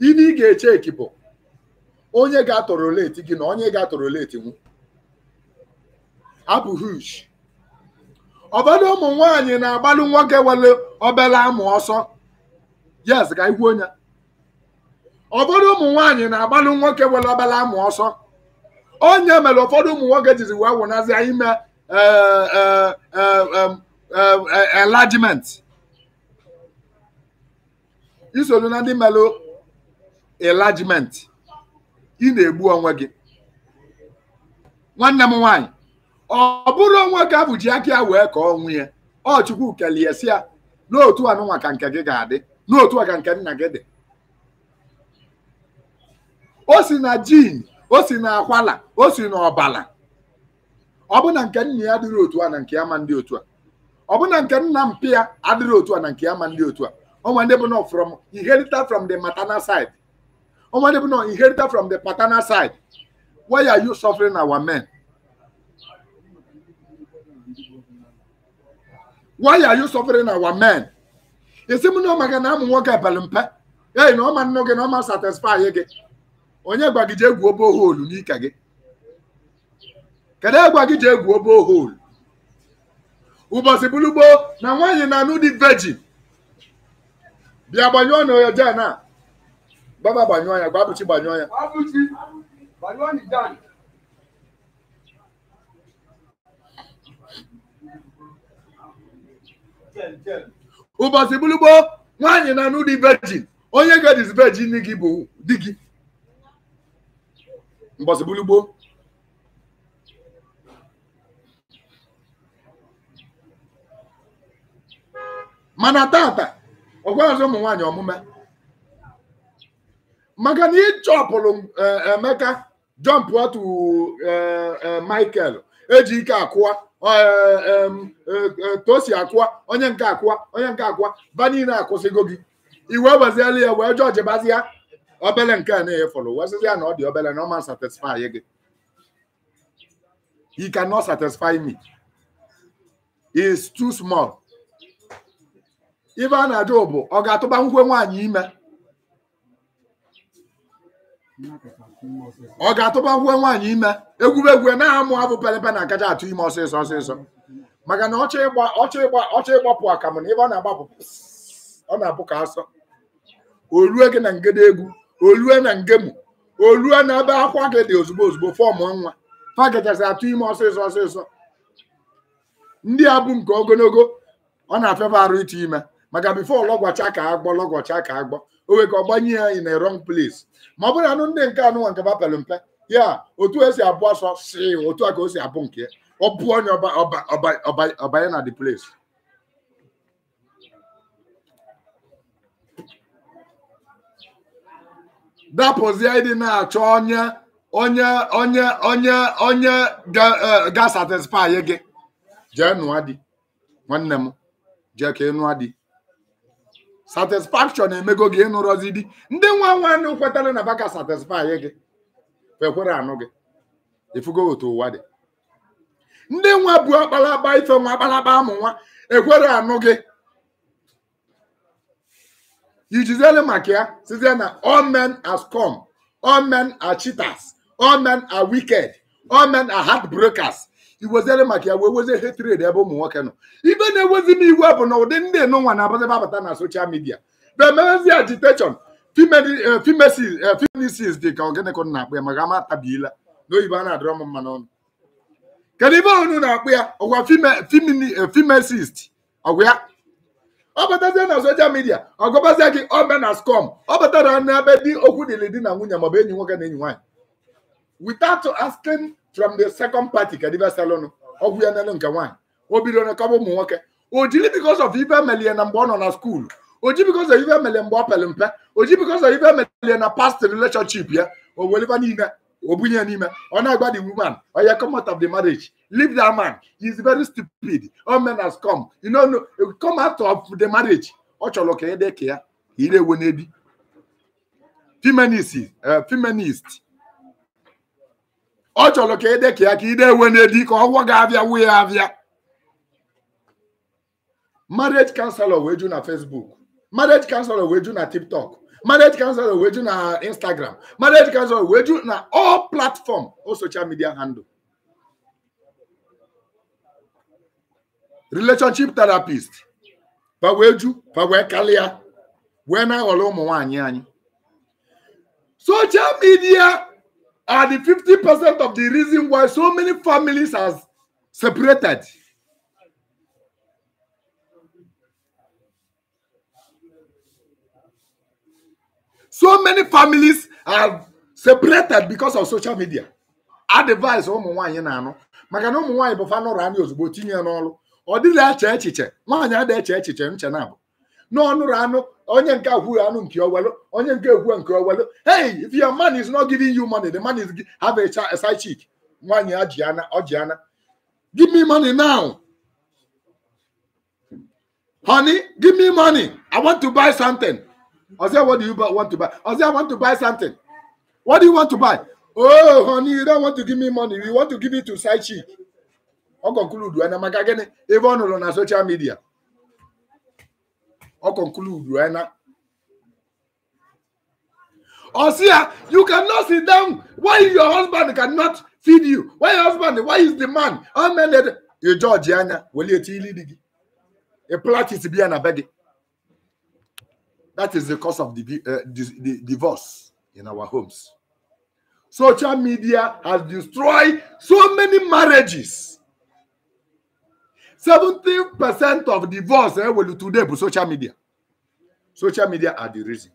ibe ị ga-eche ekipụ onye ga-atọrọleti atọrọ gị na onye ga-atọrọleti atọrọ nwu abụ huge ọbọdụ ụmụ nwanyị na-agbalụ nwoke nwere obere amụ ọsọ yes ka ikwuo onye ọbọdụ ụmụ nwanyị na-agbalụ nwoke nwere obere amụ ọsọ onye mere ụfọdụ ụmụ nwoke jiri wee wụnazịa ime e, e, e, enlargement isoro na ndị mere enlargement ị na-egbu onwe gị nwanne m nwaanyị ọ bụrụ onwe ka bụ ji aka ya wee ka ọ ya ọ chukwu kelie si ya n'otu anụnwaka ka nke gị ga-adị n'otu a ka nke nna gị dị o si na jin o si na akwala o si na ọ bụ na nke nna ya adịrị otu a na nke ama ma ndị otu a ọ bụ na nke nna mpi ya adịrị otu a na nke ama ma ndị otu a onwe ndị bụ from inherited from the maternal side onwe ndị bụ na inherited from the paternal side why are you suffering our men why are you suffering our men esi m na ọ maka na amụ nwoke abalị mpe ei na ọma nnu gị na ọma satisfy gị onye gwa gị jee gwuo boholu n'ike gị kedu egwa gị jee gwuo boholu ụbọchị bụlugbo na nwaanyị na-anụ dị vejin bịa gbanyụọ na oyo jan a baba gbanyụọ ya gwa gbanyụọ ya ụbọchị bụlugbo nwaanyị na-anụ dị vejin onye ga-edizi vejin gị bụ di gị mgbọsị gbulugboo mana tata ọgwa ụmụ nwanyị ọmụma maka na ịchọpụrụ Emeka jọmpụ otu Michael eji ike akụwa eh, eh, eh, tosi akụwa onye nke akụwa onye nke akụwa ba niile akwụsịgo gị iwe weziela ya wee jọjibazi ya obele nke a na-enye fọlọ wesịzi ya na ọ dị obele na ọ ma satisfy gị he cannot satisfy me he is too small ibe a na-ajụ ọ ga-atụba nkwe nwaanyị ime ọ ga-atụba nkwe nwaanyị ime egwuregwu na-amụ abụ pelepe na akaja atụ ime ọsịsọ ọsịsọ maka na ọchọ ịgba ọchọ ịgba ọchọ ịgbapụ akamụ na ebe ọ na-agbapụ ọ na-abụ ka asọ o rue gị na ngede egwu olue na ngemu olue na ebe akwa gị dị ozugbo ozugbo fọm nwa paketasi atụ ime ọsịsọ ọsịsọ ndị a bụ nke ogologo ọ na-afịafe arụ ịtụ ime maka bifo lọgwacha ka agbọ lọgwacha ka agbọ o nwere ka ọ gbanye ya in a rọng place ma ọ bụrụ anụ ndị nke anụnwa nke bapelụ mpe ya otu esi abụ ọsọ si otu a ka o si abụ nke ọ pụọ onye ọbanye na the place dapụzie ịdị na-achọ onye onye onye onye onye ga-satisfy e, gị jee nụọ di nwanne m jee ka ị nụọ satisfaction emego gị ịnụrọzi di ndị nwa nwanne kwetara na baka satisfy gị ekwere anụ gị ifugo otu ụwa dị ndị nwa bụ akpalakpa ife nwa akpalakpa amụ nwa ekwere anụ gị ijiziele maka ya na all men has come all men are cheaters all men are wicked all men are heartbreakers ya wee wezie hatred ebe ụmụ nwoke nọ ibe na-ewezi m iwe bụ na ụdị ndị enụnwa na-abazi abata na social media bemezi agitation femenisis eh, eh, dị ka ogenekọ na-akpụ ya maka ama atabiela na-adịrọ m mma n'ọnụ kedu ibe unu na-akpụ ya ọ batazie na soshal midia ọ gọbazie gị ome na skom ọ batara n'ebe dị okwu dịrị di na nwunye maọbụ enyi nwoke na enyi nwaanyị without asking from the second party ka dịbịa salụnụ ọgwụ ya n'elu nke nwaanyị o bidoro kọba ụmụ nwoke o jiri because of ife melie na mgbe ọ nọ na skuulu oji because of ife melie mgbe ọ pere mpe ji because of ife melie na past relationship ya o weliba niile obunya nime onagba the woman you come out of the marriage leave that man he is very stupid all men has come you know no come out of the marriage ọ chọrọ ka ede ka ya ire eh, feminist uh, feminist ọ chọrọ ka ede ka ya ka ire ewe n'ebi ka ọgwọ marriage counselor wee na facebook marriage counselor wee ju na tiktok marriage counsel weju na instagram marriage counsel weju na all platform all social media handle relationship therapist fa wee ju fa wee kalịa wee na-aghọrọ ụmụ nwaanyị anyị social media are the fifty percent of the reason why so many families has separated so many families are separated because of social media advice ụmụ nwanyị na-anụ maka na ụmụ nwaanyị bụ fanụrụ anya ozugbo tinye ya n'ọrụ ọ dịla eche echiche nwaanyị ada eche echiche nche na abụ n'ọnụrụ anụ onye nke agwụghị anụ nke owelu onye nke egwu nke owelu hey if your man is not giving you money the man is have a side chick nwaanyị ajiana ọjiana give me money now honey give me money i want to buy something I what do you want to buy? I I want to buy something. What do you want to buy? Oh, honey, you don't want to give me money. You want to give it to side chick. Uncle Kuludu and Magagene, even on social media. Uncle Kuludu and Osia, you cannot sit down. Why your husband cannot feed you? Why your husband? Why is the man? How many? You Georgiana, will you tell you? A plot is being a begging. That is the cause of the, uh, eh, the divorce in our homes. Social media has destroyed so many marriages. 70% of divorce eh, will today be social media. Social media are the reason.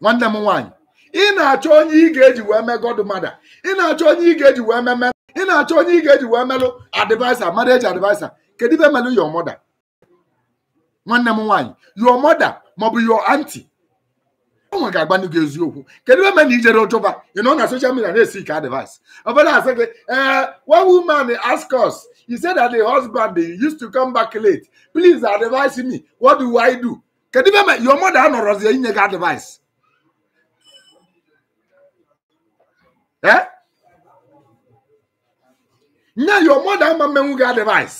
One number one. In na-achọ onye ị ga-eji wee godmother In na-achọ onye ị ga-eji wee mee ị na-achọ onye ị ga-eji wee melụ advisor marriage advisor kedu ibe melụ your mother nwanne m nwaanyị your mother maọbụ your auntie nwa ga-agba gị eziokwu kedu ebe na ijere ụjọba ị nọ na social media na-esi ike advice ọbụla asị gị ee one woman ask us he said that the husband they used to come back late please advise me what do i do kedu ebe your mother anọrọzie inye gị advice eh? nye your mother ama mmenwu gị advice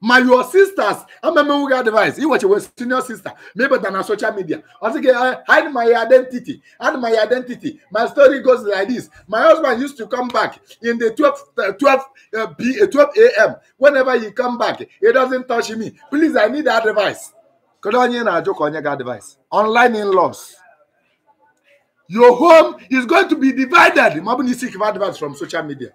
My your sisters amemewuga advice You watch your senior sister maybe than on social media I think I hide my identity hide my identity my story goes like this my husband used to come back in the 12 uh, 12 uh, b 12 uh, a.m whenever he come back he doesn't touch me please i need advice kedu onye na-ajụ ka advice online in-laws your home is going to be divided ma ọ bụ advice from social media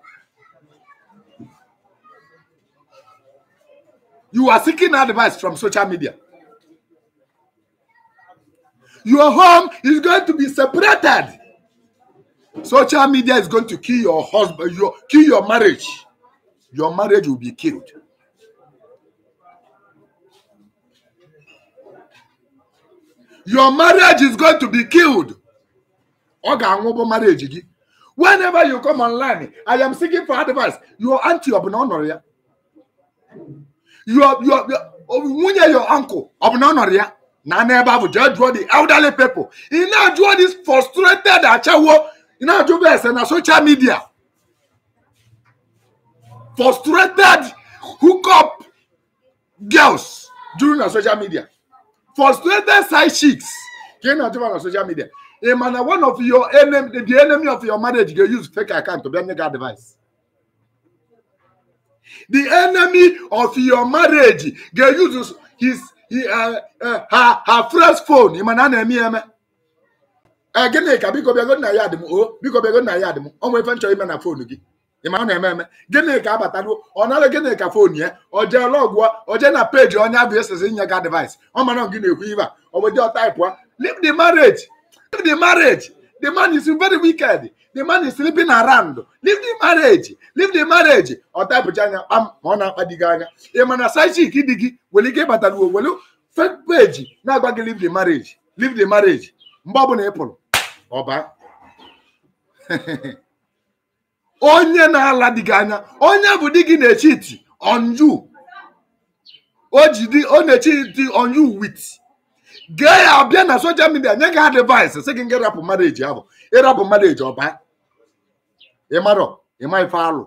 You are seeking advice from social media. Your home is going to be separated. Social media is going to kill your husband, your, kill your marriage. Your marriage will be killed. Your marriage is going to be killed. marriage. Whenever you come online, I am seeking for advice. Your auntie, your your nwunye your uncle ọ bụ na ọ nọrọ ya na n'ebe ahụ jee jụọ the elderly people ị na-ajụọ this frustrated achawo ị na-ajụba ese na social media frustrated hookup girls juru na social media frustrated side chicks ka ị na-ajụba na social media ị ma na one of your enemy the enemy of your marriage ga use fake account bịa nye gị advice the enemy of your marriage ga-use his uh, uh, her her first phone ị ma na a na-eme ya eme e, gịnị ka biko bịago nna ya dị m o biko bịago nna ya dị m ọ nwe ife nchọ ime na foonu gị ị na-eme eme gịnị ka abataruo ọ nara gịnị ka foonu ya ọ jee lọgụọ ọ jee na peji onye abụ esezi nye ga device ọ mara gị na-ekwu ibe a ọ bụ dị ọtaipụ leave the marriage leave the marriage the man is very wicked the man is sleeping around leave the marriage leave the marriage ọ tapụcha anya kpam ma ọ na-akpa di gị anya ị ma na saichik di gị nwere ike ịbatara uwe were fake page na-agba gị leave the marriage leave the marriage mgbe ọ bụla ị pụrụ ọba onye na-ala di gị anya onye bụ di gị na-echi iti on you o ji di ọ na-echi iti on gee ya bịa na social midia nye gị advice sị gị nga rapụ marriage ahụ ịrapụ marriage ọba ịmarọ ịma ife alụ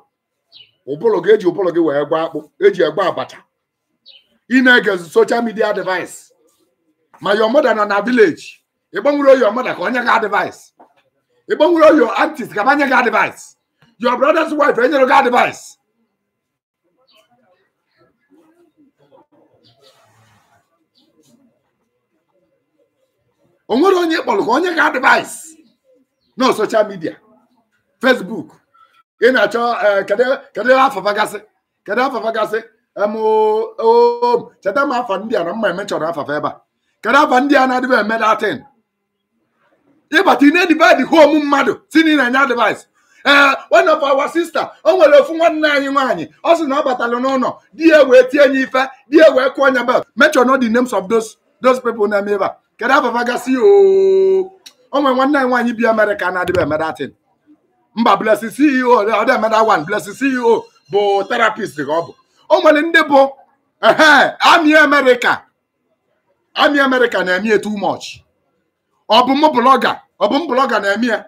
ụbụrụ gị eji ụbụrụ gị wee gwa akpụ eji egwe abacha ị na-ege social media device ma your mother nọ na village ịgbanwere oyi mother ka onye gị advice ịgbanwere your aunties ka anye gị advice your brother's wife enyere gị advice o nwere onye kpọrọ ka onye gị advice na social media Facebook ị na-achọ e, kedu afafagasị kedu afafagasị cheta m afọ ndị a na mma emechọrọ afafa ebe a kedu afa ndị a na-adịbe eme datin ịbata ine divid home mmadụ si na ị na-enye advice ee one of our sister o nwere ofu nwanne anyị nwaanyị ọ sị na ọ batara n'ụlọ di ya wee tie nye ife di ya wee kụọ nya bel mention all the names na-eme ebe a kedu o nwere bi Amerịka na-adịbe mba blessing ceo another one blessing ceo bụ therapist ka ọ bụ o nwere ndị bụ ami America. ami amerịka na-eme ya too much ọ bụ m blọga ọ bụ m blọga na-eme ya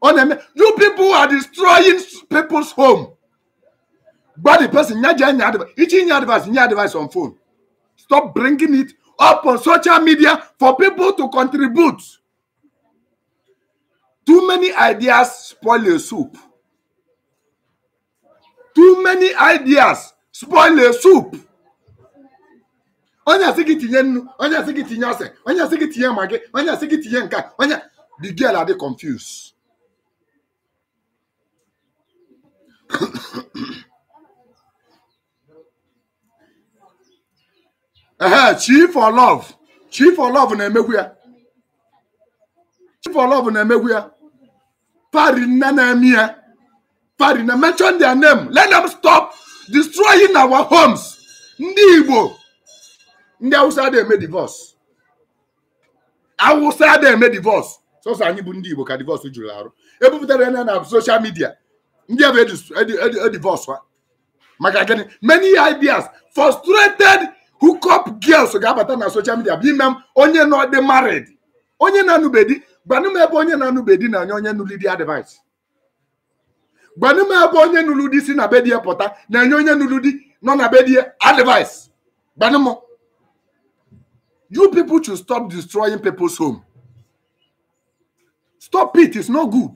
ọ na-eme you people are destroying people's home gba the person nye je nye advice ichi nye advice nye advice on phone stop bringing it up on social media for people to contribute too many ideas spoil a soup too many ideas spoil a soup onye asị gị tinye nnu onye asị gị tinye ose onye asị gị tinye magi onye asị gị tinye nke onye the girl are adị confused ehe chief for love Chief for love na-emegwu ya chi for love na-emegwu ya Farina Namia. Farina, mention their name. Let them stop destroying our homes. Ndị Igbo. Ndị Hausa na eme divorce. Hausa na eme divorce. Sọsọ anyị bụ ndị Igbo ka divorce juru arụ. Ebupụtara ya na social media. Ndị ebe e e e divorce ha. Maka gịnị? Many ideas frustrated hookup girls ga-abata na social media bụ ime onye nọ dị married. Onye na-anụbeghị gbanụ m ebe onye na-anụ bedi na anya onye nụlụ di advice gbanụ m ebe onye nụlụ di si na bedie pụta na enye onye nụlụ di nọ na bedie advice gbanụ m you people should stop destroying people's home stop it it's no good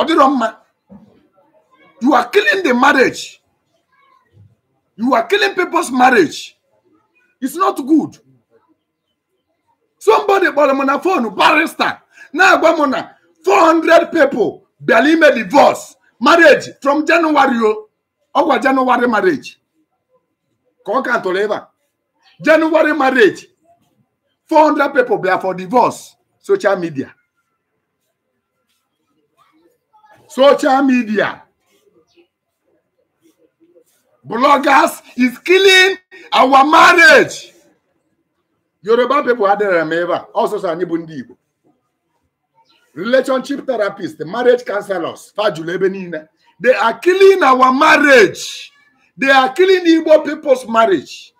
ọ dịrọ mma you are killing the marriage you are killing people's marriage it's not good somebody kpọrọ m na fonu barrister na-agwa m na 400 people bịara ime divorce marriage from January o oh. ọgwa January marriage ka ọ ka tụrụ ebe January marriage 400 people bịara for divorce social media social media bloggers is killing our marriage yoruba pipo adịrị m ebe a anyị bụ ndị igbo relationship therapist marriage counselors fajulu ebe niile they are killing our marriage they are killing igbo people's marriage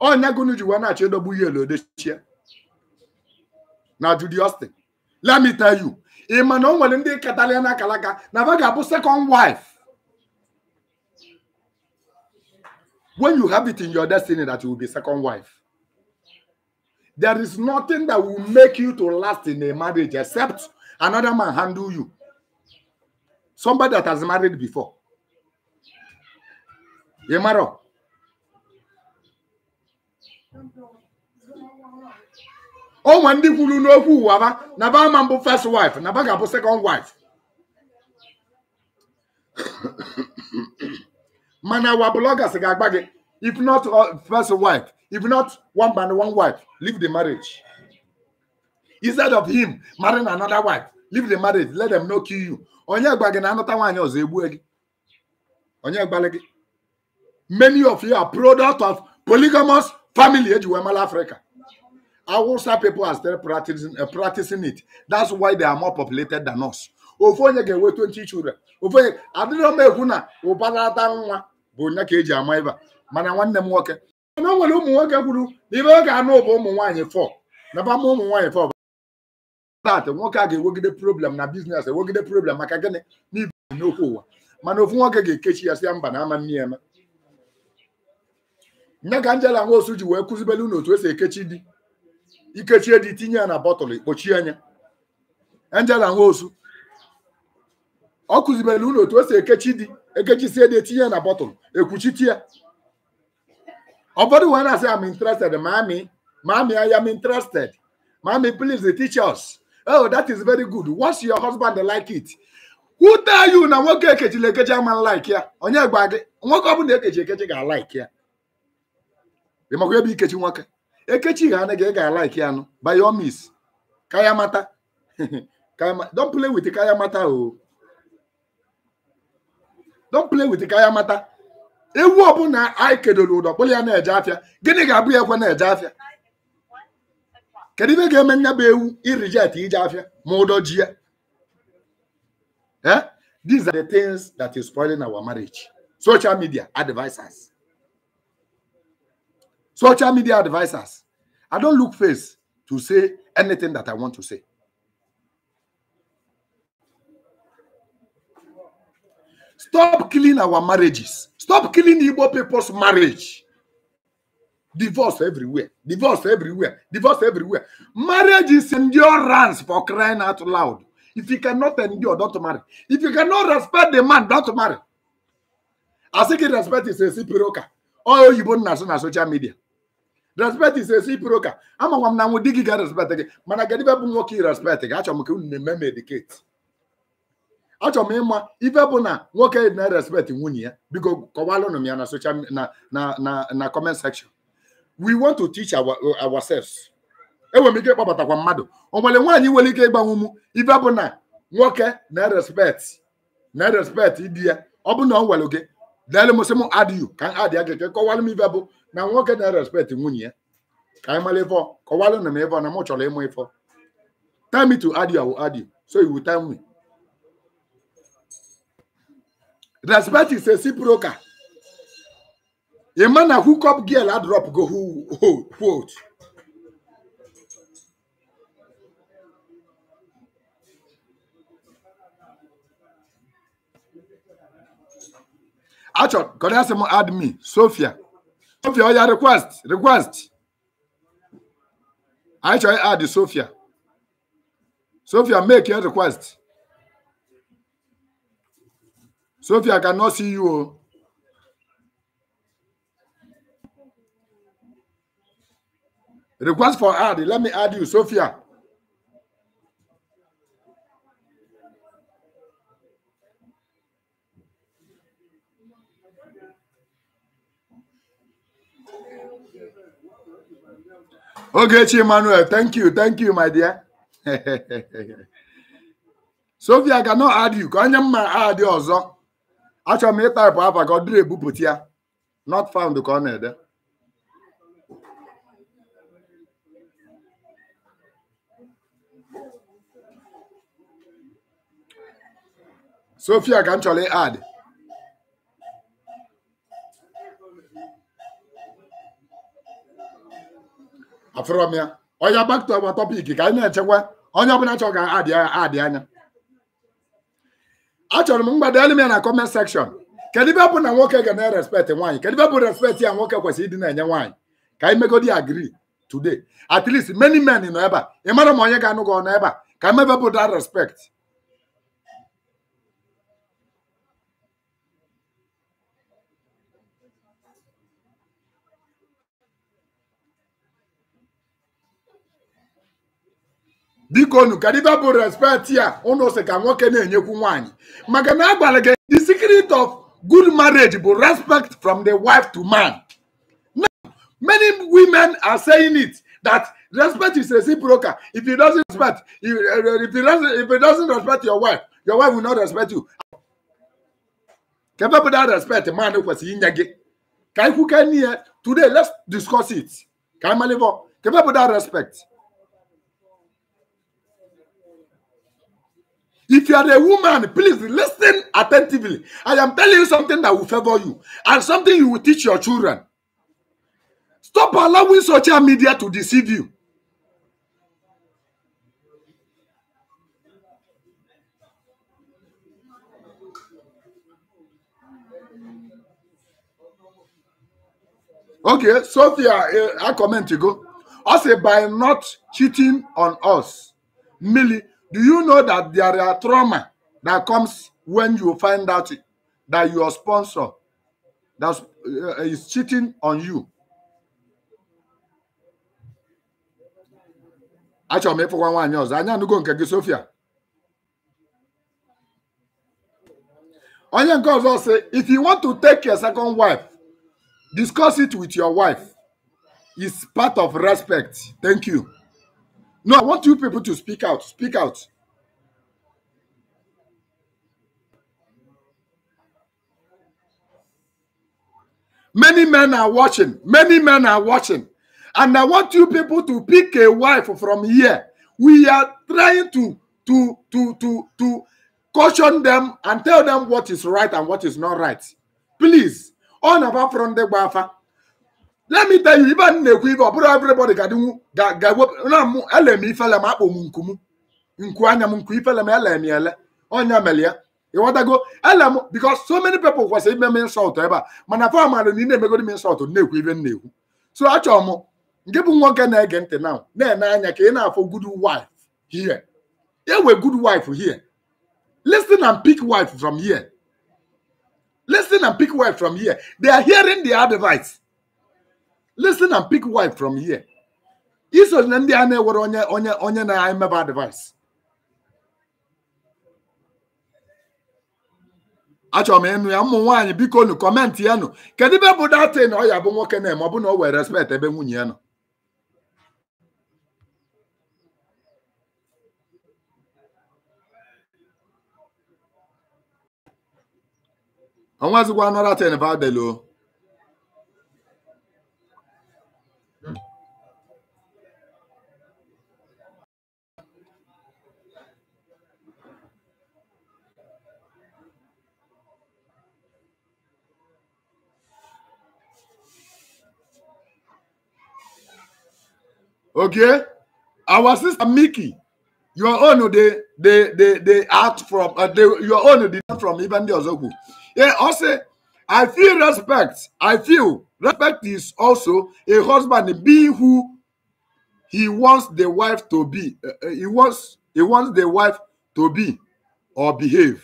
ọnya gụnụ ji na-achọ edogbu ihe elodechie na Judy Austin let me tell you ị ma na o nwere ndị katalian akalaka na va ga-abụ second wife When you have it in your destiny that you will be second wife, there is nothing that will make you to last in a marriage except another man handle you. Somebody that has married before. Yemaro. Oh, ndị kwuru know who, na never ama mbụ first wife never ba ga second wife Man, our bloggers agagbage. If not uh, first wife, if not one man, one wife, leave the marriage. Instead of him marrying another wife, leave the marriage. Let them not kill you. Onye agbage na another one ọzọ egbu gị. Onye agbale gị. Many of you are product of polygamous family eji wee mara Africa. Hausa people are still practicing, uh, practicing it. That's why they are more populated than us. Ofu onye ga-enwe 20 children. Ofu onye adịrọ m ekwu na ụbarata nwa bụ nya ka eji ama ịba mana nwanne m nwoke mana o nwere ụmụ nwoke kwuru na ibe ọ ga-anụ bụ ụmụ nwaanyị fọ naba ma ụmụ nwaanyị fọ dat nwoke a ga-ewegide problem na biznes ewegide problem maka gịnị n'ibe n'okwu ụwa mana ofu nwoke ga-ekechi ya si ya mba na ama nne ya eme nye ka Angela Nwosu ji wee kụzibele unu esi ekechi di ikechie di tinye ya na bọtụlụ kpochie anya Angela Nwosu ọ kụzibele unu otu esi ekechi di ekechisie dị etinye na bọtụlụ ekwuchite ya ụfọdụ wee na-asị am interested mami mami ya am interested mami please teach us oh that is very good what's your husband like it who tell you na nwoke ekechila ekechi ama like ya onye gba gị nwoke ọ ekechi ekechi ga like ya ị makwa ebe ikechi nwoke ekechi ga anị ga like ya nụ by your miss kaya mata don't play with kaya mata o don play with ka ya mata ewu ọbụla anyị kedoro ụdọ kpụrụ ya na-eje afịa gịnị ga-abụ ya ekwe na-eje afịa kedu ibe ga-eme nya bụ ewu irijet ije afịa ma ụdọ ji ya eh these are the things that is spoiling our marriage social media advisors social media advisors i don look face to say anything that i want to say Stop killing our marriages. Stop killing Igbo people's marriage. Divorce everywhere. Divorce everywhere. Divorce everywhere. Marriage is endurance for crying out loud. If you cannot endure, don't marry. If you cannot respect the man, don't marry. I think respect is a reciprocal. All you born on social media. Respect is a reciprocal. I'm a woman who dig respect. Man, I get even more respect. Actually, I'm going to medicate. achọrọ m ịma ife bụ na nwoke na respect nwunye ya biko kọwalụnụ m ya na social na na na comment section we want to teach our ourselves enwere m ike ịkpọbatakwa mmadụ o nwere nwaanyị nwere ike ịgbanwe m ife bụ na nwoke na respect na respect di ya ọ bụ na ọ nwere gị dere m sị m adịghị ka m adịa gị kọwalụ m ife bụ na nwoke na respect nwunye ya ka anyị mara ịfọ kọwalụnụ m ịfọ na m chọrọ ịmụ ịfọ tell to add you I will add you so you will tell me respect is a reciprocal a man a hook up girl a drop go who hold hold hold. Achọ gọdasị add me, Sophia Sophia oh, your request request anyị chọrọ add Sophia Sophia make your request. Sophia, I cannot see you. Request for add. Let me add you, Sophia. Ogechi Emmanuel, thank you, thank you, my dear. Sophia, I cannot add you. Can you add you also? achọrọ m ịtaịpụ afa ka ọ dịrị ebupụta ya not found ka ọ na-ede sofia ka m chọrọ add afụrọ m ya onye back to our topic ka anyị na-echekwa onye ọbụla chọrọ ka adị anya achọrọ m mgbada elu m ya na comment section kedu ibe bụ na nwoke ga na-respect nwaanyị kedu ibe bụ respect ya nwoke kwesịrị ịdị na-enye nwaanyị ka anyị megodi agree today at least many men nọ ebe a ị mara ma onye ga-anụ gị ọnụ ebe a ka mebe bụ that respect biko nu ka dibe bụ respect ya ụnụ sị ka nwoke na-enyekwu nwaanyị maka na agwara gị the secret of good marriage bụ respect from the wife to man now many women are saying it that respect is reciprocal if you doesn't respect if, if, you doesn't, if you doesn't respect your wife your wife will not respect you kebe bụ that respect man kwesịrị inye gị ka ikwuke n'ihe today let's discuss it ka amalivọ kebe bụ that respect If you are a woman, please listen attentively. I am telling you something that will favor you and something you will teach your children. Stop allowing social media to deceive you. Okay, Sophia, uh, eh, I comment you go. I say by not cheating on us, Millie, Do you know that there are trauma that comes when you find out that your sponsor that uh, is cheating on you? Achọrọ m ịfụkwa nwaanyị ọzọ anya anụgo nke gị Sofia onye nke ọzọ sị if you want to take your second wife discuss it with your wife it's part of respect thank you. No, I want you people to speak out. Speak out. Many men are watching. Many men are watching. And I want you people to pick a wife from here. We are trying to to to to to caution them and tell them what is right and what is not right. Please, on about from the Bafa. let me tell you ibe anyị na-ekwu ibe ọ bụrụ everybody ga-adịnwu ga-ewepụ na m ele m ifele m akpọ m nku m nku anya m nku ifele m ele m ele ọnya mere ya ịghọtago ele m because so many people kwesịrị ime m ebe a mana fọ mara na ị na-emegodi m insult na-ekwu ibe m na-ekwu so achọrọ m bụ nwoke na-ege ntị na anya ka ị na-afọ good wife here good wife here listen and listen and pick wife from here iso na ndị a na-ewere onye onye onye na-emeba advice achọrọ m ịnụ ya ụmụ nwaanyị biko nu kọmentị ya nụ kedu ebe bụ datin ọ ya bụ nwoke na-eme ọ bụ na o were respect ebe nwunye ya nọ onwezigwa nọratin vadelo Okay, our sister Mickey, your own they they they they act from uh, they, your own they not from even the Ozogu. Yeah, also I feel respect. I feel respect is also a husband being who he wants the wife to be. Uh, uh he wants he wants the wife to be or behave.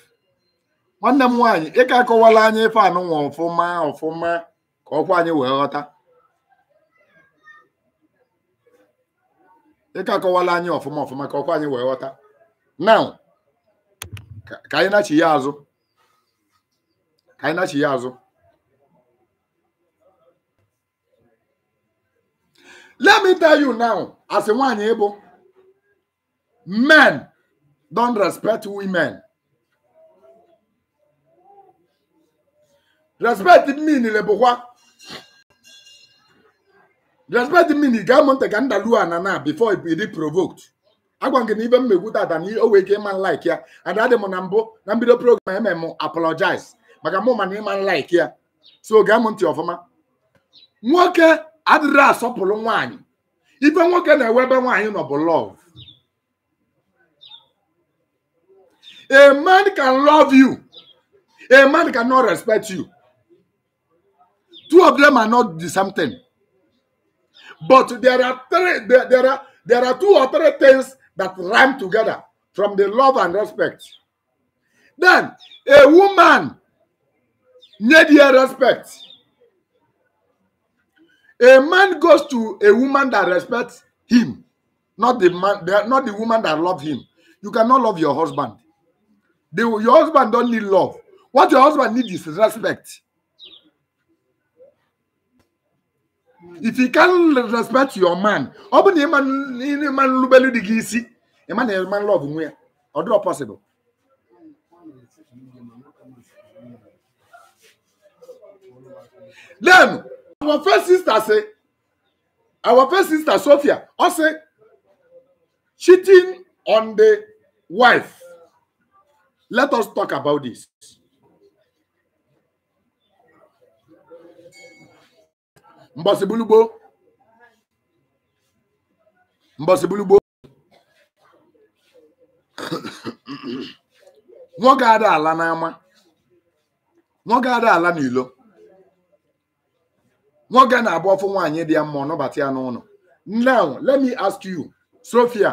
nwanne m nwaanyị ị ka akọwala anyị ife anụnwa ọfụma ọfụma ka ọkwa anyị wee ghọta ịka akọwala anyị ọfụma ọfụma ka ọkwa anyị wee ghọta now ka anyị na-achị ya azụ ka anyị na ya azụ let me tell you now as a nwaanyị ịbụ men don't respect women respect mean bụkwa respect me na ị gaa monte ka ndalụ ana na before it be provoked agwa gị na ibe m na-ekwu tata na o wee ike ịma nlaik ya ada dị m na mbụ na mbido program eme m apologize maka mụ mana ịma nlaik ya so gaa m ntị ọfụma nwoke adịrị asọpụrụ nwaanyị ife nwoke na-ewe ebe nwaanyị nọ bụ love a man can love you a man cannot respect you two of them are not the same thing. But there are three, there, there are there are two or three things that rhyme together from the love and respect. Then a woman need your respect. A man goes to a woman that respects him, not the man, not the woman that loves him. You cannot love your husband. The, your husband don't need love. What your husband needs is respect. if you can respect your man ọ bụ na ịma nlubelu dị gị isi ịma na ịma love nwe ya ọ dịrọ possible then our first sister say our first sister sophia ọ sị cheating on the wife let us talk about this. mbọsibulugbo mbọsibulugbo nwoke ada ala n'ama nwoke ada ala n'ilo nwoke na-abụ ọfụ nwaanyị dị ya mma ọnọbata ya n'ụlọ now let me ask you sophia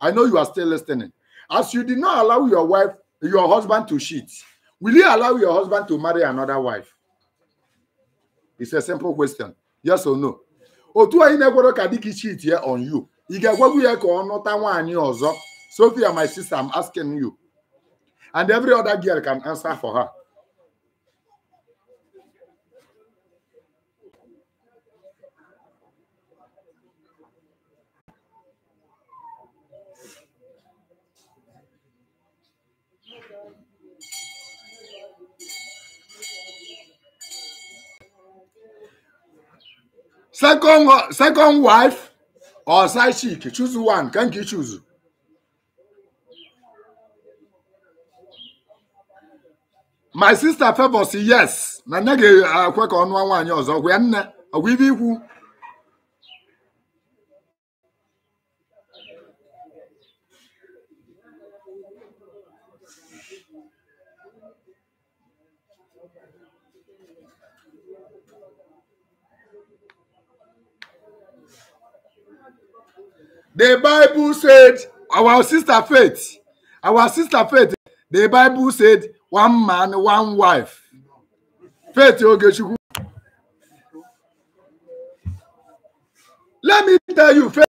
i know you are still listening as you did not allow your wife your husband to cheat will you allow your husband to marry another wife it's a simple question yes or no otu anyị na-egwero ka dịka cheat ya on you ị ga-egwegwu ya ka ọ nụta nwaanyị ọzọ Sophia my sister I'm asking you and every other girl can answer for her. second second wife or side chick choose one can you choose my sister favors yes na nne ga ka ọ nụọ nwaanyị ọzọ gwa nne ọgwụ ibe ikwu The Bible said, our sister faith, our sister faith, the Bible said, one man, one wife. Faith Ogechukwu. Let me tell you, faith.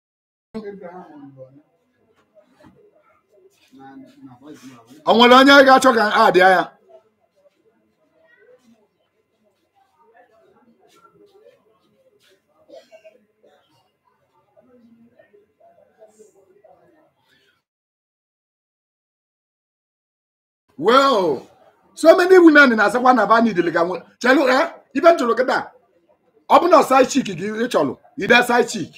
Àwọn ọlọ́nyẹ́ gachọ́ kan á well so many women na-asakwa na bani dịlịga nwe chelu eh ibe m chọrọ kịta ọ bụ na side chick gị ị chọrọ ide side chick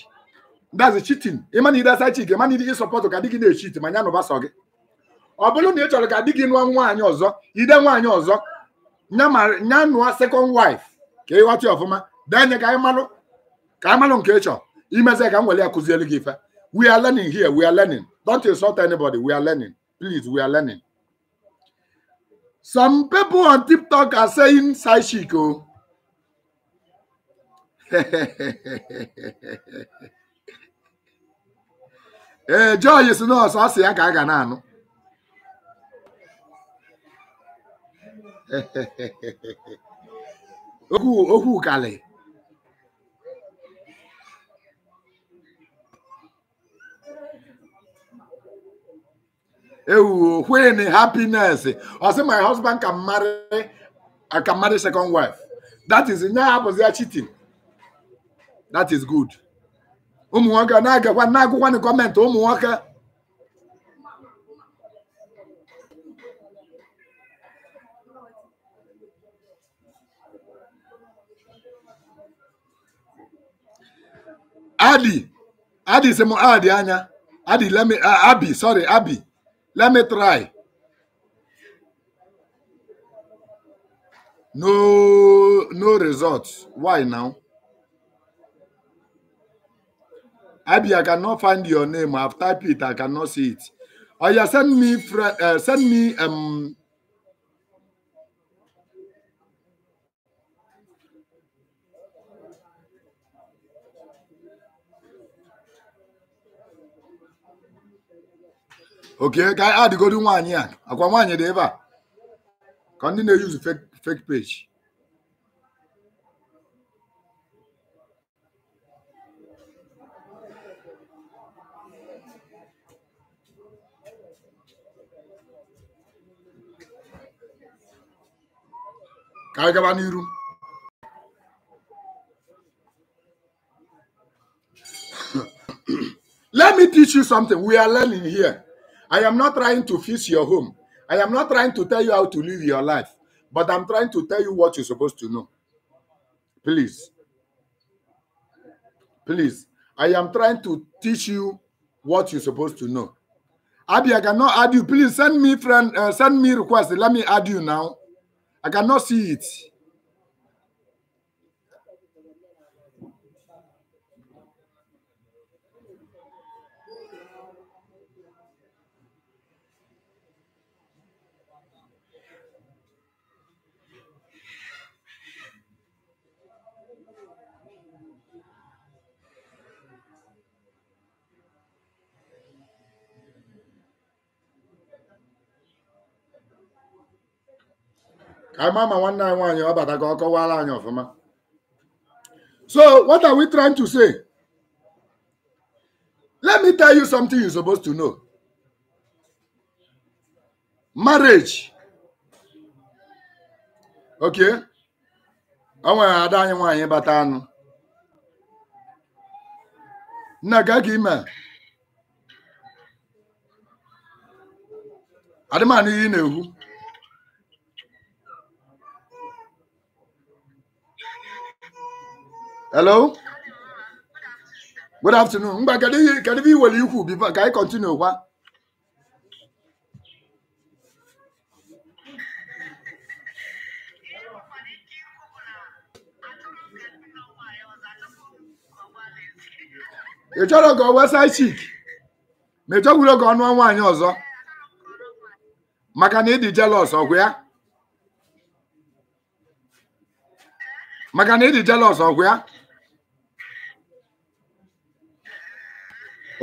that's cheating ịma na ide side chick ịma na ị sọpọtụ ka di gị na-echit ma ya nụba sọ gị ọ bụrụ na ị chọrọ ka di gị nụọ nwaanyị ọzọ ide nwaanyị ọzọ nya nụọ second wife ka ị ghọta ọfụma denye ka ịmalụ ka ịmalụ nke ị chọrọ imezi ka m were ya kụziere gị ife we are learning here we are learning don't insult anybody we are learning please we are learning Some people on TikTok are saying side chick. Oh. ee eh, joy si nọọsụ ọ sị ya ka a ga na-anụ okwu okwu kalị ewuo when happiness ọ sị my husband can marry I can marry second wife that is nya abụzi ya cheating that is good ụmụ nwoke na-agakwa na-agụkwa na gọọmenti ụmụ nwoke adị adị sị m adị anya adị lemi uh, abi sorry abi Let me try. No, no results. Why now? Abi, I cannot find your name. I've typed it. I cannot see it. Oh yeah, send me, uh, send me um okay ka anyị adịgodi nwaanyị a akwa nwaanyị dị ebe a ka ndị na use fake fake page ka anyị gaba n'iru let me teach you something we are learning here I am not trying to fix your home. I am not trying to tell you how to live your life, but I'm trying to tell you what you're supposed to know. Please. Please. I am trying to teach you what you're supposed to know. Abby, I cannot add you. Please send me friend, uh, send me request. Let me add you now. I cannot see it. ama ma nwanne anyị nwaanyị ọ bata ka ọ kọwara anyị ọfụma so what are we trying to say let me tell you something you supposed to know marriage ok. ọ nwere ada anyị nwaanyị bata anụ nna ka gị ime adịmanụ ihe ị na-ekwu hello good afternoon mgbe kedu ihe kedu ihe iwere ikwu bifo ka anyị kọntinu kwa ị chọrọ ka ọ chik ma ị ka ọ nụọ nwaanyị ọzọ maka na ọgwụ ya maka na ịdị ọgwụ ya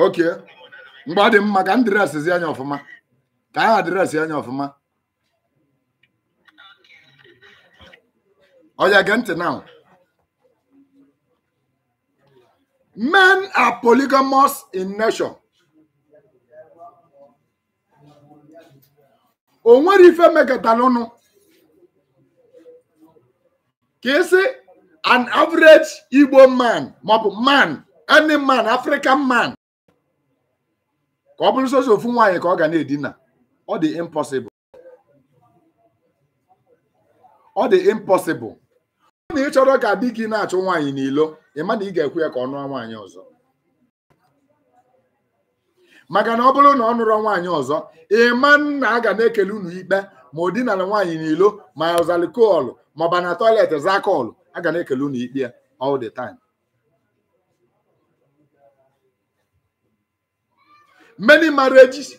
oke mgbe ọ dị mma ka m dịrasịzi anya ọfụma ka anyị adịrasị anya ọfụma ọya gee ntị now men are polygamous in nation o nwere ife mekọtara ụnụ ka isi an average Igbo man maọbụ man any man African man ka ọ bụrụ soso ofu nwaanyị ka ọ ga na-edina ọ dị impossible ọ dị impossible ọ na ịchọrọ ka di gị na-achụ nwaanyị n'ilo ma na ị ga ekwe ya ka ọ nụọ nwaanyị ọzọ maka na ọ bụrụ na ọ nụrọ nwaanyị ọzọ ịma na a ga na-ekele unu ikpe ma o dinara nwaanyị n'ilo ma ọzalikọọlụ ma ọ ba na tọiletị zakọọlụ a ga na-ekele unu ikpe all the many marriages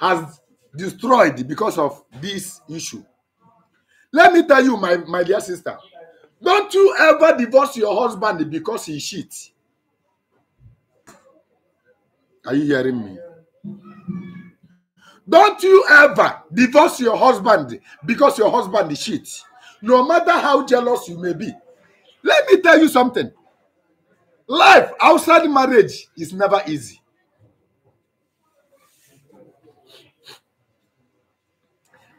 has destroyed because of this issue. Let me tell you, my, my dear sister, don't you ever divorce your husband because he cheats. Are you hearing me? Don't you ever divorce your husband because your husband cheats. No matter how jealous you may be. Let me tell you something. Life outside marriage is never easy.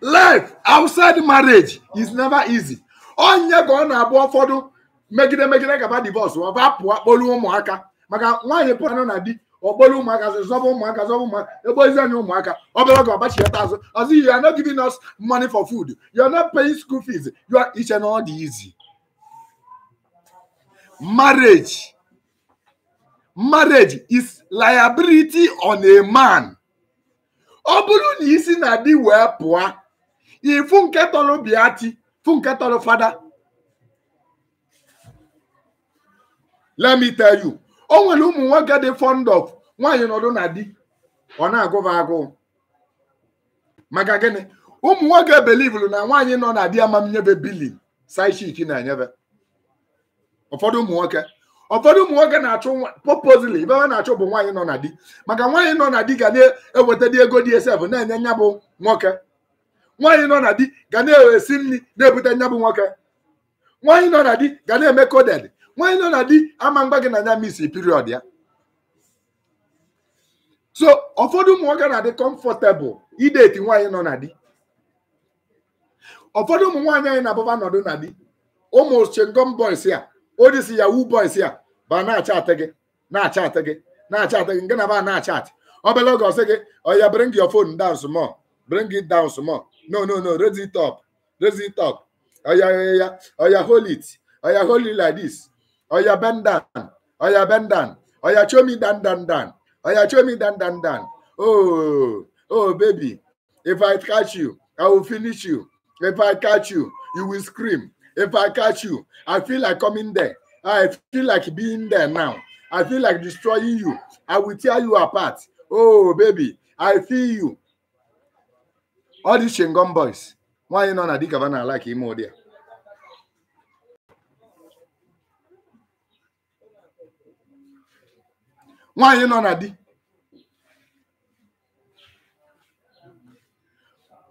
life outside marriage is never easy onye ka ọ na-abụ ụfọdụ megide megide gaba divorce ma ọba pụọ kpolu ụmụaka maka nwaanyị pụranụ na di ọkpolu ụmụaka zọba ụmụaka zọba ụmụaka egbozi anyị ụmụaka obere oge ọgbachighata azụ ọzọ you are not giving us money for food you are not paying school fees you are iche na ọ dị easy marriage marriage is liability on a man ọ bụrụ na isi na di wee pụọ ifu nke tọrọ biati fu nke tọrọ fada let me tell you o nwere ụmụ nwoke dị fond of nwaanyị nọdụ na di ọ na-agụba agụ maka gịnị ụmụ nwoke belivulu na nwaanyị nọ na di amamnyebe bilin saishiki na-enyebe ụfọdụ ụmụ nwoke ụfọdụ ụmụ nwoke na-achụ popozili ibe ha na-achụ bụ nwaanyị nọ na di maka nwaanyị nọ na di ga na-eweta ego dị esef na-enye nya bụ nwoke nwaanyị nọ na di ga na-ewesi nri na-ebute nya bụ nwoke nwaanyị nọ na di ga na-eme koded nwaanyị nọ na di ama mgba gị na nya misi period ya so ụfọdụ ụmụ nwoke na-adị kọmfọtebụl ideti nwaanyị nọ na di ụfọdụ ụmụ nwaanyị anyị na-abụba nọdụ na di ụmụ chengom boys ya odisi ya wu boys ya ba na-achatị gị na-achatị gị na-achatị gị nke na ba na-achatị obere oge ọsị gị ọ ya bring your phone down small bring it down small No, no, no. Raise it up. Raise it up. yeah! Oh, oya, hold it. Oya, hold it like this. Oya, bend down. Oya, bend down. Oya, show me down, down, down. Oya, show me down, down, down. Oh, oh, baby. If I catch you, I will finish you. If I catch you, you will scream. If I catch you, I feel like coming there. I feel like being there now. I feel like destroying you. I will tear you apart. Oh, baby, I feel you. ọ dị ngọm Boys nwaanyị nọ na dikaba na ala ka ime ụdị a nwaanyị nọ na di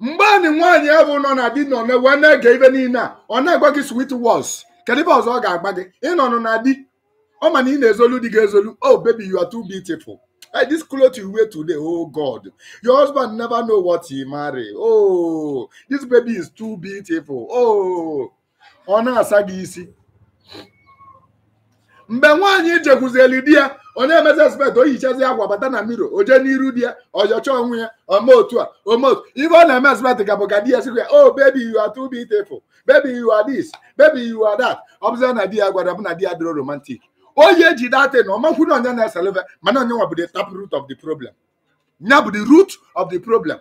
mgbe anyị nwaanyị ahụ nọ na di nọ wee na-ege ibe niile a ọ na-agwa gị sweet words kedu ibe ọzọ ọ ga-agba gị nọ na di ọ ma na ị na-ezolu di gị ezolu oh baby you are too beautiful. Like this cloth you wear today, oh God. Your husband never know what he marry. Oh, this baby is too beautiful. Oh, ọ na-asa gị isi. Mgbe nwaanyị jekwuzeli di ya, ọ na-emezi expect o yichazi akwa bata na mmiri oje n'iru di ya ọjọcha onwe ya ome otu a ome otu ife ọ na-eme expect ka bụ ka di ya siri oh baby you are too beautiful baby you are this baby you are that ọ na di ya gwara bụ na di ya romantic onye ji data na ọmakwụ na onye na-eselefe mana onye nwa bụ the tap root of the problem nya bụ the root of the problem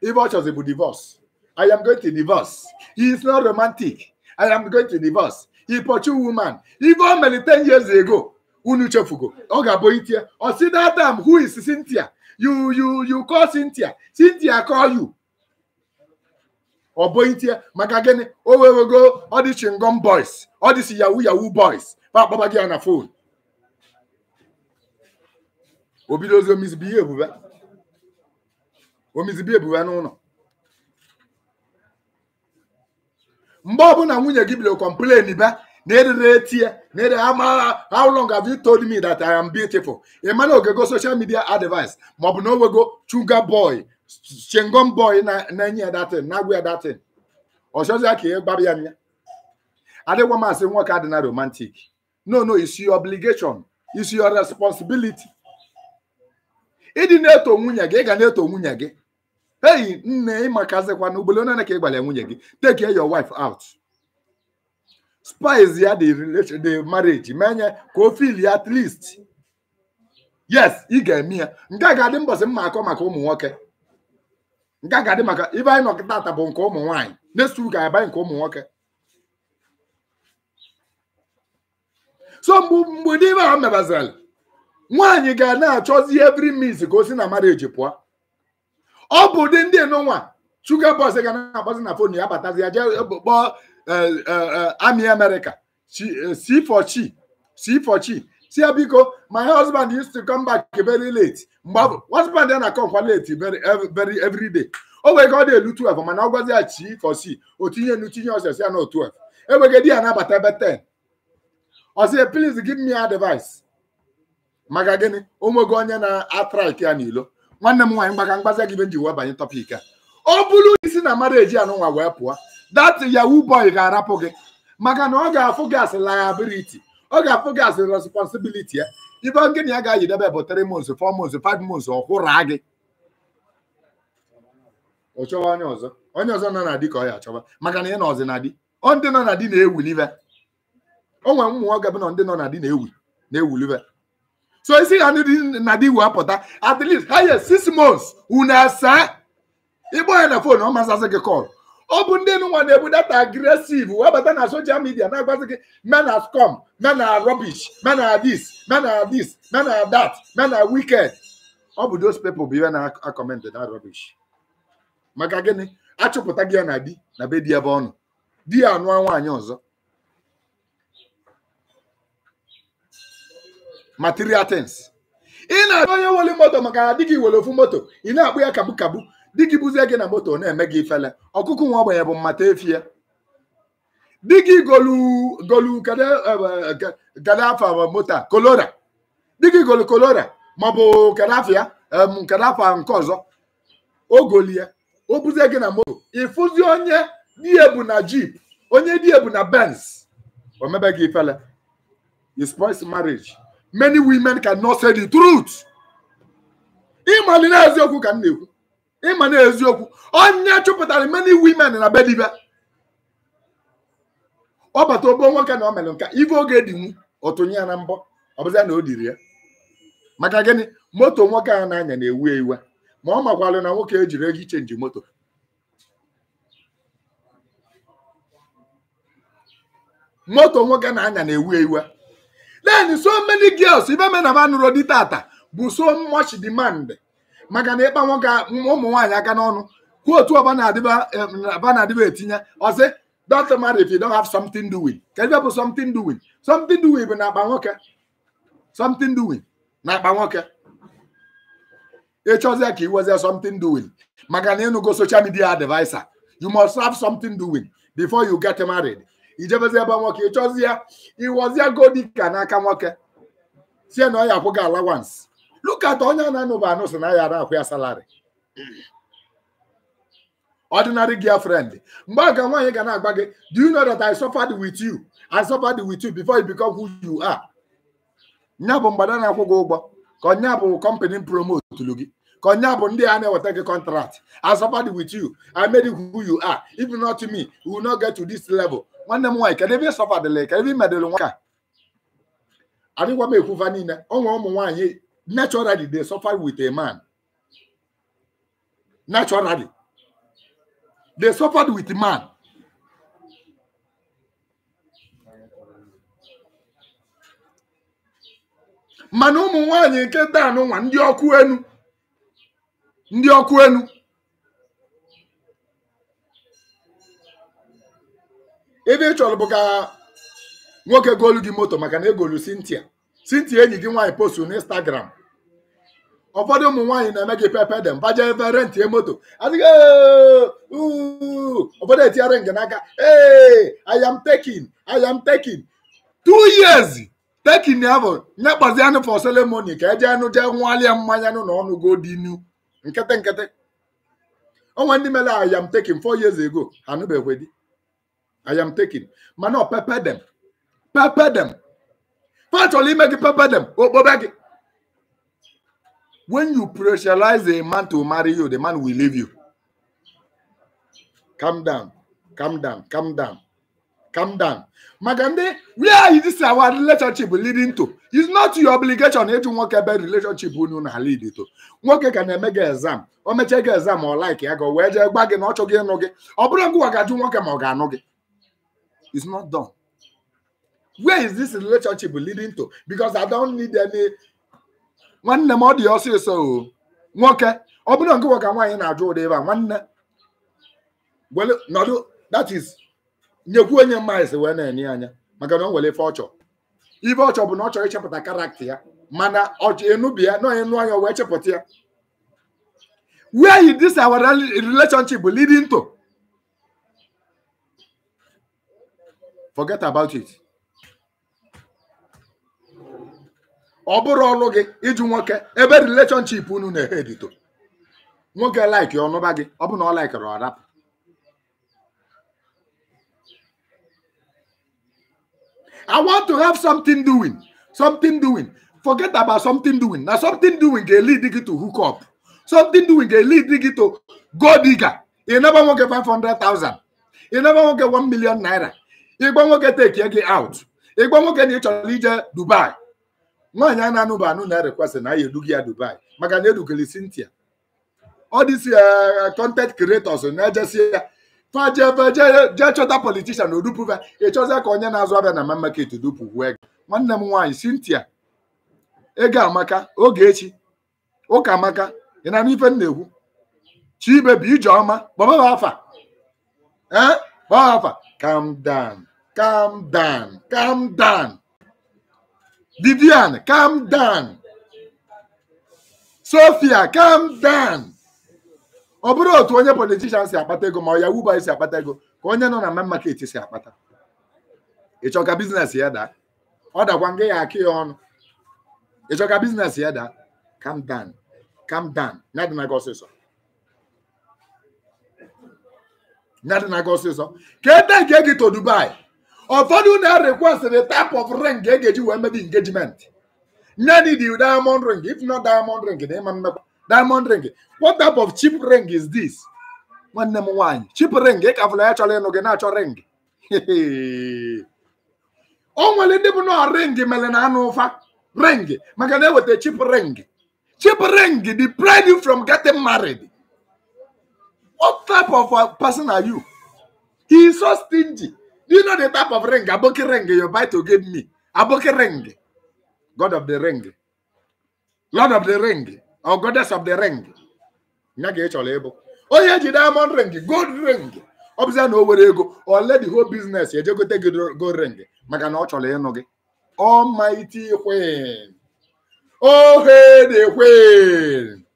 ife ọ chọzi bụ divorce i am going to divorce he is not romantic i am going to divorce he pursue woman ife o mere 10 years ago unu chefugo ọ ga-abụ itie ọ si that time who is Cynthia you you you call Cynthia Cynthia call you ọ bụ itie Oh, gịnị o go? all these chingom boys all these yahoo yahoo boys akpọba gị ya na fon obido ozi omizibie ebube omizibie ebube n'ụlọ mgbe ọbụla nwunye gị bidoro kọmplen ba na erere eti ya na ere amagha how long have you told me that I am beautiful ịma e oge go social media advice ma ọ bụ na owego chuga boy chengom boy na-enye ya datin na-agwa ya datin ọchọzi ka ị gbara ya nya adịgwa masị nwoke adị na no no it's your obligation it's your responsibility ịdị na-eto nwunye gị ị ga na-eto nwunye gị eyi nne ịmakazikwa na ugboro onye ka ịgbara nwunye gị take your wife out spice ya the relation the marriage menye ka o feel ya at least yes ị ga-eme ya nke a ga-adị mbọsị mma akọ maka ụmụ nwoke nke a ga-adị maka ibe anyị nọ bụ nke ụmụ nwanyị next week anyị nke ụmụ nwoke so mgbe ibe ha mebazara nwaanyị ga na-achọzi every means ka o si na eji pụọ ọ bụ ụdị ndị nụnwa shuga bọs ga na-akpọzi na fon ya batazi ya jee eh, kpọọ ami amerika si for chi si si ya biko my husband used to come back very late mgbe husband ya na-akọ nkwa late very eh, every day o wee ka ọ na-elu 12 mana ọ gwazi ya chi for chi o tinye nu tinye ọsịa ya na 12 enweghị di ya na-abata ebe 10 ọ sị please give me advice maka gịnị onwego onye na-atrik ya n'ilo nwanne m nwaanyị maka mgbaza gị be nji wee banye tọpik a ọ bụrụ isi na mmadụ eji anụnwa wee pụọ that yahoo boy ga-arapụ gị maka na ọ ga-afụ gas liability ọ ga-afụ gas responsibility ya ibe gịnị ya ga-ayidebe bụ 3 months 4 months 5 months ọ hụra gị ọ chọwa onye ọzọ onye ọzọ nọ na di ka ọ ya achọba maka na ị na ọzi na di ọ ndị nọ na di na-ewu n'ibe onwe ụmụ nwoke bụ na ndị nọ na di na-ewu na-ewulibe so isi ha ndị na di wee apụta at least ha ye six months unu asaa ịgba ya na fon ọ masasị gị kọl ọ bụ ndị nwa na-ebu data agresiv wee na soshal midia na-agbazi gị men as com men as rubbish men as this men as this men as that men as wicked ọ bụ those people bụ ihe na-akọmentị na rubbish maka gịnị achụpụta gị ya na di na be di ebe ọnụ di ya anụọ nwaanyị ọzọ material things ị na-achọ onye nwere moto maka na di gị were ofu moto ị na-akpụ ya kabu kabu di gị buzie gị na moto na-eme gị ifele ọkụkụ nwa ogbenye bụ mmata efie di gị golu golu gade e, e, afa moto a kolora di gị golu kolora maọbụ kadafia kadafa nke ọzọ o golie o buzie gị na moto ịfụzi onye di na jeep onye di na benz omebe gị ifele you spoils marriage many women cannot say the truth. ịma na eziokwu ka m na-ekwu ịma na eziokwu onye chụpụtara many women na be ọ bata obo nwoke na o mere nka ife oge dinwu ọtụnye ya na mbọ ọ bụzịa na o diri ya maka gịnị moto nwoke a na-anya na-ewu ewu ma ọ makwalụ na nwoke ejiri ego ichenji moto moto nwoke na-anya na-ewu ewu then so many girls even men na nụrụ di tata bụ so much demand maka na ịkpa nwoke ụmụ nwaanyị aka n'ọnụ kwuo otu ọba na-adịba etinye ọsị don't marry if you don't have something doing ka ebe bụ something doing something doing bụ na akpa nwoke something doing na akpa nwoke ịchọzie ka iwezie something doing maka na ịnụgo social media adviser. you must have something doing before you get married ijebezi ebe nwoke chọzi ya ịwọzie godika n'aka nwoke sie na ọ ya akwụ gị alawansi lukata onye na-anụba anụ si na ya na-akwụ ya salari ordinary girlfriend mgbe a ga nwaanyị ga na-agba gị do you know that I suffered with you I suffered with you before you become who you are nya bụ mgbada na-akwụ gị ụgbọ ka ọnya bụ company promotulu gị ka ọnya bụ ndị a na-eweta gị contract I suffered with you I made you who you are if not me you will not get to this level nwanne m nwaanyị kedụ ebe ịsọfa dịla ka ebe imedịrị nwa ka adịgwa m ekwuva niile ọ ụmụ nwaanyị naturally they suffer with a man naturally they suffered with a man mana ụmụ nwaanyị nke taa nwa ndị ọkụ enu ndị ọkụ enu ebe ị chọrọ bụ ka nwoke goolu gị moto maka na egolu Cynthia Cynthia enyi gị nwaanyị postu na Instagram ụfọdụ ụmụ nwaanyị na-eme gị pepe dem baje ebe rentie moto adịghị ụfọdụ etinyere nge n'aka ee I tekin taking I am taking two years ya bụ nye kpazi anụ ka eje anụ jee nwalịa mmanya nụ na ọnụ go dinu nkịtị nkịtị onwe ndị mere ayam tekin taking four years ago anụbeghị di I am taking. Mana no pepe dem pepe dem fa chọrọ ime gị pepe dem okpobe when you pressurize a man to marry you the man will leave you calm down calm down calm down calm down maka ndị where is this our relationship leading to it's not your obligation ịjụ nwoke ebe relationship unu na lead to nwoke ga na-eme exam o mechee gị exam ọ like ya ga wee jee gwa gị na ọ chọghị ịnụ gị ọ bụrụ ngwa ga nwoke ma ọ ga-anụ gị Is not done. Where is this relationship leading to? Because I don't need any. Nwanne m ọ dị ọsịsọ o nwoke ọ bụrụ na nke nwoke nwaanyị na-ajụ ụdị ebe a nwanne nọdụ that is nyekwu onye mmaịsị wee na-enye anya maka na o nwere ife ọchọ ife ọchọ bụ na ọ chọrọ ịchepụta karakta ya mana ọchọ enubia na onye nụ anya wee chepụta ya where is this our relationship leading to? forget about it ọ bụrụ ọlụ gị ịjụ nwoke ebe relationship unu na-ehedito nwoke like ọnụba gị ọ bụ na ọ laikere ọ rapụ I want to have something doing something doing forget about something doing na something doing ga lead gị to hook up something doing ga lead gị to go digger ị naba nwoke 500,000 ị naba nwoke 1 million naira igbo nwoke tekie gị out igbo nwoke na ị chọrọ ije dubai nwaanyị a na-anụba anụ na rekwestị na ya eduga ya dubai maka na edugoli Cynthia ọ dịsi eh, content creators na-ejesi ya fajee chọta politishan odupuva ịchọzie ka onye na-azụ abịa na ma market dupu wee nwanne m nwaanyị Cynthia ego amaka oge echi ụka amaka ị na ife m na-ekwu chibe bụ kpọbaba afa eh, calm down calm down calm down Vivian calm down Sophia calm down ọ bụrụ otu onye politishan si akpata ego ma ọ yahoo boy si akpata ego ka onye nọ na main market si akpata ịchọ ka biznes ya daa ọ dakwa nga ya aka ya ọnụ ịchọ ka biznes ya daa calm down calm down na gị ọsịsọ ya dị na-aga ọsịsọ ka ede nke gị to Dubai ụfọdụ na-request the type of ring e ga-eji wee mebe engagement nye ni the diamond ring if not diamond ring na ịma mmekwa diamond ring what type of cheap ring is this nwanne m nwaanyị cheap ring ị ka fụla ya chọrọ ịnụ gị na-achọ ring o nwere ndị bụ na ring mere na anụ ụfa ring maka na eweta cheap ring cheap ring deprive you from getting married What type of uh, person are you? He is so stingy. Do you know the type of ring? Aboki ring you buy to give me. Aboki ring. God of the ring. Lord of the ring. Or goddess of the ring. Onye ji diamond ring, gold ring. Ọ bụzịa na o were ego ole the whole business ejegote gị gold ring maka na ọ chọrọ ịnụ gị. Almighty Queen. Oh, hey, the Queen.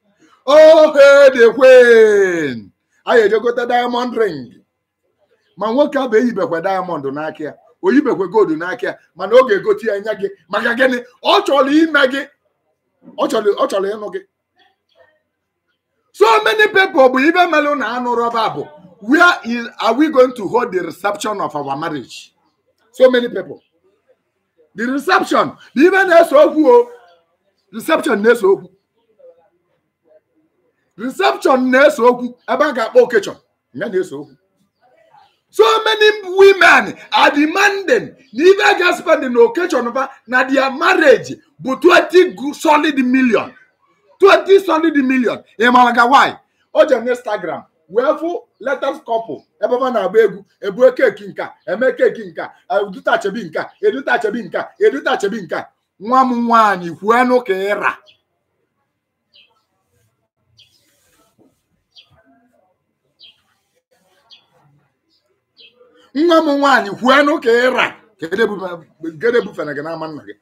Oh, hey, the Queen. anyị ejegote diamond ring ma nwoke abụ eyibekwa diamond n'aka ya oyibekwe gold n'aka ya mana ọ ga-egote ya nya gị maka gịnị ọ chọrọ ime gị ọ chọrọ ịnụ gị so many people bụ ibe melụ na anụ rọba bụ where is, are we going to hold the reception of our marriage so many people the reception ibe na-eso okwu o reception na-eso okwu reception na-eso okwu ebe a ga-akpọ okechọ ya na-eso okwu so many women are demanding na ibe a ga na okechọn ba na their marriage bụ 20 solid million 20 solid million ị mara why o je na wee fụ letters couple ebe ọ na-agba egwu ebue keki nka eme keki nka edutachebi nka edutachebi nka edutachebi nka nwa m nwaanyị kwuenụ ka ịra nwa m nwaanyị kwuenụ ka ịra gede gị n'ama nna gị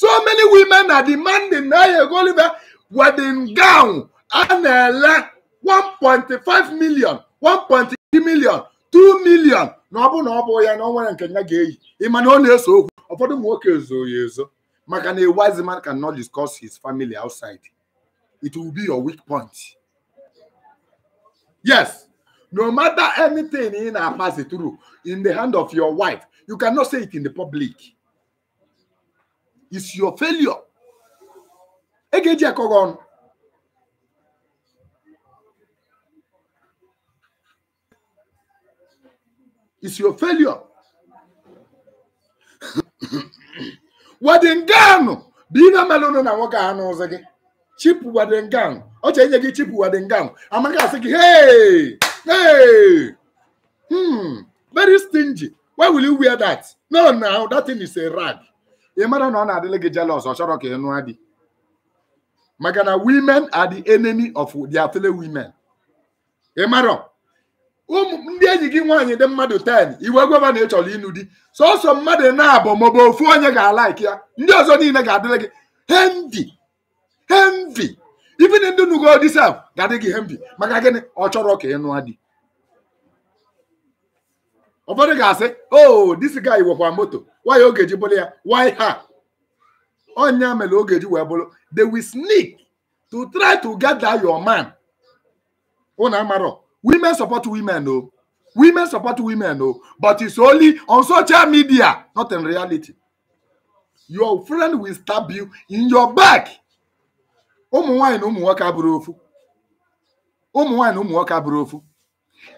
so many women na demanding na ya ego wedding gown a na-ele 1.5 million 1.3 million 2 million na ọ bụ na ọ bụ ya na ọ nwere nke nya ga-eyi ịma na ọ na-eso okwu ụfọdụ ụmụ nwoke ezo ya ezo maka na a wise man cannot discuss his family outside it will be your weak point yes No matter anything in our pass it through, in the hand of your wife, you cannot say it in the public. It's your failure. Egeji Ekogon. It's your failure. Wadingan! Bina malunu na woka anu zagi. Chip Wadingan. Oche enye gi Chip Wadingan. Amaka sigi, hey! Hey! Hmm. Very stingy. Why will you wear that? No, now that thing is a rag. You matter na ọ na-adịla gị jealous ọ chọrọ ka ị nụọ maka na women are the enemy of their fellow women. Ị ụmụ um, ndị enyi gị nwaanyị dị mmadụ 10 iwe gweba na ị dị, ịnụ di mmadụ na-abụ maọbụ ofu onye ga-alaiki ya ndị ọzọ niile ga-adịla gị hendi Even ndị nnukwu odisa ga-adị gị ihe mbi maka gịnị ọ chọrọ ka ị nụọ di ụfọdụ ga-asị o oh, disi gai wekwa moto waya oge ji bụrụ ya why ha onya mere oge ji wee bụrụ they will sneak to try to gather your man unu amarọ women support women o women support women o but it's only on social media not in reality your friend will stab you in your back ụmụ nwaanyị na ụmụ nwoke abụrụ ofu ụmụ nwaanyị na ụmụ nwoke abụrụ ofu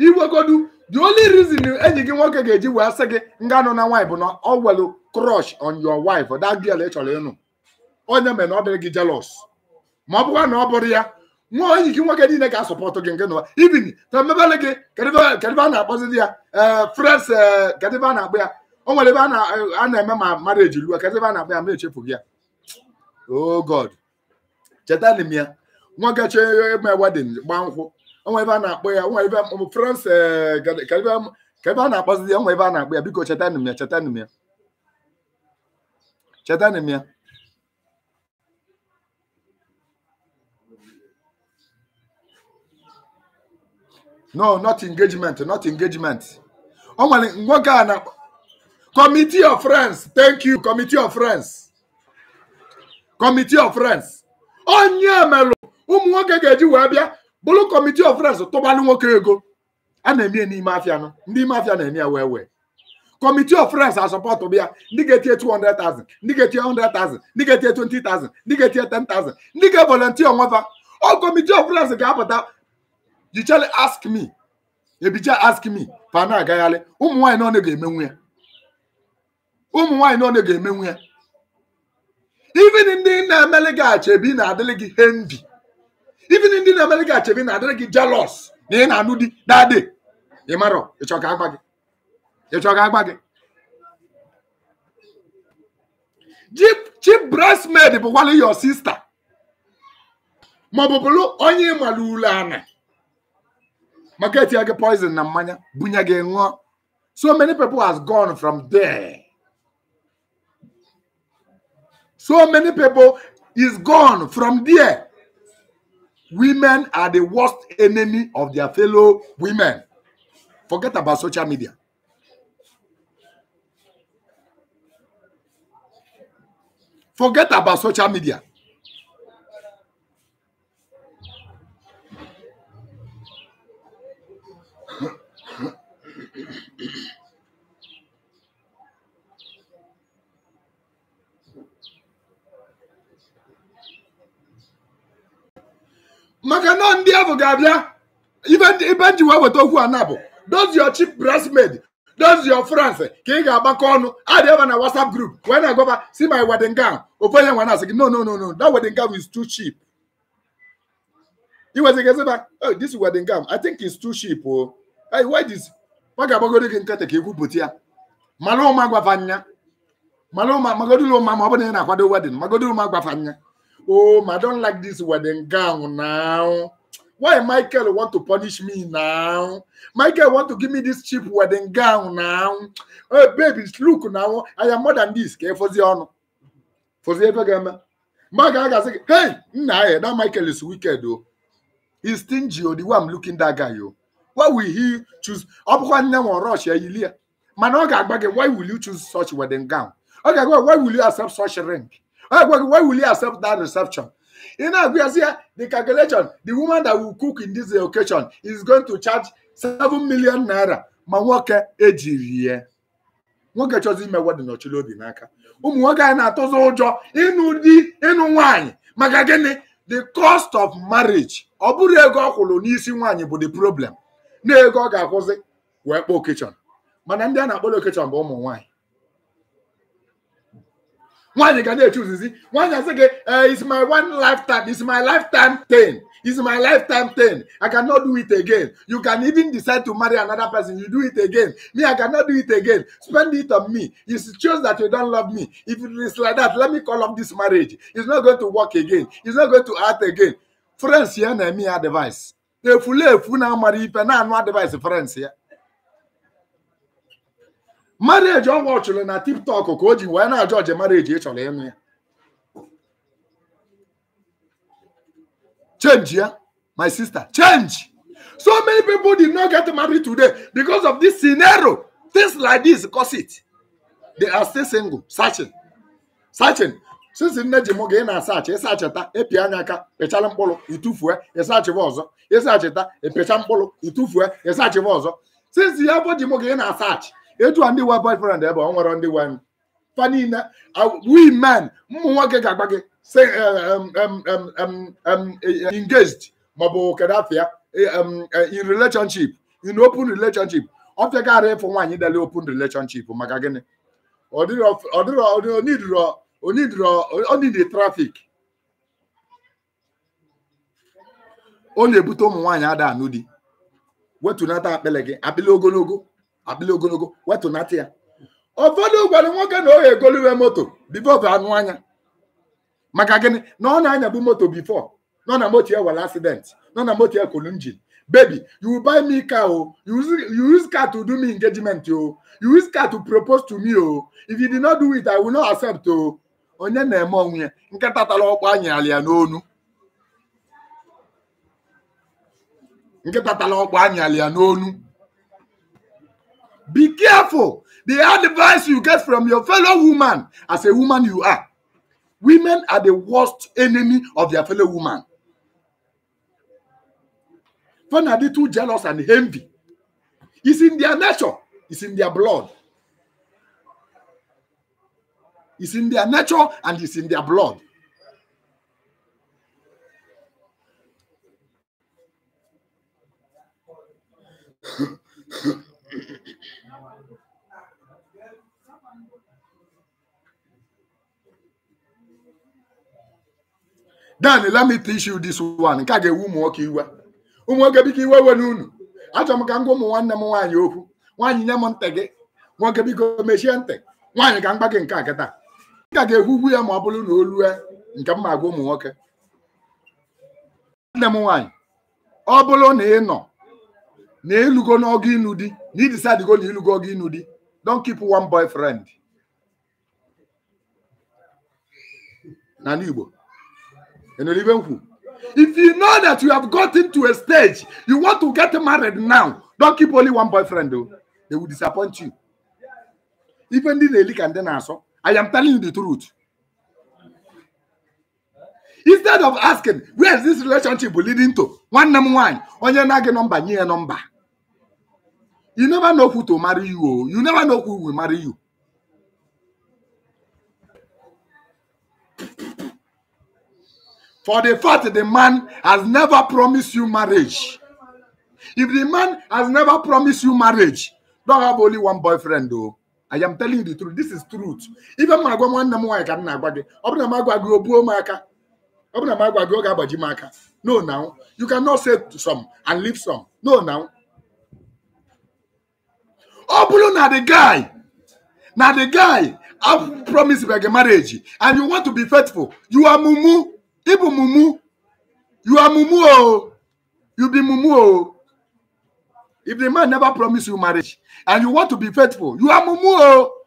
iwegodu the only reason enyi gị nwoke ga-eji wee sị gị nga nọ na nwaanyị bụ na ọ welu crush on your wife that girl ị chọrọ ịnụ onye mere na ọ dịrị gị jelọs ma ọ bụkwa na ọ bụrụ ya nwa enyi gị nwoke niile ga-asọpọtụ gị nke nụwa ibin tamebele gị kedịbe na-akpọzi di ya eh, frens eh, kedịbe a na-akpọ ya o nwere ebe a na-eme ma mara eji lụọ a na-akpọ ya ma echefughị ya oh god chetanị m ya nwa gacha ịgba wedin gbaa nkwụ onwe ebe a na-akpọ ya onwe ebe France eh, ka ebe a na-akpọzi ya onwe ebe a na-akpọ ya biko chetanị m ya chetanị m ya chetanị m ya no not engagement not engagement o nwere nwoke a na committee of friends thank you committee of friends committee of friends onye melụ ụmụ nwoke ga-eji wee bịa bụrụ kọmitii of friends tụbalụ nwoke ego a na-eme n'ime afịa nọ ndị ime afịa na-eme ya wee wee kọmitii of friends asọpọtụ bịa ndị ga-etinye 200,000 ndị ga-etinye 100,000 ndị ga-etinye 20,000 ndị ga-etinye 10,000 ndị ga-evolontia onwefa ọ kọmitii of friends ga-apụta jichele ask me ebicha ask me pa na-agagharị ụmụ nwaanyị na ọ na-ga-emenwu ya ụmụ nwaanyị na ọ na-ga-emenwu ya even ndị na-emeli gị achebi na-adịrị gị hendi even ndị na-emeli gị achebi na-adịrị gị jealous na ị na-anụ di na-adị ị marọ ịchọ ka agba gị ịchọ ka agba gị chief bridesmaid bụkwala your sister maọbụ bụrụ onye ịmala ule ana maka etinye gị poison na mmanya bunye gị ṅụọ so many people has gone from there. So many people is gone from there. Women are the worst enemy of their fellow women. Forget about social media. Forget about social media. maka na ndị ahụ ga-abịa ibe nji wee weta okwu a na bụ dozi your cheap bridesmaid dozi your France ka ị ga-agbakọ ọnụ adị ebe na WhatsApp group wee na-agọba si my wedding gown ofu onye nwa na-asị gị no no no no that wedding gown is too cheap iwezigazịba oh this wedding gown I think is too cheap o oh. hey why this ọ ga agbagodo gị nkata ka ikwupụta ya mara ụma gwafanya mara ụma magodulu ụma ma ọ bụ na ị na-akwado wedding magodulu ụma gwafanya oh, I don't like this wedding gown now. Why Michael want to punish me now? Michael want to give me this cheap wedding gown now. Hey, baby, look now. I am more than this. Okay, for the honor. For the ever Mark Aga say, hey, nah, eh, that Michael is wicked, though. He's stingy, oh, the way I'm looking that guy, yo. Oh. Why will he choose? Ọbụkwa nne nwa rush ya ilie. Mana why will you choose such wedding gown? Okay, why will you accept such ring? agwaghị why will you accept that reception ị na-agụ ya si the calculation the woman that will cook in this occasion is going to charge seven million naira ma nwoke ejiri ya nwoke chọzi ime wedin ọchịla obi n'aka ụmụ nwoke anyị na atụzụ ụjọ ịnụ di ịnụ nwaanyị maka gịnị the cost of marriage ọ bụrụ ego ọ kwụrụ n'isi nwaanyị bụ the problem na ego ọ ga-akwụzi wee kpọọ okechọn mana ndị a na-akpọrọ okechọn bụ ụmụ nwaanyị One you can nwaanyị ga na-echuzizi nwaanyị asị gị it's my one lifetime It's my lifetime thing It's my lifetime thing i cannot do it again you can even decide to marry another person you do it again me i cannot do it again spend it on me you choose that you don't love me if it is like that let me call off this marriage it's not going to work again it's not going to act again friends here na me ya advice efule efu na-amara ife na no advice friends ya marriage ọ wọchụrụ na tiktok ka o ji wee na-ajụ ọje marriage ịchọrọ ịnụ ya change ya my sister change so many people did not get marry today because of this scenario things like this cause it they are still single searching searching since nne ji mụ ga ị na-asaachị ịsacheta ịpịa anya aka pịchala mkpụrụ itufue ịsachịwa ọzọ ịsacheta ịpịcha mkpụrụ itufue ịsachịwa ọzọ since ya bụ ji mụ ga ị na-asaachị etu a ndị wa boyfriend ebe ọ nwere ndị wa niile men ụmụ nwoke ga-agba gị engaged maọbụ kedu afịa e, e, in relationship in open relationship ọ fịagara ịfụ nwaanyị dele open relationship maka gịnị onidiri trafik ọ na-ebute ụmụ nwaanyị ada anụ di wetunata akpịlị gị akpịlị ogologo adịla ogologo wetụnata ya ụfọdụ gwara nwoke na oge egoluwe moto bifo bụ anụ anya maka gịnị na ọ na anyabu moto bifo nọ na moto ya were asident nọ na moto ya kolu njin baby you buy me car o oh. you use, car to do me engagement o oh. you use car to propose to me o oh. if you did not do it i will not accept o onye na-eme onwe ya nkịta ọkpọ anyị ya n'onu ọkpọ ya n'onu Be careful. The advice you get from your fellow woman, as a woman you are, women are the worst enemy of their fellow woman. When are they too jealous and envy? It's in their nature, it's in their blood. It's in their nature and it's in their blood. dan let me teach you this one nke a ga-ewu ụmụ nwoke iwe ụmụ nwoke biko iwe we na unu achọrọ m ka m gwa ụmụ nwanne m nwaanyị okwu nwaanyị nye m ntị gị nwoke biko mechie ntị nwaanyị ka m gba gị nke akịta kịta nke a ga-ekwugwu ya ma ọ bụrụ na olu nke m ma gwa ụmụ nwoke nwanne m nwaanyị ọ bụrụ na ị nọ na ịlụgo n'ọgụ ịnụ di na idisadigo na ịlụgo ọgụ ịnụ di don kip one boyfriend n'ala Igbo in a living If you know that you have gotten to a stage, you want to get married now, don't keep only one boyfriend, though. They will disappoint you. Even the relic and then answer, I am telling you the truth. Instead of asking, where is this relationship leading to? One number one, on your number, near number. You never know who to marry you. Oh. You never know who will marry you. For the fact the man has never promised you marriage. If the man has never promised you marriage, don't have only one boyfriend though. I am telling you the truth. This is truth. Even my I go I can not go. Obna magwa go gabaji No, now you cannot say some and leave some. No, now. Obulu na the guy. Now the guy, I promise you a marriage, and you want to be faithful. You are mumu. Ibu mumu, you are mumu oh, you be mumu oh. If the man never promise you marriage and you want to be faithful, you are mumu oh.